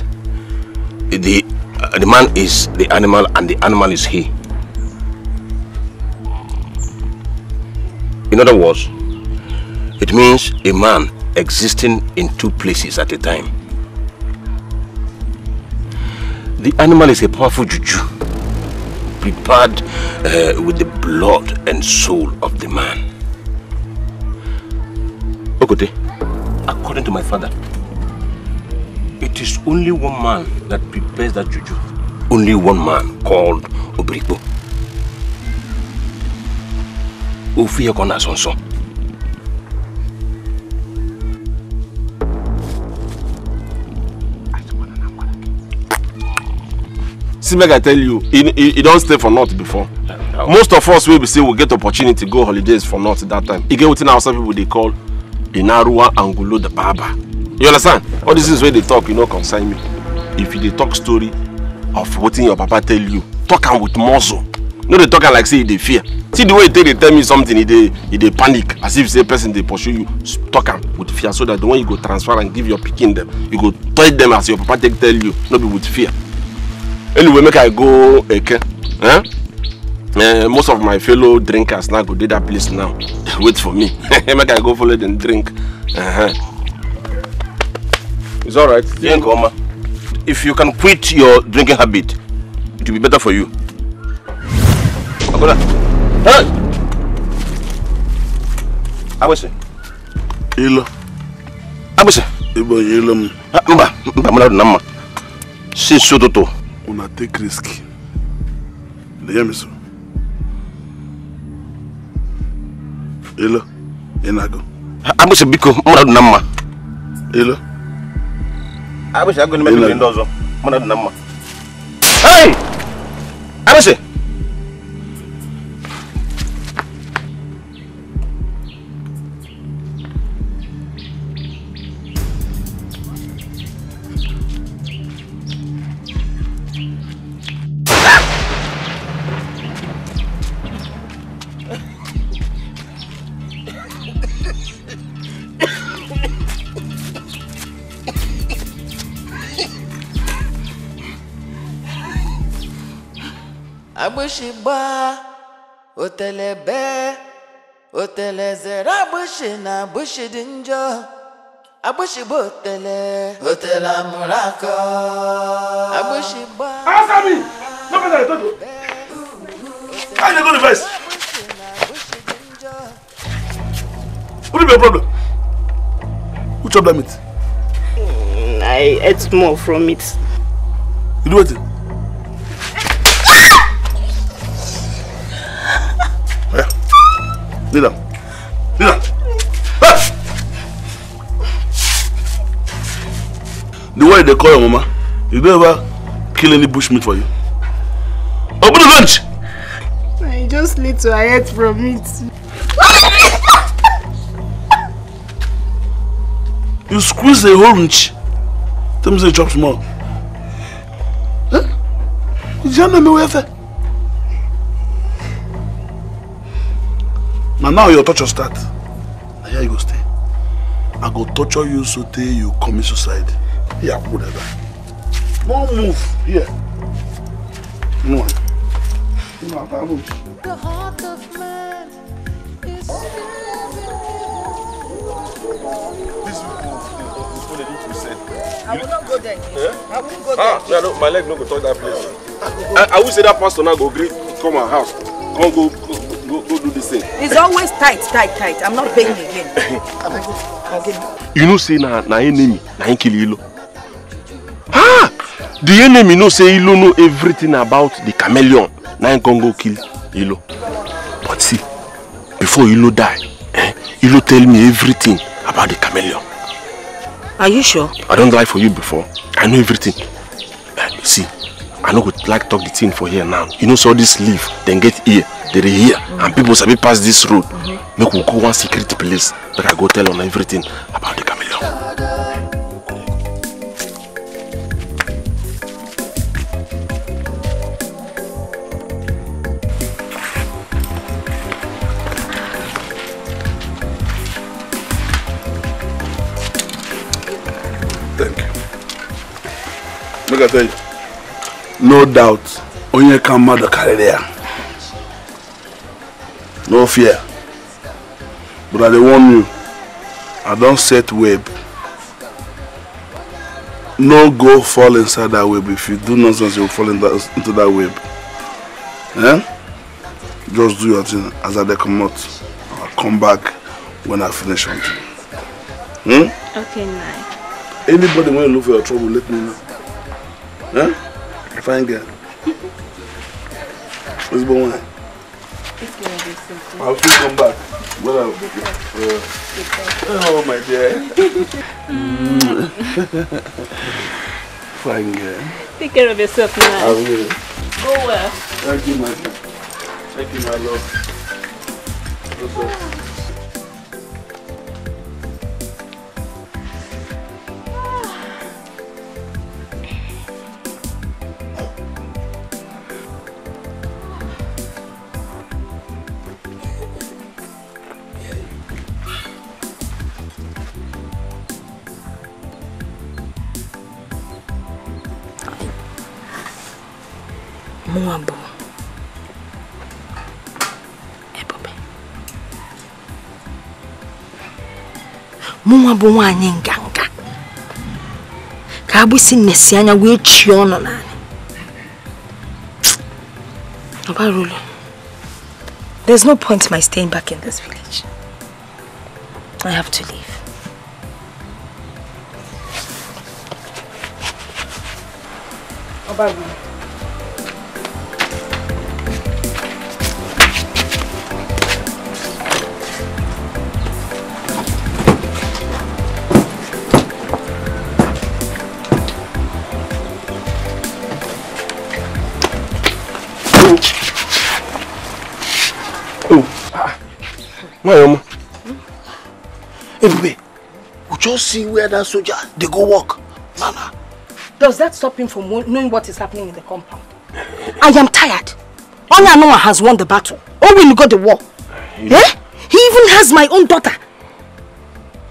the, uh, the man is the animal and the animal is he. In other words, it means a man existing in two places at a time. The animal is a powerful juju, prepared uh, with the blood and soul of the man according to my father, it is only one man that prepares that juju. Only one man called Obrigbo. Ofiye Kona Sonson. See, make I tell you, he, he, he don't stay for naught before. Most of us will be say we get opportunity to go holidays for naught that time. He get within some people they call inaruwa angulo the barber you understand all these things where they talk you know, concern me if you talk story of wetin your papa tell you talk am with muscle no they talk like say they e fear see the way they take tell me something they they panic as if say person they pursue you talk am with fear so that the one you go transfer and give your picking them, you go tell them as your papa take tell you no be with fear anyway make i go okay, huh? Eh? uh, most of my fellow drinkers now go dey that place now <laughs> wait for me <laughs> make i go follow dem drink. Uh -huh. it's alright, right drink oma if you can quit your drinking habit it will be better for you. agola hey agbese. ilo. agbese. ibo ilo m. Ah, mba mba mmadụ na mma since ụtụtụ. una take risk. na ya meso. Elo, ị na-agụ? Agbụsị biko, mmadụ dị na mma. Elo. Agbụsị agụ n'ime ndị ọzọ, mmadụ dị na mma. Hey! Agbụsị! otele be, otele zere agbụshị na agbụshị dị njọ agbụshị bụ otele otele amụrụ akọ agbụshị gba asami nobody i told you i dey go the first what is your problem who chop that meat. Mm, i ate more from it. you do it? Lay down. Lay The way they call your mama, you don't ever kill any bush meat for you. Open the lunch! I just need to hide from it. you squeeze the orange. Tell me say it drops more. Huh? You don't know me na now your torture start Now here you go stay i go torture you so till you commit suicide Yeah, whatever. that move here no you know how move. the heart of man is this one is what said. I will not go there. Yeah? I will not go there. Ah, yeah, no, my leg no go touch that place. I, I will say that pastor now go greet come our house. Come go go, go do this thing. It's always tight, tight, tight. I'm not paying <laughs> again. you know say na na enemy na kill Ilo. Ah, the enemy know say Ilo know everything about the chameleon. Na him go kill Ilo. But see, before Ilo die, eh, Ilo tell me everything about the chameleon. Are you sure? I don't lie for you before. I know everything. Uh, see, I know would like talk the thing for here now. You know, so this leaf, then get here, they are here, mm -hmm. and people we pass this road. Mm -hmm. Make we go one secret place, but I go tell them everything about the chameleon. Thank you. Look at that. no doubt onye ka mmadụ karịrị ya no fear but i dey warn you i don set web no go fall inside that web if you do nonsense you will fall into that web eh? just do your thing as i dey comot i come back when i finish something hmm? okay, nice. anybody wey look for your trouble let me know eh? Fine good. What's going on? It's gonna be I'll still come back. What up, baby? oh my dear. <laughs> Fine Take care of yourself now. I will. Go well. Thank you, my Thank you, my love. What's up? Mon amour. Ebube. Mụnwa bụ nwaanyị nganga. Ka agbụsị nnesi anya wee chie ọnụ n'anyị. Obarulu, there's no point in my staying back in this village. I have to leave. Obarulu. Why, Oma? Hmm? Ebube, we just see where that soldier, they go walk. Nana. Does that stop him from knowing what is happening in the compound? I am tired. Only Onyanoma has won the battle. Owen got the war. You eh? He even has my own daughter.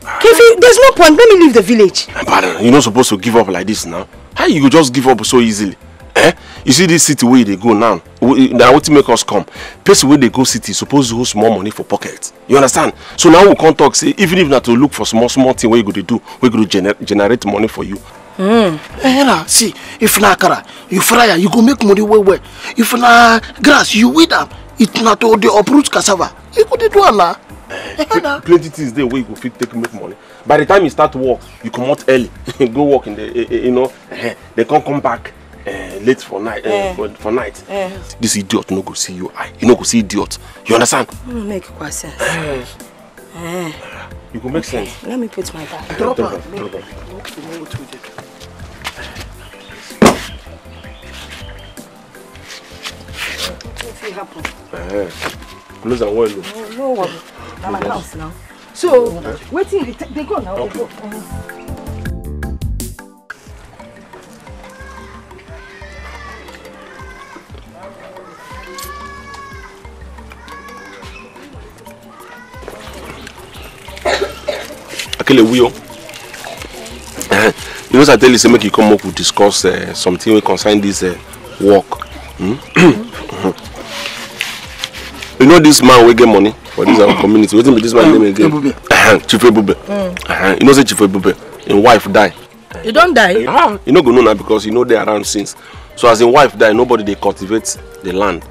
Kefi, there's no point. Let me leave the village. Pardon, you're not supposed to give up like this now. How you just give up so easily? eh you see this city where they go now na wetin make us come person where they go city suppose hold more money for pocket you understand so now we come talk say even if not to look for small small thing wey you go to do We go gener generate money for you. Mm. Eh, eh na, see if na kara, you fry you go make money well well if na grass you weed up. it not all the uproot cassava you go dey do am na. Uh, eh, eh, plenty things there where you go fit take make money by the time you start work you come out early <laughs> go work in the you know they can't come back Eh, late for night uh, eh. for, for night eh. this idiot no go see you eye he no go see idiot you understand. no make kwa sense. Eh. Eh. you go make okay. sense. let me put my bag. drop am drop am. wetin happen. Eh. close am well o. no no I'm na house now. so wetin they go now dey go. Uh mm-hmm. -huh. akele wuyo you know say i tell you say make you come up we discuss uh, something wey concern this uh, work mm? <clears throat> you know this man wey get money for this our community wetin be this man mm. name again chief ebube <clears throat> mm. uh-huh. you know say chief ebube im wife die. e don die. you ah. no go know na because you no dey around since so as im wife die nobody dey cultivate the land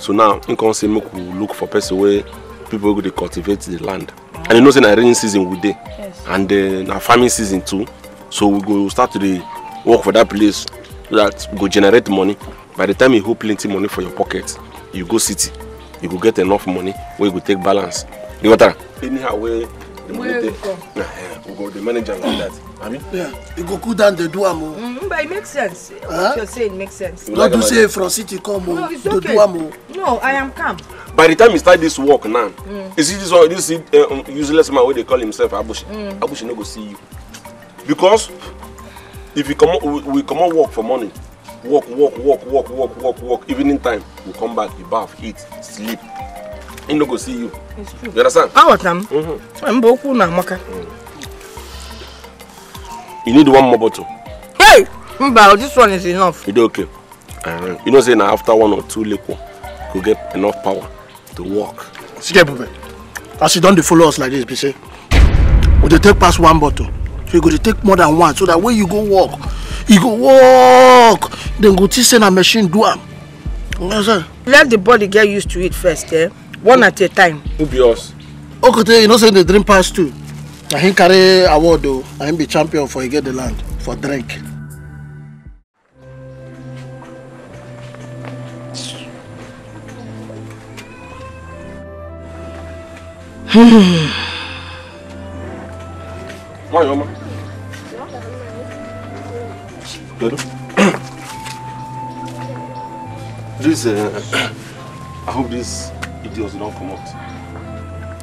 so now im come say make we look for person wey people wey go dey cultivate the land and you know say na rainy season we dey. Yes and then na uh, farming season too so we go start to dey work for that place so that we go generate money by the time you hold plenty money for your pocket you go city you go get enough money wey you go take balance you get am anyhow wey you go we go the manager like that abi. yeah e go cool down the do am Mm, but it makes sense huh? what you say makes sense. You no do say from city come o dey do am o. no i am calm. by the time he start this work now mm. you see this one this uh, useless man wey they call himself abushi mm. abushi no go see you because if you come, we, we on work for money. Walk, walk, walk, walk, walk, walk, walk. evening time we come back you baff eat sleep he no go see you true. You understand? I was them. Mm-hmm. I'm Boku na Maka. Mm. You need one more bottle. Hey! Mba, this one is enough. You do okay. Uh, you know, say now after one or two liquor, you get enough power to walk. See, Bube, as you don't follow us like this, be say, we dey take past one bottle. So you go to take more than one, so that way you go walk, you go walk, then go to send a machine do am. You know what I'm saying? Let the body get used to it first, eh? one at a time. who be us. okote you know say dey drink pass too. na him carry award though. na him be champion for get the land for drink. Hmm. Why, Oma? Good. <coughs> this, uh, <coughs> I hope this deals come out.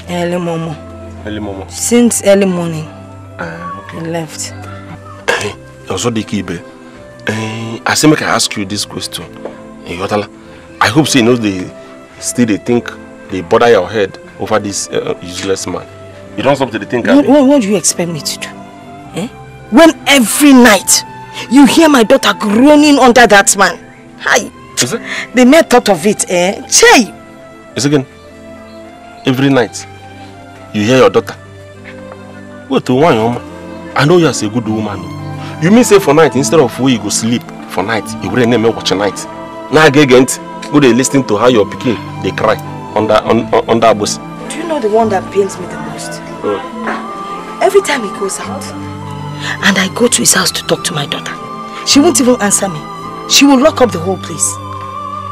early momo. early momo. since early morning. Uh, okay. he left. Osodiki Ibe, uh, I say make I ask you this question. Eh, Yotala, I hope say you know they still they think they bother your head over this uh, useless man. You don't stop to the think. What, what, what do you expect me to do? Eh? When every night you hear my daughter groaning under that man. Hi. Is it? The mere thought of it, eh? Chey, Yes, again. Every night, you hear your daughter. Wait till one woman. I know you as a good woman. You mean say for night, instead of where you go sleep for night, you will name watch a night. Now again, go they listening to how your picking? they cry on that on, on, that bus. Do you know the one that pains me the most? Mm. Every time he goes out, and I go to his house to talk to my daughter, she won't even answer me. She will lock up the whole place.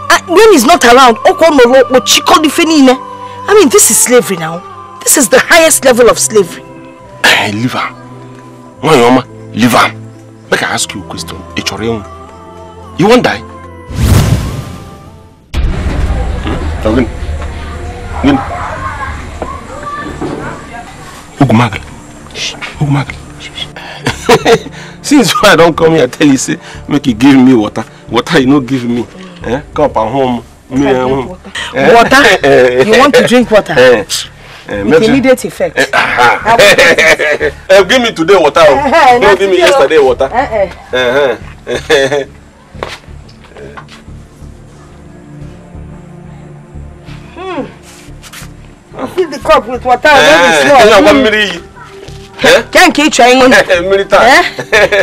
Ah, when he's not around, I mean, this is slavery now. This is the highest level of slavery. Hey, leave her. My mama, leave her. Make I ask you a question. It's your own. You won't die. Hmm? Win. Win. Ugumagle. Ugumagle. <laughs> Since I don't come here, tell you, say, make you give me water. Water you no give me eh, cup at home. Me, um, water. Eh? eh water? Eh, eh, you want to drink water? Eh. With immediate effect. Uh, <laughs> give me today water. Uh, oh. no, give me oh. yesterday water. Uh, uh. Uh, uh. Fill the cup with water. Eh, one hmm. minute. Can't keep trying ngon. Mmiri taa.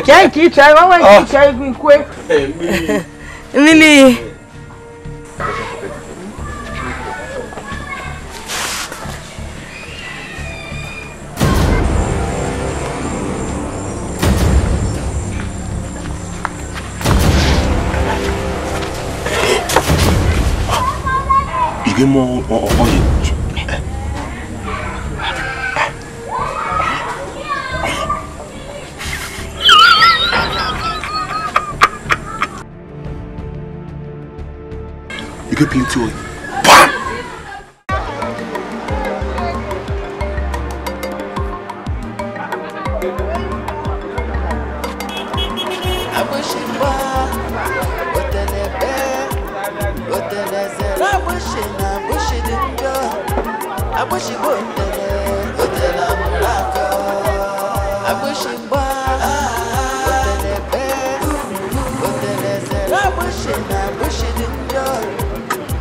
Kyan ki chai, wawa ki trying gwi kwe. Mmiri. Mmiri ìgbìmọ̀ ọ̀hún yìí. you get plenty oil. Bam! I wish it would.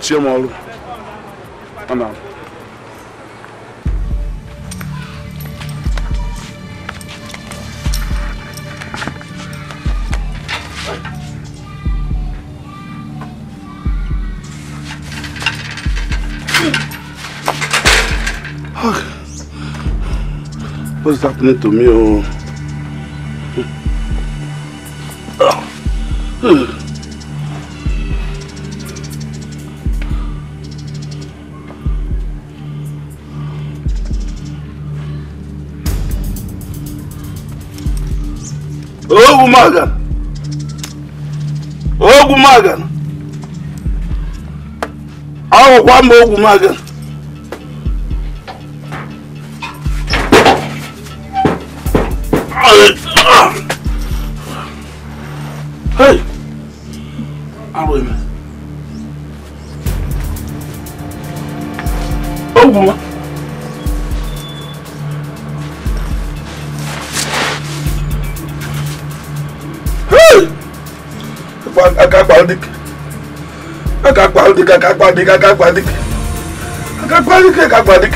mechie m ọrụ ana What's happening to me? Oh. ogwu magana ogwu magana ahụkwa mba ogwu magana kakpadik kakpadik kakpadik kakpadik.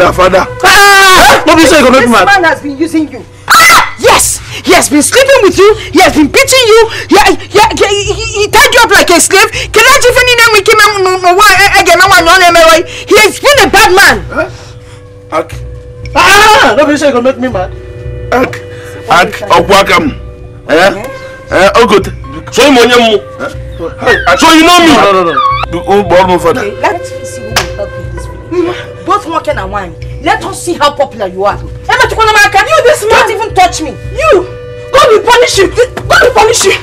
her father. Ah! No be so you go This man has been using you. Ah! Yes! He has been sleeping with you. He has been beating you. He, he, he, he, he tied you up like a slave. Can I just any name make him eh, eh, again? I want to He has been a bad man. Huh? Okay. Ah! No be so you go make me mad. Ak. Ak. Okwakam. Eh? eh? Eh? Oh good. So you know me. So you know me. No, no, no. Oh, my father and wine. Let us see how popular you are. Emma Tukonamaka, you this man don't even touch me. You! God will punish you! God will punish you!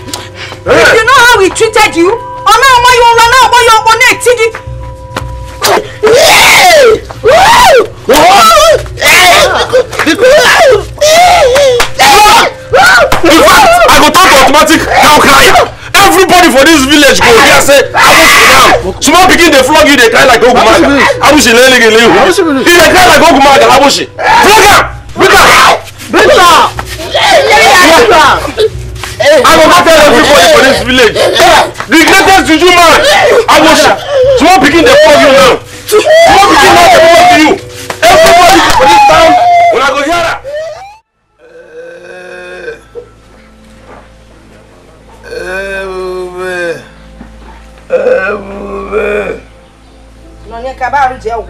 Hey. If you know how we treated you, or now why you run out, why you run out, TD! I go talk automatic, now cry! everybody for this village go hear say arusi now small pikin dey flog you dey cry like ogumaga arusi lelele you dey cry like ogumaga arusi flog am beat am beat am i go go tell everybody for this village the greatest juju man arusi small pikin dey flog you now small pikin now dey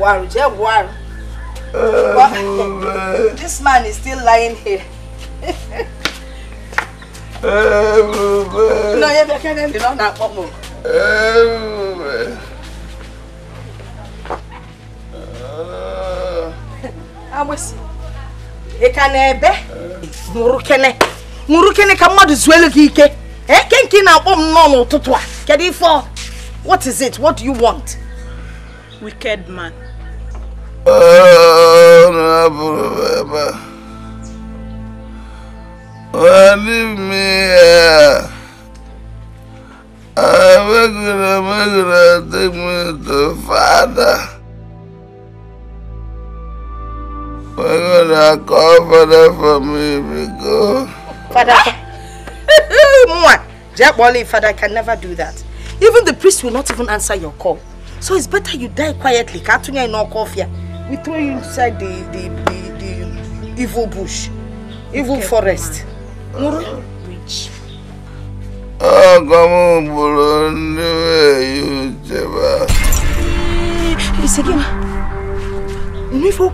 Buhari, Jai Buhari. Oh, <laughs> This man is still lying here. No, you can't end it on that one. Oh, man. Awesi. Ị ka na-ebe? Nụrụ kene. Nụrụ kene ka mmadụ zuelu gị ike. Eke eh, nke ị on m nnọọ n'ụtụtụ a. Kedu ife ọ? What is it? What do you want? Wicked man. Father, for me, because. Father, for... Jack Father can never do that. Even the priest will not even answer your call. So it's better you die quietly. Katunya in coffee. We throw you inside the the, the, the evil bush, evil okay, forest. Muru? Rich. It's again. Nivo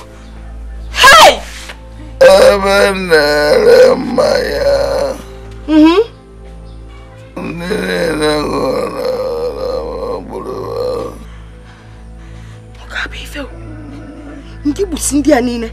ebe na-ere mmanya ndị niile hụrụ gburu ọ a bụ ife ndị gbusi ndị a niile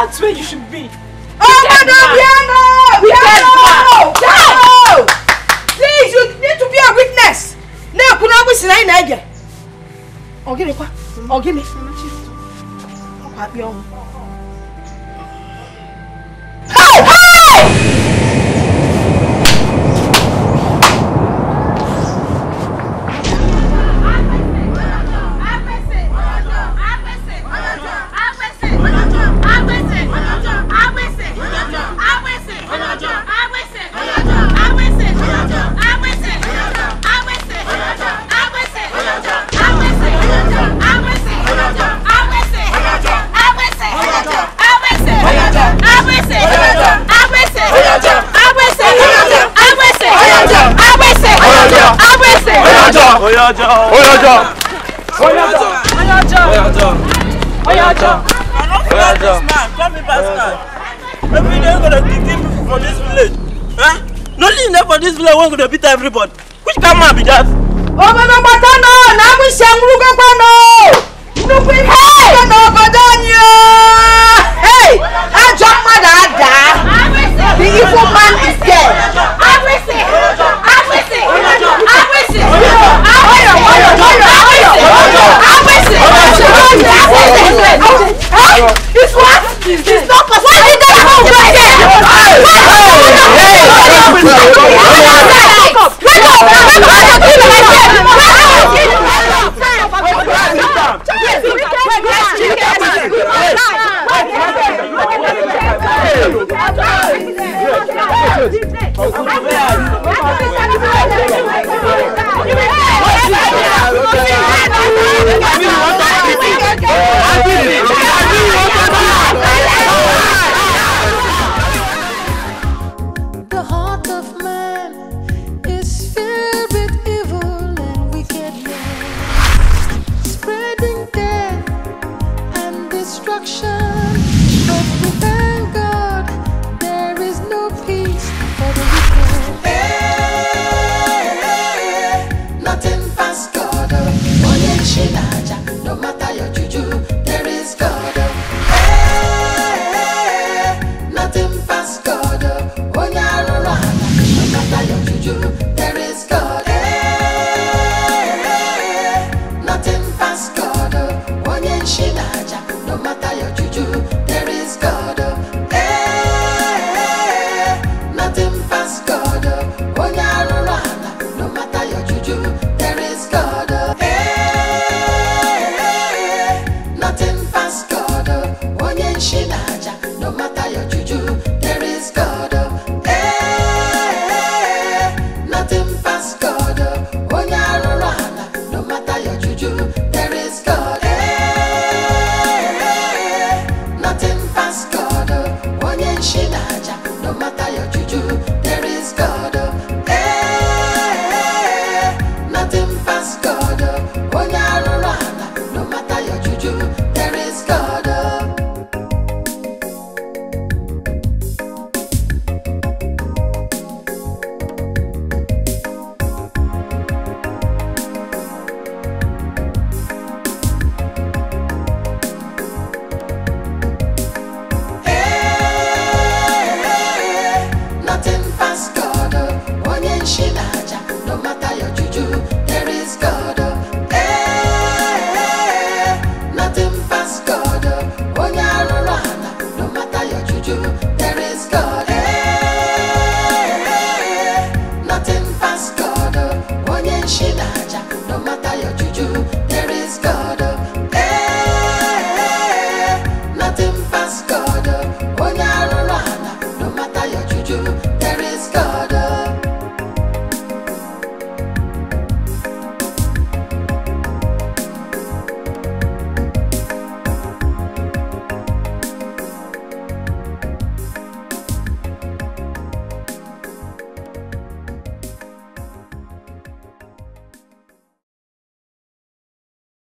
That's where you should be. Oh, Madam Biano! Biano! Biano! Please, you need to be a witness. Now, kuna abu sinai na ege. Ogini kwa? Ogini. Ogini. Ogini. Ogini. Ogini. ọjọ́ ọjọ́ ọjọ́ ọjọ́ ọjọ́ ọjọ́ Come in basket. Every day we're gonna kick him from this village. Huh? Nothing there for this village, we're gonna beat everybody. Which camera be that? Obodo Gbatono, na mu se nru gbono. Nuku ihe gbono gbodo ni o. Hey, ajo mmadụ ada. The evil man this what? It's not possible. What did that happen? What did that happen?